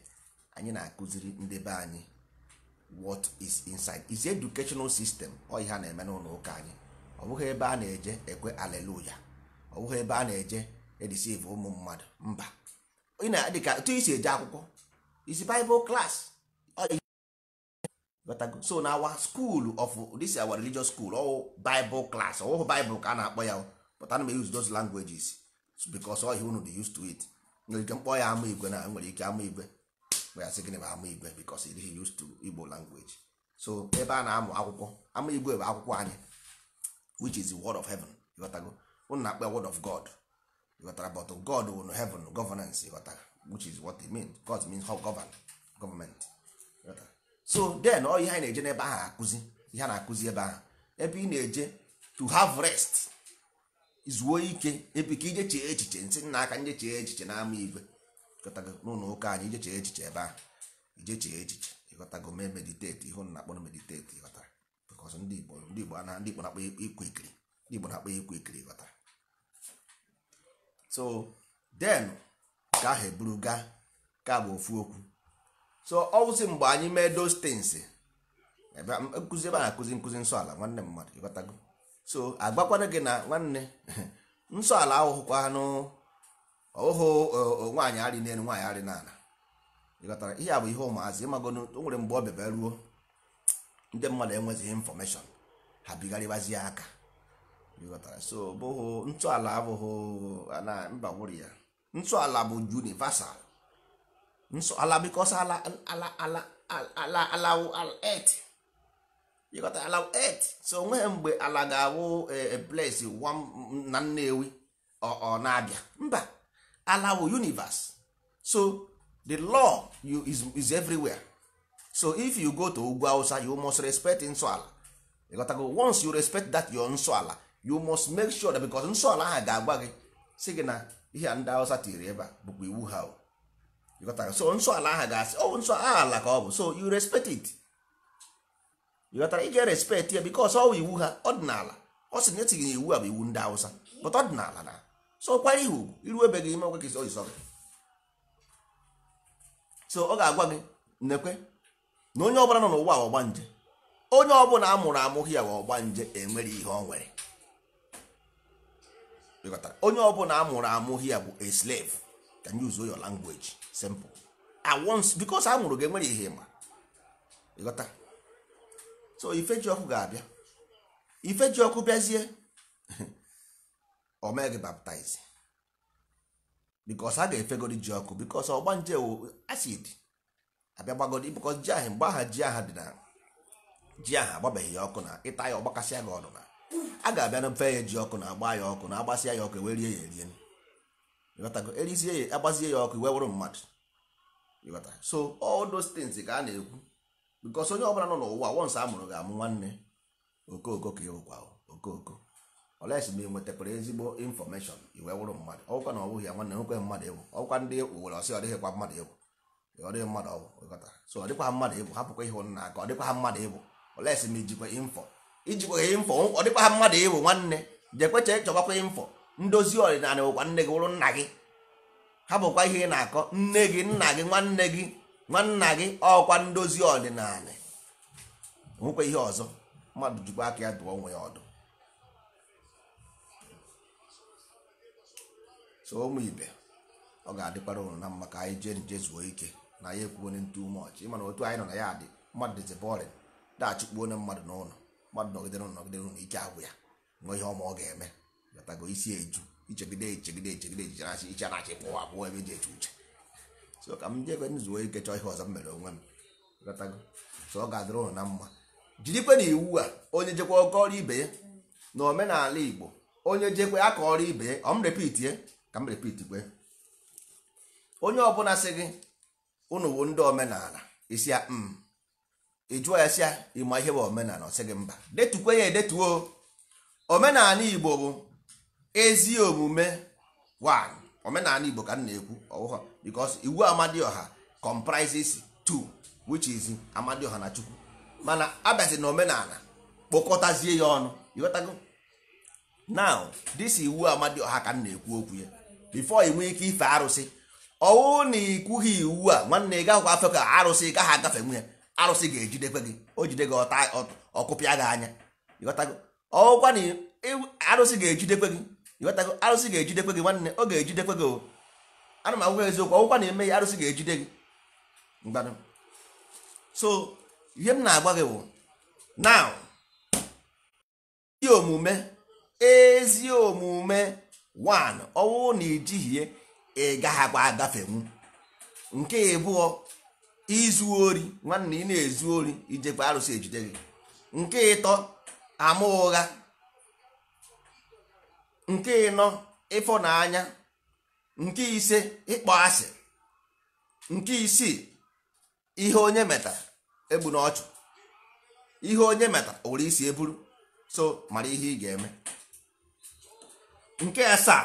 anyị na-akụziri ndị be anyị what is inside is educational system ọ ihe a na-eme n'ụlọ ụka anyị ọ bụghị ebe a na-eje ekwe aleluya ọ bụghị ebe a na-eje edisive ụmụ mmadụ mba ị na isi eje akwụkwọ isi Bible class so na our school of this our religious school or oh, bible class or oh, bible ka a na-akpọ ya oh. but ana m use those languages because all unu dey used to it nwere ike mkpọ ya ama igwe na nwere ike ama igwe ya sị gịnị bụ ama igwe because it is used to igbo language so ebe a na-amụ akwụkwọ ama igwe bụ akwụkwọ anyị which is the word of heaven ịghọtago unu na-akpọ word of god ịghọtara but god unu heaven governance to, which is what it means god means how govern government so then ọ ihe anyị na-eje n'ebe ahụ akụzi ihe a na-akụzi ebe ahụ ebe ị na-eje to have rest zuo ike ebe ka ije chee echiche nsị nna aka nje chee echiche n'ama igwe n'ụlọ ụka anyị ije chee echiche ebe ahụ ije chee echiche ịghọtago mee mediteti ihe na akpọrọ mediteti ịghọtara bikọs ndị Igbo ndị Igbo na ndị Igbo na-akpọ ikwu ikiri ndị Igbo na-akpọ ikwu ikiri ịghọtara so then ka ahụ eburu gaa ka bụ ofu okwu so ọwụsị mgbe anyị mee dos things nkụzi ebe a na-akụzi nkụzi nsọ ala nwanne mmadụ ịghọtago so agbakwana gị na nwanne nsọ ala ahụhụkwa anụ ọhụhụ nwaanyị arị n'elu nwaanyị arị n'ala ịghọtara ihe a bụ ihe ụmụazị ịmagonu o nwere mgbe ọ bịaba ruo ndị mmadụ enwezighị infọmeshọn ha bigharịbazie aka ịghọtara so bụhụ ntọala abụghị na mba nwere ya ntọala bụ universal nso ala bikos ala ala ala ala allow earth you got to allow earth so onweghị mgbe ala ga-awụ a eh, place eh, na nnewi ọ na-abịa mba ala wụ universe so the law you is, is everywhere so if you go to ugwu hausa you must respect nsọ ala you got to go once you respect that your nsọ ala you must make sure that because nsọ ala ahụ ga-agwa gị si gị na ihe ndị hausa tiri ebe a bụkwa iwu ha o ịghọtara oh, so nsọ ala aha ga-asị ọ nsọ ala ka ọ bụ so you respect it ịghọtara ị ga-respect ya bikos ọ bụ iwu ha ọdịnala ọ sị na etighị na iwu a bụ iwu ndị awụsa but ọdịnala na so kwara ihe ugwu iruebeghị ime ọgwa gị oyi so ọ ga-agwa gị nekwe na onye ọbụla nọ n'ụwa ọgba nje onye ọbụla a mụrụ amụghị ya ọgba nje enwere ihe ọ nwere onye ọbụla a mụrụ amụghị ya bụ a can use your language simple at once because a nwụrụ gị enwere ihe ịma ịghọta so ifeji ọkụ ga-abịa ifeji ọkụ bịazie omee gị baptize because a ga-efegodi ji ọkụ because ọgba nje wo acid abịa gbagodi because ji ahụ mgbe aha ji aha dị na ji aha agbabeghị ya ọkụ na ịta ya ọgbakasịa gị ọnụ na a ga-abịa na mfe ya ji ọkụ na agba ya ọkụ na agbasịa ya ọkụ ewerie ya erie ịghọtago erizie ya agbazie ya ọkụ iwe wụrụ mmadụ so all those things ka a na-ekwu bikos onye ọbụla nọ n'ụwa once a mụrụ ga-amụ nwanne okooko ka ịwụkwa okooko oke ma ị nwetakwara ezigbo infọmeshọn iwe wụrụ mmadụ ọkwa na ọbụghị ya nwanne nwekwe mmadụ ịwụ ọkwa ndị uwere ọsị ọ dịghịkwa mmadụ ịwụ ọ dịghị mmadụ ọwụ so ọ dịkwa mmadụ ịbụ ọ dịkwa mmadụ ịbụ ma ijikwa ọ dịkwa ha mmadụ ịbụ nwanne ndozi ọdịnala bụkwa nne gị wụrụ nna gị ha bụkwa ihe ị na-akọ nne gị nna gị nwanne gị nwanna gị ọkwa ndozi ọdịnala nwekwa ihe ọzọ mmadụ jikwa aka ya dụọ onwe ya ọdụ so ụmụ ibe ọ ga-adịkwara ụrụ na mma ka anyị jee nje zuo ike na ya ekwuo onye ntu ume ọchị ịmana otu anyị nọ na ya adị mmadụ dịzi bọrịn dachụkpuo onye mmadụ n'ụlọ mmadụ nọgidere nọgidere n'ụlọ ike agwụ ya nwee ihe ọma ọ ga-eme gatago isi eju ichegide echegide echegide ejicharachi iche na achị pụwa abụọ ebe eji eche uche so ka m jebe m zuo ike chọọ ihe ọzọ m mere onwe m gatago so ọ ga-adịrị ụnụ na mma jirikwe na iwu a onye jekwa ọrụ ibe ya na omenala igbo onye jekwe ọrụ ibe ya ọ m repitie ka m repiti kwe, onye ọbụla sị gị unu bụ ndị omenala isi ya m ịjụọ ya si ya ịma ihe bụ omenala ọ sị gị mba detukwe ya edetuo omenala igbo bụ ezi omume omenala igbo ka m na-ekwu because iwu amadioha comprises two which is amadioha na chukwu mana abịazi na omenala kpokọtazie ya ọnụ ịghọtago now this iwu amadioha ka m na-ekwu okwu ya before i nwee ike ife arụsị ọwụ na ikwughị iwu a nwanne ị gaghịkwa afe ka arụsị gaghị agafe nwe arụsị ga-ejidekwe gị o jide gị ọta ọkụpịa gị anya ịghọtago ọwụkwa na arụsị ga-ejidekwe gị ịghọtago arụsị ga-ejidekwe gị nwanne ọ ga-ejidekwe gị o ana m agwa eziokwu ọgwụkwa na-eme ya arụsị ga-ejide gị mgbado so ihe m na-agwa gị bụ now ezi omume ezi omume one ọwụ na ijighie ị gaghakwa agafenwu nke ịbụọ izu ori nwanne ị na-ezu ori ijekwa arụsị ejide gị nke ịtọ ama ụgha nke ịnọ ịfọ n'anya nke ise ịkpọ asị nke isii ihe onye meta egbu n'ọchụ ihe onye meta ụrụ isi eburu so mara ihe ị ga-eme nke asaa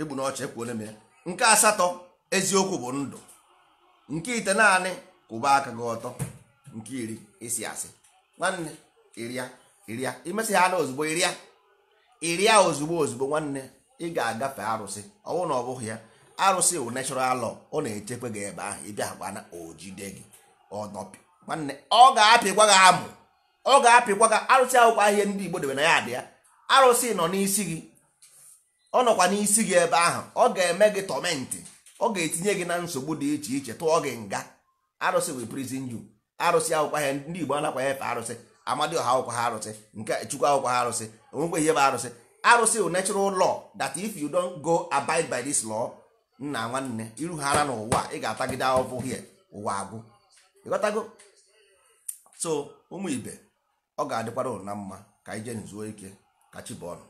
egbu n'ọchụ ekwuole m ya nke asatọ eziokwu bụ ndụ nke ite naanị kwụba aka gị ọtọ nke iri isi asị nwanne iria iria imesị ha ozugbo iria ịrịa ozugbo ozugbo nwanne ị ga-agafe arụsị ọwụ na ọ bụghị ya arụsị wụ natural law ọ na-echekwa gị ebe ahụ ịbịakwana ojide gị nwanne ọ ga-apịkwa gị amụ ọ ga-apịkwa gị arụsị ahụkwa ahịa ndị Igbo debe na ya adị ya arụsị nọ n'isi gị ọ nọkwa n'isi gị ebe ahụ ọ ga-eme gị tọmentị ọ ga-etinye gị na nsogbu dị iche iche tụọ gị nga arụsị wụ prison ju arụsị ahụkwa ahịa ndị Igbo anakwa efe arụsị amadioha akwụkwọ ha arụsị nke chukwu akwụkwọ ha arụsị onwekwe ihe bụ arụsị arụsị bụ natural law that if you don't go abide by this law nna nwanne iru ha ara n'ụwa ị ga-atagide ahụhụ hie ụwa agwụ ịghọtago so ụmụ ibe ọ ga-adịkwara uru na mma ka anyị jee ike ka chi ọnụ